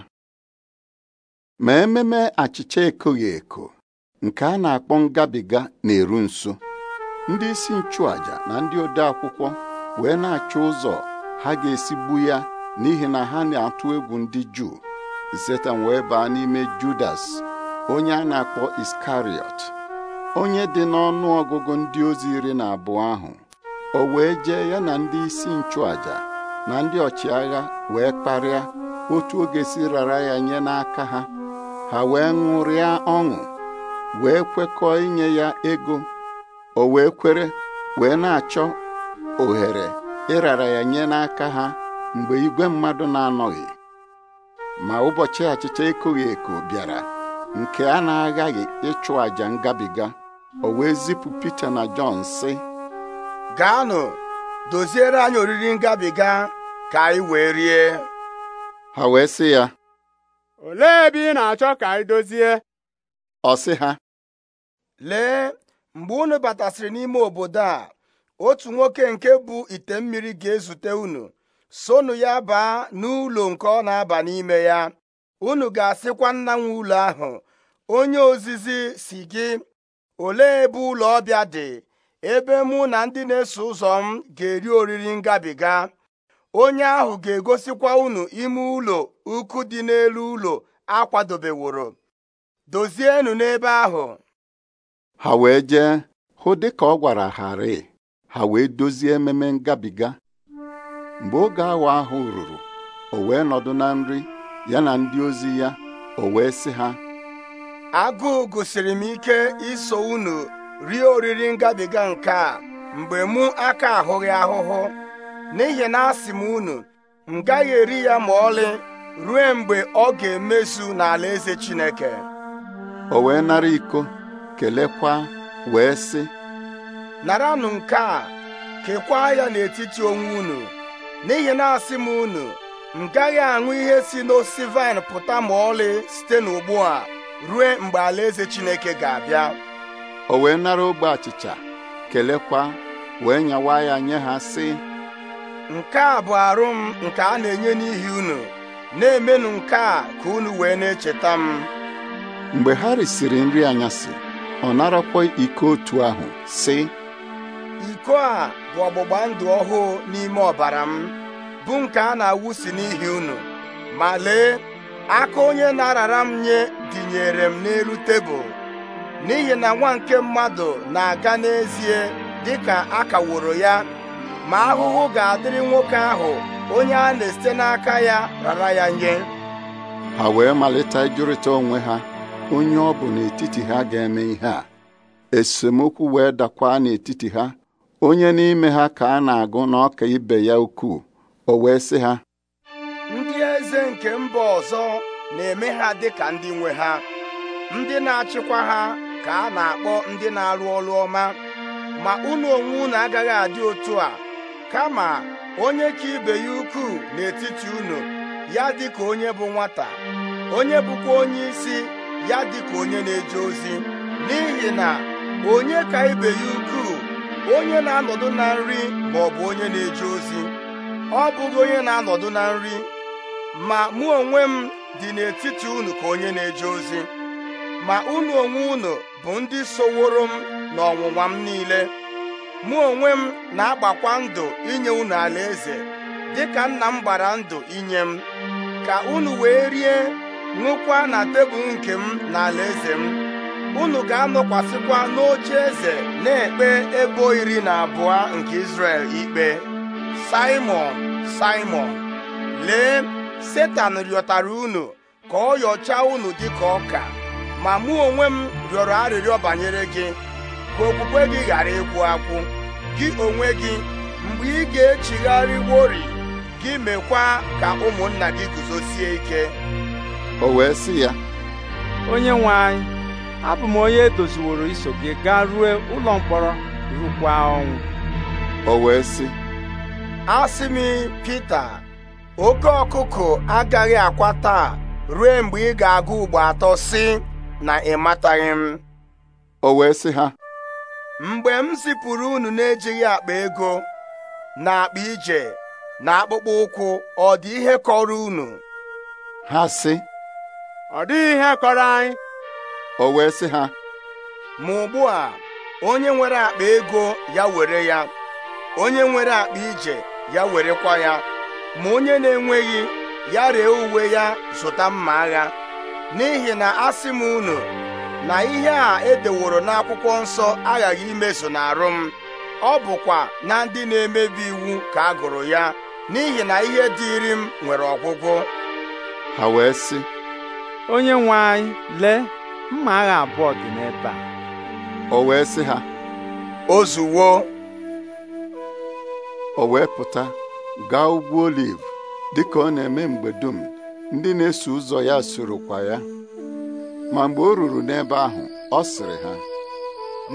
ma ememe achịcha ekoghị eko nke a na-akpọ ngabiga na-eru nso ndị isi nchụaja na ndị ode akwụkwọ wee na-achọ ụzọ ha ga-esigbu esi ya n'ihi na ha na-atụ egwu ndị Juu Setan wee baa n'ime Judas onye a na-akpọ Iskariot onye dị n'ọnụ ọgụgụ ndị ozi iri na abụọ ahụ o wee jee ya na ndị isi nchụaja na ndị ọchịagha wee kparịa otu oge si rara ya nye n'aka ha ha wee ṅụrịa ọṅụ wee kwekọọ inye ya ego o wee kwere wee na-achọ ohere ịrara ya nye n'aka ha mgbe igwe mmadụ na-anọghị ma ụbọchị achịcha ekoghị eko bịara nke a na-aghaghị ịchụ àjà ngabiga o wee zipụ Pita na Jọn si: gaanụ doziere anyị oriri ngabiga ka anyị wee rie ha wee sị ya olee ebe ị na-achọ ka anyị dozie ọ sị ha lee mgbe unu batasịrị n'ime obodo a otu nwoke nke bụ ite mmiri ga-ezute unu sonu ya baa n'ụlọ nke ọ na-aba n'ime ya unu ga-asịkwa nna nwe ụlọ ahụ onye ozizi si gị olee ebe ụlọ ọbịa dị ebe mụ na ndị na-eso ụzọ m ga-eri oriri ngabiga onye ahụ ga-egosikwa unu ime ụlọ ukwu dị n'elu ụlọ akwadobeworo dozienụ n'ebe ahụ ha wee jee hụ dị ka ọ gwara harị ha wee dozie ememe ngabiga mgbe oge awa ahụ ruru o wee nọdụ na nri ya na ndị ozi ya o wee sị ha agụụ gosiri m ike iso unu rie oriri ngabiga nke a mgbe mụ aka ahụghị ahụhụ n'ihi na asị m unu m gaghị eri ya ma ọlị ruo mgbe ọ ga-emezu n'ala eze Chineke o wee nara iko kelekwa wee sị naranụ nke a kekwa ya n'etiti onwe unu n'ihi na asị m unu m gaghị aṅụ ihe si n'osisi vaịn pụta ma ọlị site n'ugbu a ruo mgbe alaeze Chineke ga-abịa o wee nara ogbe achịcha kelekwa wee nyawa ya nye ha sị nke a bụ arụ m nke a na-enye n'ihi unu na-emenụ nke a ka unu wee na-echeta m mgbe ha risiri nri anyasị ọ narakwa iko otu ahụ sị iko a bụ ọgbụgba ndụ ọhụụ n'ime ọbara m bụ nke a na-awụsi n'ihi unu ma lee aka onye na-arara m nye dịnyere m n'elu tebụl n'ihi na nwa nke mmadụ na-aga n'ezie dị ka a kaworo ya ma ahụhụ ga-adịrị nwoke ahụ onye a na-esite n'aka ya rara ya nye ha wee malite ịjụrịta onwe ha onye ọ bụ n'etiti ha ga-eme ihe a esemokwu wee dakwa n'etiti ha onye n'ime ha ka a na-agụ na ọka ibe ya ukwuu o wee sị ha ndị eze nke mba ọzọ na-eme ha dịka ndị nwe ha ndị na-achịkwa ha ka a na-akpọ ndị na-arụ ọrụ ọma ma unu onwe unu agaghị adị otu a kama onye ka ibe ya ukwuu n'etiti unu ya dị ka onye bụ nwata onye bụkwa onye isi ya dị ka onye na-eje ozi n'ihi na onye ka ibe ya ukwuu onye na-anọdụ na nri ma ọ bụ onye na-eje ozi ọ bụghị onye na-anọdụ na nri ma mụ onwe m dị n'etiti unu ka onye na-eje ozi ma unu onwe unu bụ ndị soworo m ọnwụnwa m niile mụ onwe m na-agbakwa ndụ inye unu alaeze dịka nna m gbara ndụ inye m ka unu wee rie ṅụkwa na tebụl nke m na alaeze m unu ga-anọkwasịkwa n'oche eze na-ekpe ebo iri na abụọ nke Izrel ikpe simon simon lee Setan rịọtara unu ka ọ yọchaa unu dịka ọka ma mụ onwe m rịọrọ arịrịọ banyere gị ka okwukwe gị ghara ịkwụ akwụ gị onwe gị mgbe ị ga-echigharịwori echigharị gị mekwa ka ụmụnna gị guzosie ike o wee sị ya onye nwe anyị abụ m onye edoziworo iso gị gaa ruo ụlọ mkpọrọ rukwa ọnwụ o wee sị m oke ọkụkụ agaghị akwa taa rue mgbe ị ga-agụ ugbo atọ sị na ịmataghị m o wee sị ha mgbe m zipụrụ unu na-ejighị akpa ego na akpa ije na akpụkpọ ụkwụ ọ dị ihe kọrọ unu ha sị ọ dịghị ihe kọrọ anyị o wee sị ha ma ugbu a onye nwere akpa ego ya were ya onye nwere akpa ije ya werekwa ya ma onye na-enweghị ya ree uwe ya zụta mma agha n'ihi na asị m unu na ihe a edeworo n'akwụkwọ nsọ aghaghị imezu n'arụ m ọ bụkwa na ndị na-emebi iwu ka agụrụ ya n'ihi na ihe dịịrị m nwere ọgwụgwụ ha wee sị onye nwe anyị lee mma agha abụọ dị n'ebe a o wee sị ha ozuwo o wee pụta gaa ugwu oliv dịka ọ na-eme mgbe dum ndị na-eso ụzọ ya kwa ya ma mgbe o ruru n'ebe ahụ ọ sịrị ha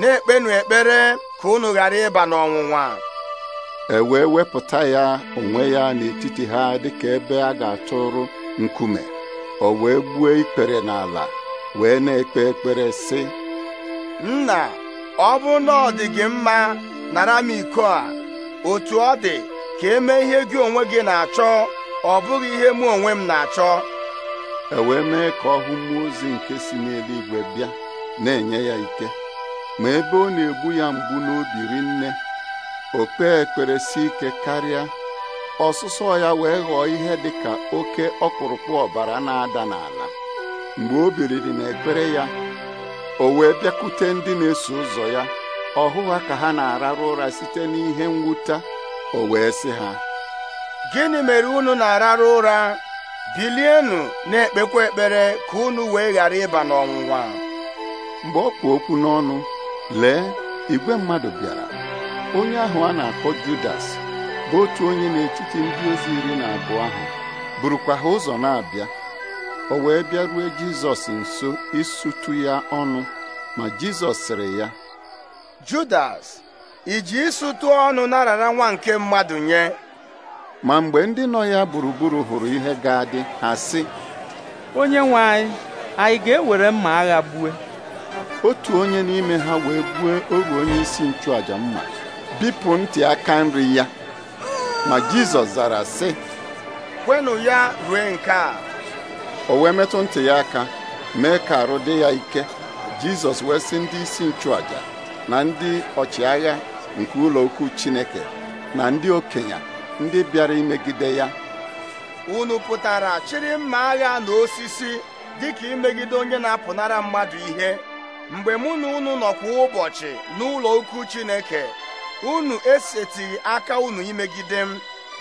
na-ekpenụ ekpere ka unu ghara ịba n'ọnwụnwa e wee wepụta ya onwe ya n'etiti ha dịka ebe a ga-atụrụ nkume o wee gbuo ikpere n'ala wee na-ekpe ekpere sị nna ọ bụ na ọ dị gị mma nara m iko a otu ọ dị ka eme ihe gị onwe gị na-achọ ọ bụghị ihe mụ onwe m na-achọ e wee mee ka ọ hụ mmụọ ozi nke si n'eluigwe bịa na-enye ya ike ma ebe ọ na-egbu ya mgbu n'obi nne. o kpee ekpere si ike karịa ọsụsọ ya wee ghọọ ihe dị ka oke ọkpụrụkpụ ọbara na-ada n'ala mgbe o biliri n'ekpere ya o wee bịakwute ndị na-eso ụzọ ya ọhụ ha ka ha na-ararụ ụra site n'ihe mwute o wee sị ha gịnị mere unu na-arara ụra bilienụ na-ekpekwa ekpere ka unu wee ghara ịba n'ọnwụnwa mgbe ọ kpụ okwu n'ọnụ lee igwe mmadụ bịara onye ahụ a na-akpọ Judas bụ otu onye n'etiti ndị ozi iri na abụọ ahụ burukwa ha ụzọ na-abịa o wee bịarue Jizọs nso isụtụ ya ọnụ ma Jizọs sịrị ya Judas iji ịsụtụ ọnụ narara nwa nke mmadụ nye ma mgbe ndị nọ ya gburugburu hụrụ ihe ga-adị ha sị onye nwe anyị anyị ga-ewere mma agha gbue otu onye n'ime ha wee gbuo oru onye isi nchụaja mma bipụ ntị aka nri ya ma Jizọs zara sị kwenụ ya rue nke a o wee metụ ntị ya aka mee ka arụ dị ya ike Jizọs wee sị ndị isi nchụaja na ndị ọchịagha nke ụlọ ukwu Chineke na ndị okenye ndị bịara imegide ya unu pụtara chịrị mma agha na osisi dịka imegide onye na-apụnara mmadụ ihe mgbe mụ na unu nọkwa ụbọchị n'ụlọ ukwu Chineke unu esetighị aka unu imegide m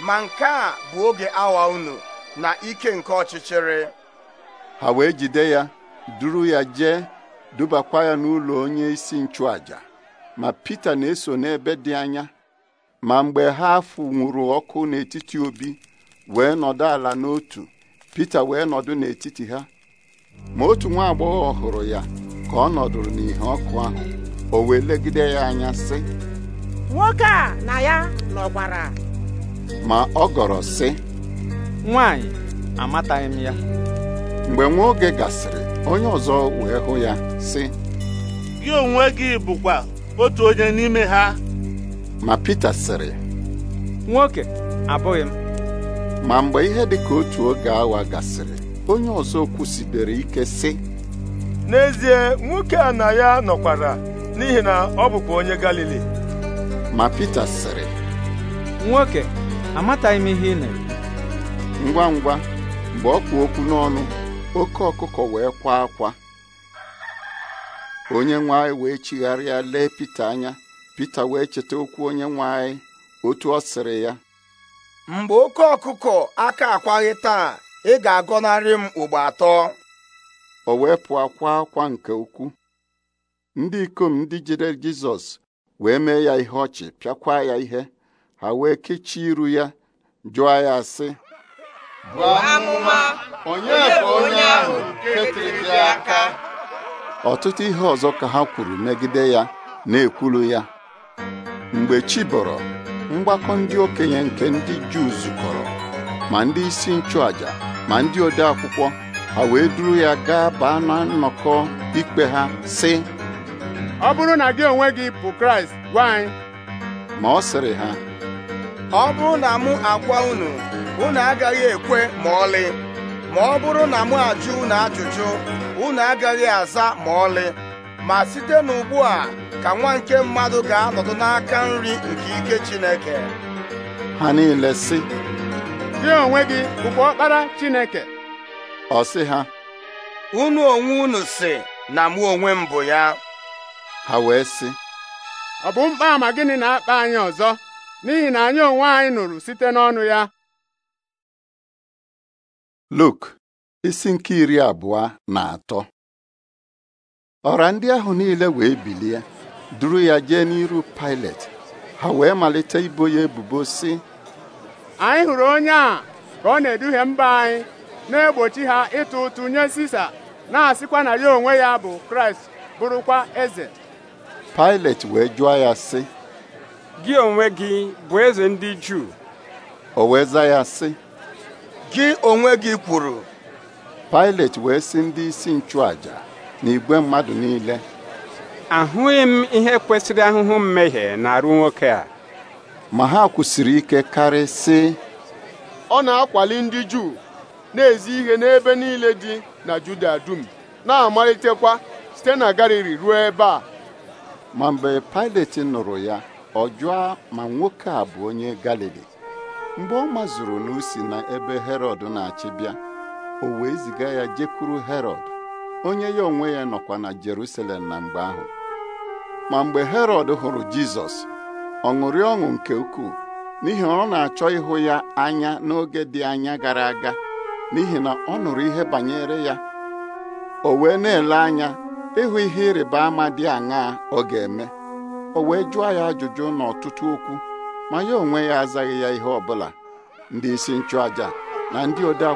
ma nke a bụ oge awa unu na ike nke ọchịchịrị ha wee jide ya duru ya jee dubakwa ya n'ụlọ onye isi nchụàjà, ma Pita na-eso n'ebe dị anya ma mgbe ha nwuru ọkụ n'etiti obi wee nọdụ ala n'otu Pita wee nọdụ n'etiti ha ma otu nwa agbọghọ hụrụ ya ka ọ nọdụrụ n'ihe ọkụ ahụ o wee legide ya anya sị nwoke a na ya nọkwara ma ọ gọrọ sị nwanyị amataghị m ya mgbe nwa oge gasịrị onye ọzọ wee hụ ya sị gị onwe gị bụkwa otu onye n'ime ha ma Pita sịrị nwoke abụghị m ma mgbe ihe dị ka otu oge awa gasịrị onye ọzọ kwụsibere ike sị n'ezie nwoke a na ya nọkwara n'ihi na ọ bụkwa onye Galili ma Pita sịrị nwoke amataghị m ihe ị na ngwa ngwa mgbe ọ kpụ okwu n'ọnụ oke ọkụkọ wee kwa akwa onye nwe anyị wee chigharịa lee Pita anya Pita wee cheta okwu onye nwe anyị otu ọ sịrị ya mgbe oke ọkụkọ aka akwaghị taa ị ga-agọnarị m ugbo atọ o wee pụ akwa akwa nke ukwu ndị ikom ndị jide Jizọs wee mee ya ihe ọchị pịakwa ya ihe ha wee kechie iru ya jụọ ya sị onye onye ahụ aka ọtụtụ ihe ọzọ ka ha kwuru megide ya na-ekwulu ya mgbe chi bọrọ mgbakọ ndị okenye nke ndị Juu zukọrọ ma ndị isi nchụàjà ma ndị ode akwụkwọ ha wee duru ya gaa baa na nnọkọ ikpe ha si ọ bụrụ na gị onwe gị bụ Kraịst gwa anyị ma ọ sịrị ha ọ bụrụ na mụ agwa unu unu agaghị ekwe ma ọlị ma ọ bụrụ na mụ ajụ unu ajụjụ unu agaghị aza ma ọlị ma site n'ugbu a ka nwa nke mmadụ ga-anọdụ n'aka nri nke ike Chineke ha niile sị gị onwe gị bụkwa ọkpara Chineke ọ sị ha unu onwe unu si na mụ onwe m bụ ya ha wee sị ọ bụ mkpa ama gịnị na-akpa anyị ọzọ n'ihi na anyị onwe anyị nụrụ site n'ọnụ ya Luk isi nke iri abụọ na atọ ọra ndị ahụ niile wee bilie duru ya jee n'iru Pilet ha wee malite ibo ya ebubo si anyị hụrụ onye a ka ọ na-eduhie mba anyị na-egbochi ha ịtụ ụtụ nye Sisa na-asịkwa na ya onwe ya bụ Kraịst bụrụkwa eze Pilet wee jụọ ya sị gị onwe gị bụ eze ndị Juu o wee ya si gị onwe gị kwuru Pilet wee sị ndị isi nchụaja na igwe mmadụ niile ahụghị m ihe kwesịrị ahụhụ mmehie na-arụ nwoke a ma ha kwụsịrị ike karị sị ọ na-akwali ndị Juu na-ezi ihe n'ebe niile dị na Juda dum na-amalitekwa site na Galili ruo ebe a ma mgbe Pilate nụrụ ya ọ jụọ ma nwoke a bụ onye Galili mgbe ọ mazuru na usi na ebe Herọd na-achị bịa o wee ziga ya jekwuru Herọd onye ya onwe ya nọkwa na Jerusalem na mgbe ahụ ma mgbe herod hụrụ Jizọs ọ ṅụrị ọṅụ nke ukwuu n'ihi ọ na-achọ ịhụ ya anya n'oge dị anya gara aga n'ihi na ọ nụrụ ihe banyere ya o wee na-ele anya ịhụ ihe ịrịba ama dị aṅaa ọ ga-eme o wee jụọ ya ajụjụ n'ọtụtụ okwu ma ya onwe ya azaghị ya ihe ọbụla ndị isi nchụàja na ndị ode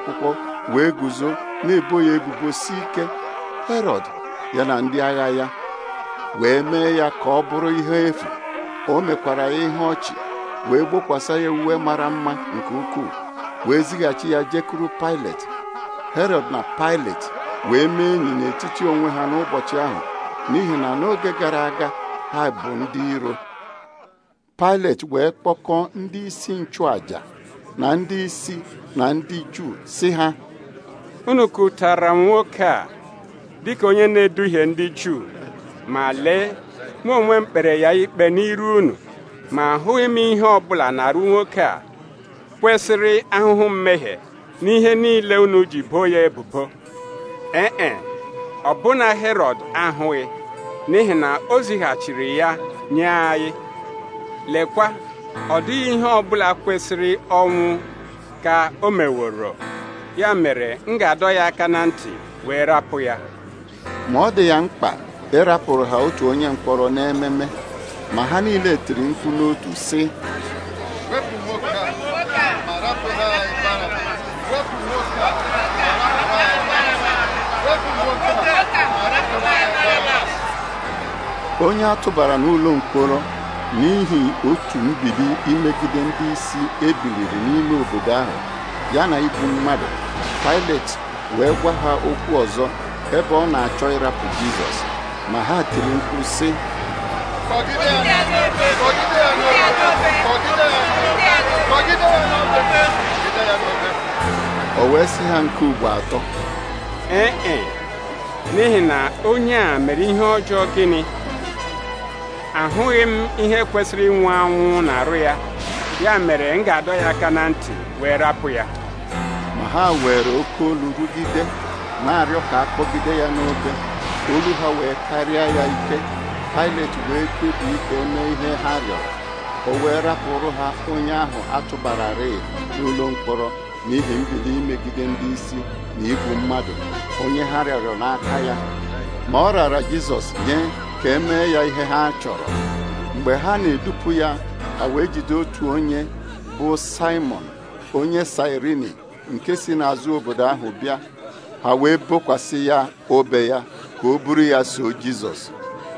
wee guzo na-ebo ya ebubo si ike Herọd ya na ndị agha ya wee mee ya ka ọ bụrụ ihe efu o mekwara ya ihe ọchị wee gbokwasa ya uwe mara mma nke ukwuu wee zighachi ya jekuru Pilet Herod na Pilet wee mee enyi n'etiti onwe ha n'ụbọchị ahụ n'ihi na n'oge gara aga ha bụ ndị iro Pilet wee kpọkọọ ndị isi nchụàja na ndị isi na ndị Juu si ha unu m nwoke a dịka onye na-eduhie ndị Juu ma lee mụ onwe m kpere ya ikpe n'iru unu ma ahụghị m ihe ọbụla na-arụ nwoke a kwesịrị ahụhụ mmehie n'ihe niile unu ji boo ya ebubo ee ọbụna Herọd ahụghị n'ihi na o zighachiri ya nye anyị lekwa ọ dịghị ihe ọbụla kwesịrị ọnwụ ka o meworo ya mere m ga-adọ ya aka na ntị wee rapụ ya ma ọ dị ya mkpa ịrapụrụ ha otu onye mkpọrọ n'ememe ma ha niile tiri mkpu n'otu si. onye a tụbara n'ụlọ mkpọrọ n'ihi otu mbibi imegide ndị isi ebiliri n'ime obodo ahụ ya na igbu mmadụ pailet wee gwa ha okwu ọzọ ebe ọ na-achọ ịrapụ Jizọs ma ha tiri mkpu sị o wee sị ha nke ugbo atọ ee e n'ihi na onye a mere ihe ọjọọ gịnị ahụghị m ihe kwesịrị ịnwụ anwụ na arụ ya ya mere m ga-adọ ya aka na ntị wee rapụ ya ma ha were oke olu rugide na-arịọ ka akpọgide ya n'oge. olu ha wee karịa ya ike Pailet wee kpebi ike o mee ihe ha rịọrọ o wee rapụrụ ha onye ahụ atụbara rei n'ụlọ mkpọrọ n'ihi mbido imegide ndị isi na igbu mmadụ onye ha rịọrọ n'aka ya ma ọ rara Jizọs nye ka e mee ya ihe ha chọrọ mgbe ha na-edupụ ya a wee jide otu onye bụ Simon onye Sirini nke si n'azụ obodo ahụ bịa ha wee bokwasị ya obe ya ka o buru ya so Jizọs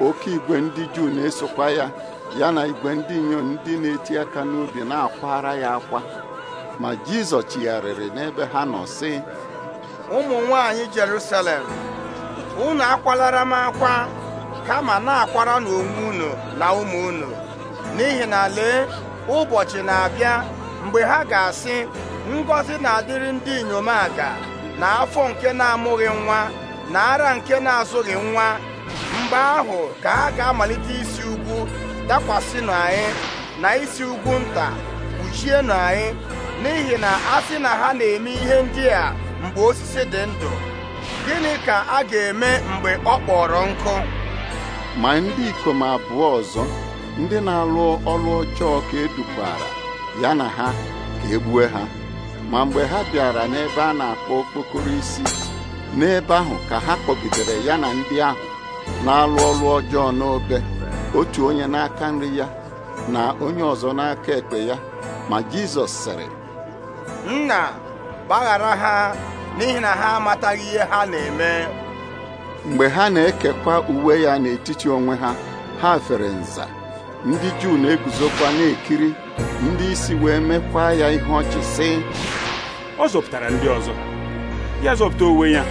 oke igwe ndị Juu na-esokwa ya ya na igwe ndị inyom ndị na-eti aka n'obi na-akwara ya akwa ma Jizọs chigharịrị n'ebe ha nọ si: ụmụ nwanyị Jerusalem unu akwalara m akwa kama na-akwara n'onwe unu na ụmụ unu n'ihi na lee ụbọchị na-abịa mgbe ha ga-asị ngọzi na-adịrị ndị inyom aga na afọ nke na-amụghị nwa na ara nke na-azụghị nwa mgbe ahụ ka ha ga-amalite isi ugwu dakwasịnụ anyị na isi ugwu nta kpuchienụ anyị n'ihi na a sị na ha na-eme ihe ndị a mgbe osisi dị ndụ gịnị ka a ga-eme mgbe ọ kpọrọ nkụ ma ndị ikom abụọ ọzọ ndị na-alụ ọrụ ọjọọ ka edukwara ya na ha ka egbue ha ma mgbe ha bịara n'ebe a na-akpọ okpokoro isi n'ebe ahụ ka ha kpọgidere ya na ndị ahụ na-alụ ọrụ ọjọọ n'obe otu onye n'aka nri ya na onye ọzọ n'aka ekpe ya ma Jizọs sịrị nna gbaghara ha n'ihi na ha amataghị ihe ha na-eme mgbe ha na-ekekwa uwe ya n'etiti onwe ha ha fere nza ndị Juu na-eguzokwa na-ekiri ndị isi wee mekwa ya ihe ọchị sị ọ zọpụtara ndị ọzọ ya zọpụta onwe ya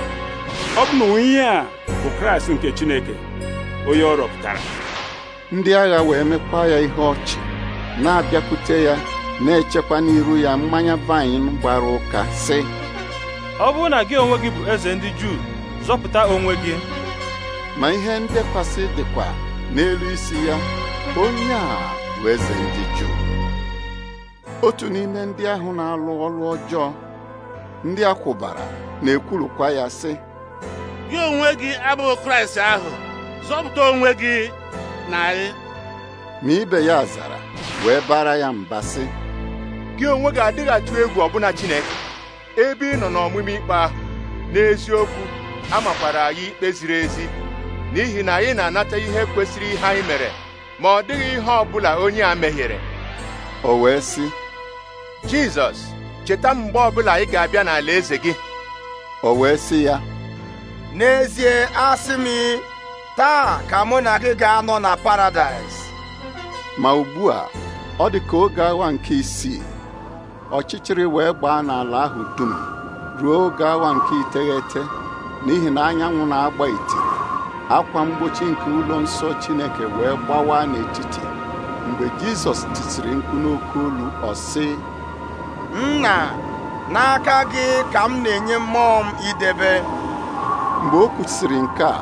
ọ bụ na ihe a bụ kraịst nke chineke onye ọ rọpụtara ndị agha wee mekwa ya ihe ọchị na-abịakwute ya na-echekwa n'iru ya mmanya vaịn gbara ụka sị ọ bụrụ na gị onwe gị bụ eze ndị juu zọpụta onwe gị ma ihe ndekwasị dịkwa n'elu isi ya onye a bụ eze ndị juu otu n'ime ndị ahụ na-alụ ọrụ ọjọọ ndị akwụbara na-ekwurukwa ya sị gị onwe gị abụghị kraịst ahụ zọpụta onwe gị na anyị ma ibe ya zara wee bara ya mba sị gị onwe gị adịghị atụ egwu ọbụna chineke ebe ị nọ n'ọmụmụ ikpe ahụ n'eziokwu amakwara anyị ikpe ziri ezi n'ihi na anyị na-anata ihe kwesịrị ihe anyị mere ma ọ dịghị ihe ọ bụla onye a mehiere o wee sị jizọs cheta mgbe ọbụla anyị ga-abịa n'ala eze gị o wee sị ya n'ezie asị m taa ka mụ na gị ga-anọ na paradaịs ma ugbu a ọ dị ka oge awa nke isii ọchịchịrị wee gbaa n'ala ahụ dum ruo oge awa nke iteghete n'ihi na anyanwụ na-agba ite. akwa mgbochi nke ụlọ nsọ Chineke wee gbawa n'etiti mgbe Jizọs tisiri mkpu n'oke olu ọ sị nna n'aka gị ka m na-enye mmụọ m idebe mgbe o kwusịrị nke a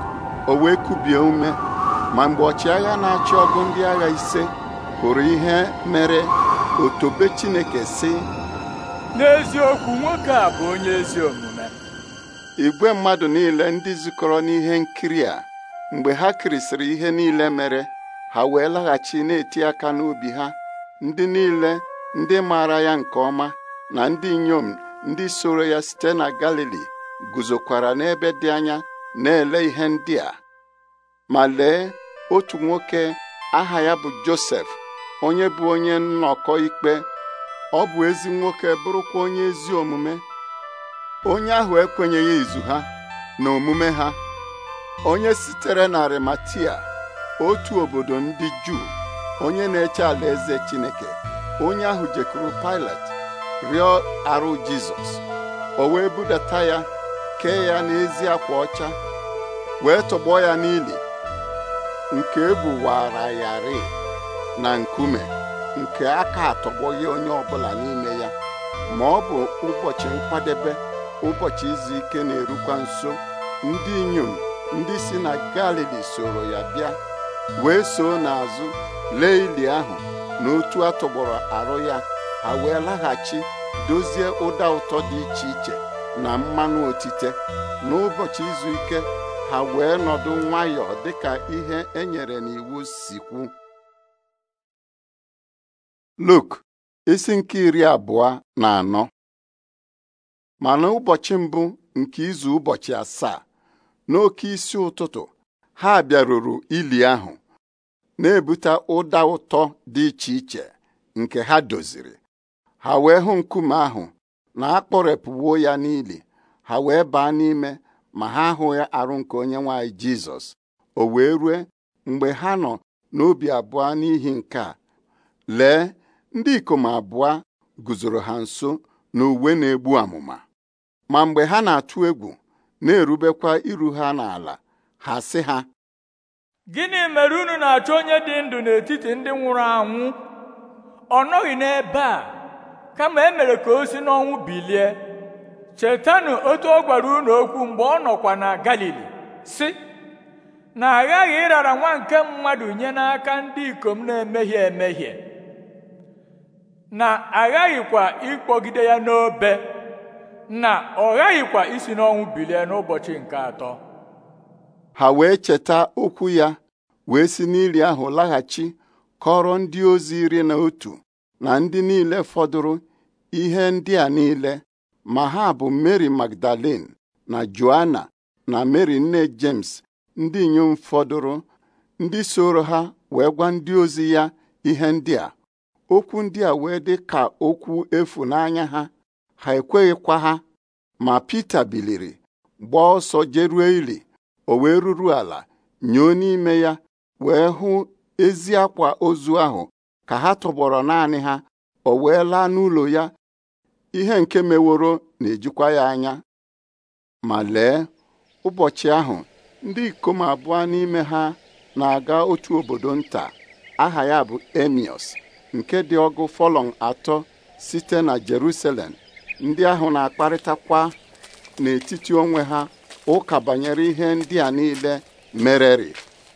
o wee kubie ume ma mgbe ọchịagha na-achị ọgụ ndị agha ise hụrụ ihe mere otobe Chineke si. n'eziokwu nwoke a bụ onye ezi omume igwe mmadụ niile ndị zukọrọ n'ihe nkiri a mgbe ha kirisịrị ihe niile mere ha wee laghachi na-eti aka n'obi ha ndị niile ndị maara ya nke ọma na ndị inyom ndị soro ya site na Galili guzokwara n'ebe dị anya na-ele ihe ndị a ma lee otu nwoke aha ya bụ Josef onye bụ onye nnọkọ ikpe ọ bụ ezi nwoke bụrụkwa onye ezi omume onye ahụ ekwenyeghị izu ha na omume ha onye sitere na Arimatia otu obodo ndị Juu onye na-eche alaeze Chineke onye ahụ jekwuru Pilat rịọ arụ Jizọs o wee budata ya kee ya n'ezi akwa ọcha wee tọgbọ ya n'ili nke ebuwara na nkume nke aka atọgbọghị onye ọbụla n'ime ya ma ọ bụ ụbọchị nkwadebe ụbọchị izu ike na-erukwa nso ndị inyom ndị si na Galili soro ya bịa wee soo n'azụ lee ili ahụ na otu atọgbọrọ arụ ya ha wee laghachi dozie ụda ụtọ dị iche iche na mmanụ otite n'ụbọchị izu ike ha wee nọdụ nwayọọ dịka ihe e nyere n'iwu sikwu kwu Luk isi nke iri abụọ na anọ ma n'ụbọchị mbụ nke izu ụbọchị asaa n'oke isi ụtụtụ ha bịaruru ili ahụ na-ebute ụda ụtọ dị iche iche nke ha doziri ha wee hụ nkume ahụ na akpọrepụwo ya n'ili ha wee baa n'ime ma ha hụ ahụghị arụ nke onye nwanyị jizọs o wee rue mgbe ha nọ n'obi abụọ n'ihi nke a lee ndị ikom abụọ guzoro ha nso na na-egbu amụma ma mgbe ha na-atụ egwu na-erubekwa iru ha n'ala ha sị ha gịnị mere unu na-achọ onye dị ndụ n'etiti ndị nwụrụ anwụ ọ nọghị n'ebe a kama e mere ka o si n'ọnwụ bilie chetanụ otu ọ gwara unu okwu mgbe ọ nọkwa na galili si, na aghaghị ịrara nwa nke mmadụ nye n'aka ndị ikom na-emehie emehie na aghaghịkwa ịkpọgide ya n'obe na ọ ghaghịkwa isi n'ọnwụ bilie n'ụbọchị nke atọ ha wee cheta okwu ya wee si n'ili ahụ laghachi kọrọ ndị ozi iri na otu na ndị niile fọdụrụ ihe ndị a niile ma ha bụ Mary Magdalene na Joanna na Mary nne James ndị inyom fọdụrụ ndị soro ha wee gwa ndị ozi ya ihe ndị a okwu ndị a wee dị ka okwu efu n'anya ha ha ekweghịkwa ha ma Pita biliri gbaa ọsọ jerue ili o wee ruru ala nyoo n'ime ya wee hụ ezi akwa ozu ahụ ka ha tụgbọrọ naanị ha o wee laa n'ụlọ ya ihe nke meworo na-ejikwa ya anya ma lee ụbọchị ahụ ndị ikom abụọ n'ime ha na-aga otu obodo nta aha ya bụ emios nke dị ọgụ fọlọn atọ site na Jerusalem ndị ahụ na-akparịtakwa n'etiti onwe ha ụka banyere ihe ndị a niile mereri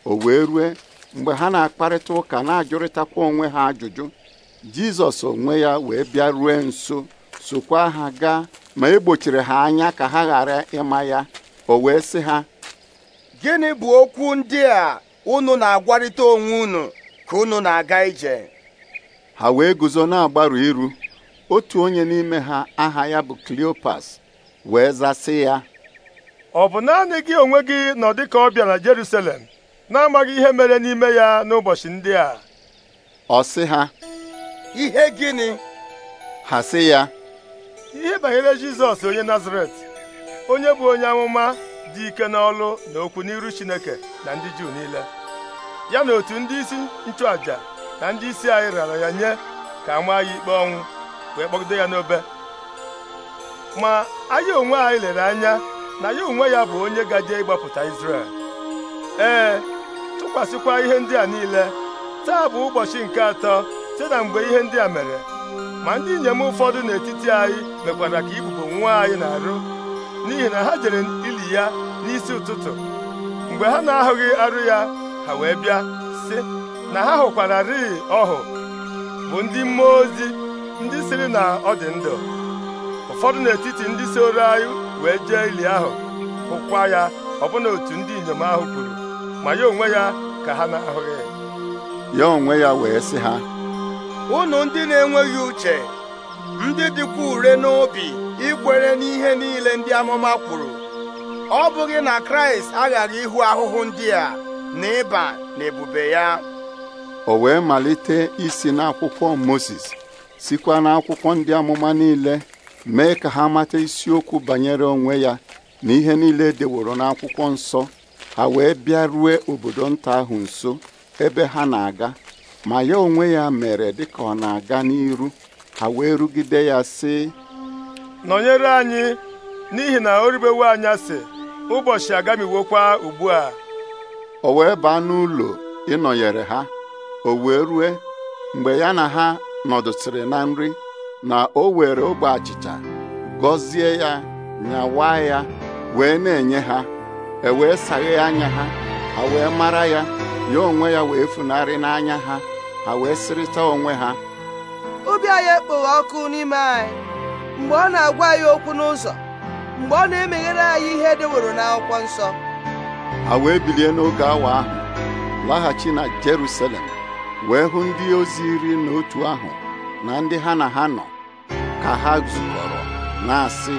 o wee rue mgbe ha na-akparịta ụka na-ajụrịtakwa onwe ha ajụjụ jizọs onwe ya wee bịa rue nso sokwa ha gaa ma egbochiri ha anya ka ha ghara ịma ya o wee sị ha gịnị bụ okwu ndị a unu na-agwarịta onwe unu ka unu na-aga ije ha wee guzo na-agbaru iru otu onye n'ime ha aha ya bụ Cleopas wee zasị ya ọ bụ naanị gị onwe gị nọ dịka ọbịa na Jerusalem na-amaghị ihe mere n'ime ya n'ụbọchị ndị a ọ sị ha ihe gịnị ha sị ya ihe banyere Jizọs onye Nazaret onye bụ onye amụma dị ike n'ọlụ na okwu n'iru Chineke na ndị Juu niile ya na otu ndị isi nchụàjà na ndị isi anyị rara ya nye ka a maa ya ikpe ọnwụ wee kpọgide ya n'obe ma anyị onwe anyị lere anya na ya onwe ya bụ onye gaje ịgbapụta Izrel ee tụkwasịkwa ihe ndị a niile taa bụ ụbọchị nke atọ site na mgbe ihe ndị a mere ma ndị inyem ụfọdụ n'etiti anyị mekwara ka ibubo nwa anyị na-arụ n'ihi na ha jere ili ya n'isi ụtụtụ mgbe ha na-ahụghị arụ ya ha wee bịa sị na ha hụkwara rịị ọhụ bụ ndị mmụọ ozi ndị siri na ọ dị ndụ ụfọdụ n'etiti ndị soro anyị wee jee ili ahụ hụkwa ya ọbụna otu ndị inyom ahụ kwuru ma ya onwe ya ka ha na-ahụghị ya onwe ya wee sị ha unu ndị na-enweghị uche ndị dịkwa ure n'obi ikwere n'ihe niile ndị amụma kwuru ọ bụghị na kraịst aghaghị ịhụ ahụhụ ndị a na ịba na ebube ya o wee malite isi n'akwụkwọ moses sikwa n'akwụkwọ ndị amụma niile mee ka ha mata isiokwu banyere onwe ya na ihe niile e deworo n'akwụkwọ nsọ ha wee bịarue obodo nta ahụ nso ebe ha na-aga ma ya onwe ya mere dịka ọ na-aga n'iru ha wee rugide ya sị nọnyere anyị n'ihi na o anya anyasị ụbọchị agamiwokwa ugbu a o wee baa n'ụlọ ịnọnyere ha o wee rue mgbe ya na ha nọdụsịrị na nri na o were ogbe achịcha gọzie ya nyawa ya wee na-enye ha e wee saghe anya ha ha wee mara ya ya onwe ya wee funarị n'anya ha ha wee sịrịta onwe ha obi anyị ekpoghị ọkụ n'ime anyị mgbe ọ na-agwa anyị okwu n'ụzọ mgbe ọ na-emeghere anyị ihe dịworo n'akwụkwọ nsọ ha wee bilie n'oge awa ahụ laghachi na Jerusalem wee hụ ndị ozi iri na otu ahụ na ndị ha na ha nọ ka ha zukọrọ na-asị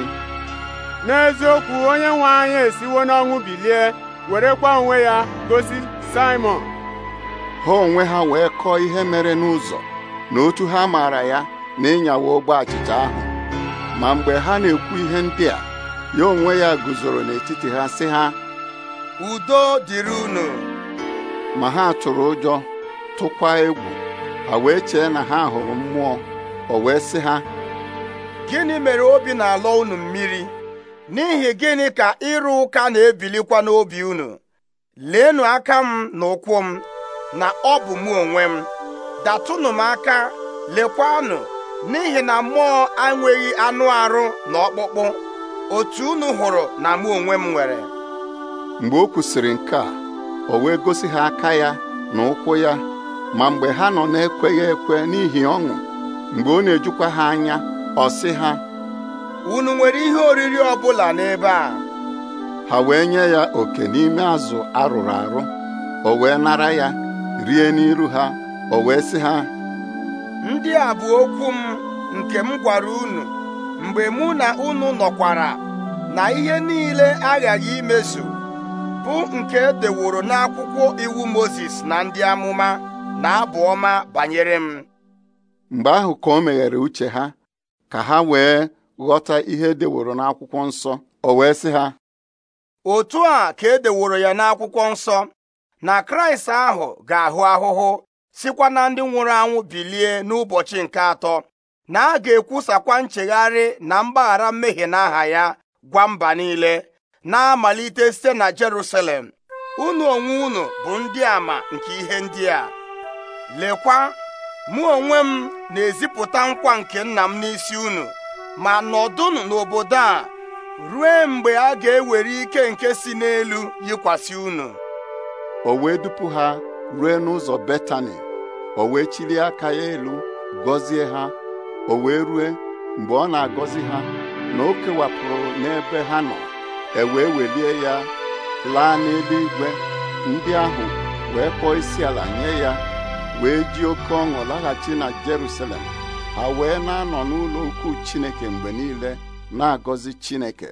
n'eziokwu onye nwe anyị esiwo n'ọnwụ bilie werekwa onwe ya gosi Simon. ha onwe ha wee kọọ ihe mere n'ụzọ na otu ha maara ya na ịnyawa ogbe achịcha ahụ ma mgbe ha na-ekwu ihe ndị a ya onwe ya guzoro n'etiti ha sị ha udo dịrị unu ma ha tụrụ ụjọ tụkwa egwu ha wee chee na ha hụrụ mmụọ o wee sị ha gịnị mere obi na-alọ unu mmiri n'ihi gịnị ka ịrụ ụka na-ebilikwa n'obi unu leenụ aka m na ụkwụ m na ọ bụ mụ onwe m datụnụ m aka lekwanụ n'ihi na mmụọ enweghị anụ arụ na ọkpụkpụ otu unu hụrụ na mụ onwe m nwere mgbe o kwusịrị nke a o wee gosi ha aka ya na ụkwụ ya ma mgbe ha nọ na-ekweghị ekwe n'ihi ọṅụ mgbe ọ na-ejukwa ha anya ọ sị ha unu nwere ihe oriri ọbụla n'ebe a ha wee nye ya oke n'ime azụ arụrụ arụ o wee nara ya rie n'iru ha o wee sị ha ndị a bụ okwu m nke m gwara unu mgbe mụ na unu nọkwara na ihe niile aghaghị imezu bụ nke edeworo n'akwụkwọ iwu Mozis na ndị amụma na abụ ọma banyere m mgbe ahụ ka o meghere uche ha ka ha wee ghọta ihe edeworo n'akwụkwọ nsọ o wee sị ha otu a ka edeworo ya n'akwụkwọ nsọ na kraịst ahụ ga-ahụ ahụhụ sikwa na ndị nwụrụ anwụ bilie n'ụbọchị nke atọ na a ga-ekwusakwa nchegharị na mgbaghara mmehie n'aha ya gwa mba niile na-amalite site na Jerusalem unu onwe unu bụ ndị ama nke ihe ndị a lekwa mụ onwe m na-ezipụta nkwa nke nna m n'isi unu ma nọdụnụ n'obodo a ruo mgbe a ga-ewere ike nke si n'elu yikwasị unu o wee dupu ha ruo n'ụzọ Betani o wee chiri aka ya elu gọzie ha o wee rue mgbe ọ na-agọzi ha na o kewapụrụ n'ebe ha nọ e wee welie ya laa igwe ndị ahụ wee kpọọ isi ala nye ya wee ji oke ọṅụ laghachi na Jerusalem ha wee na-anọ n'ụlọ ukwu chineke mgbe niile na-agọzi chineke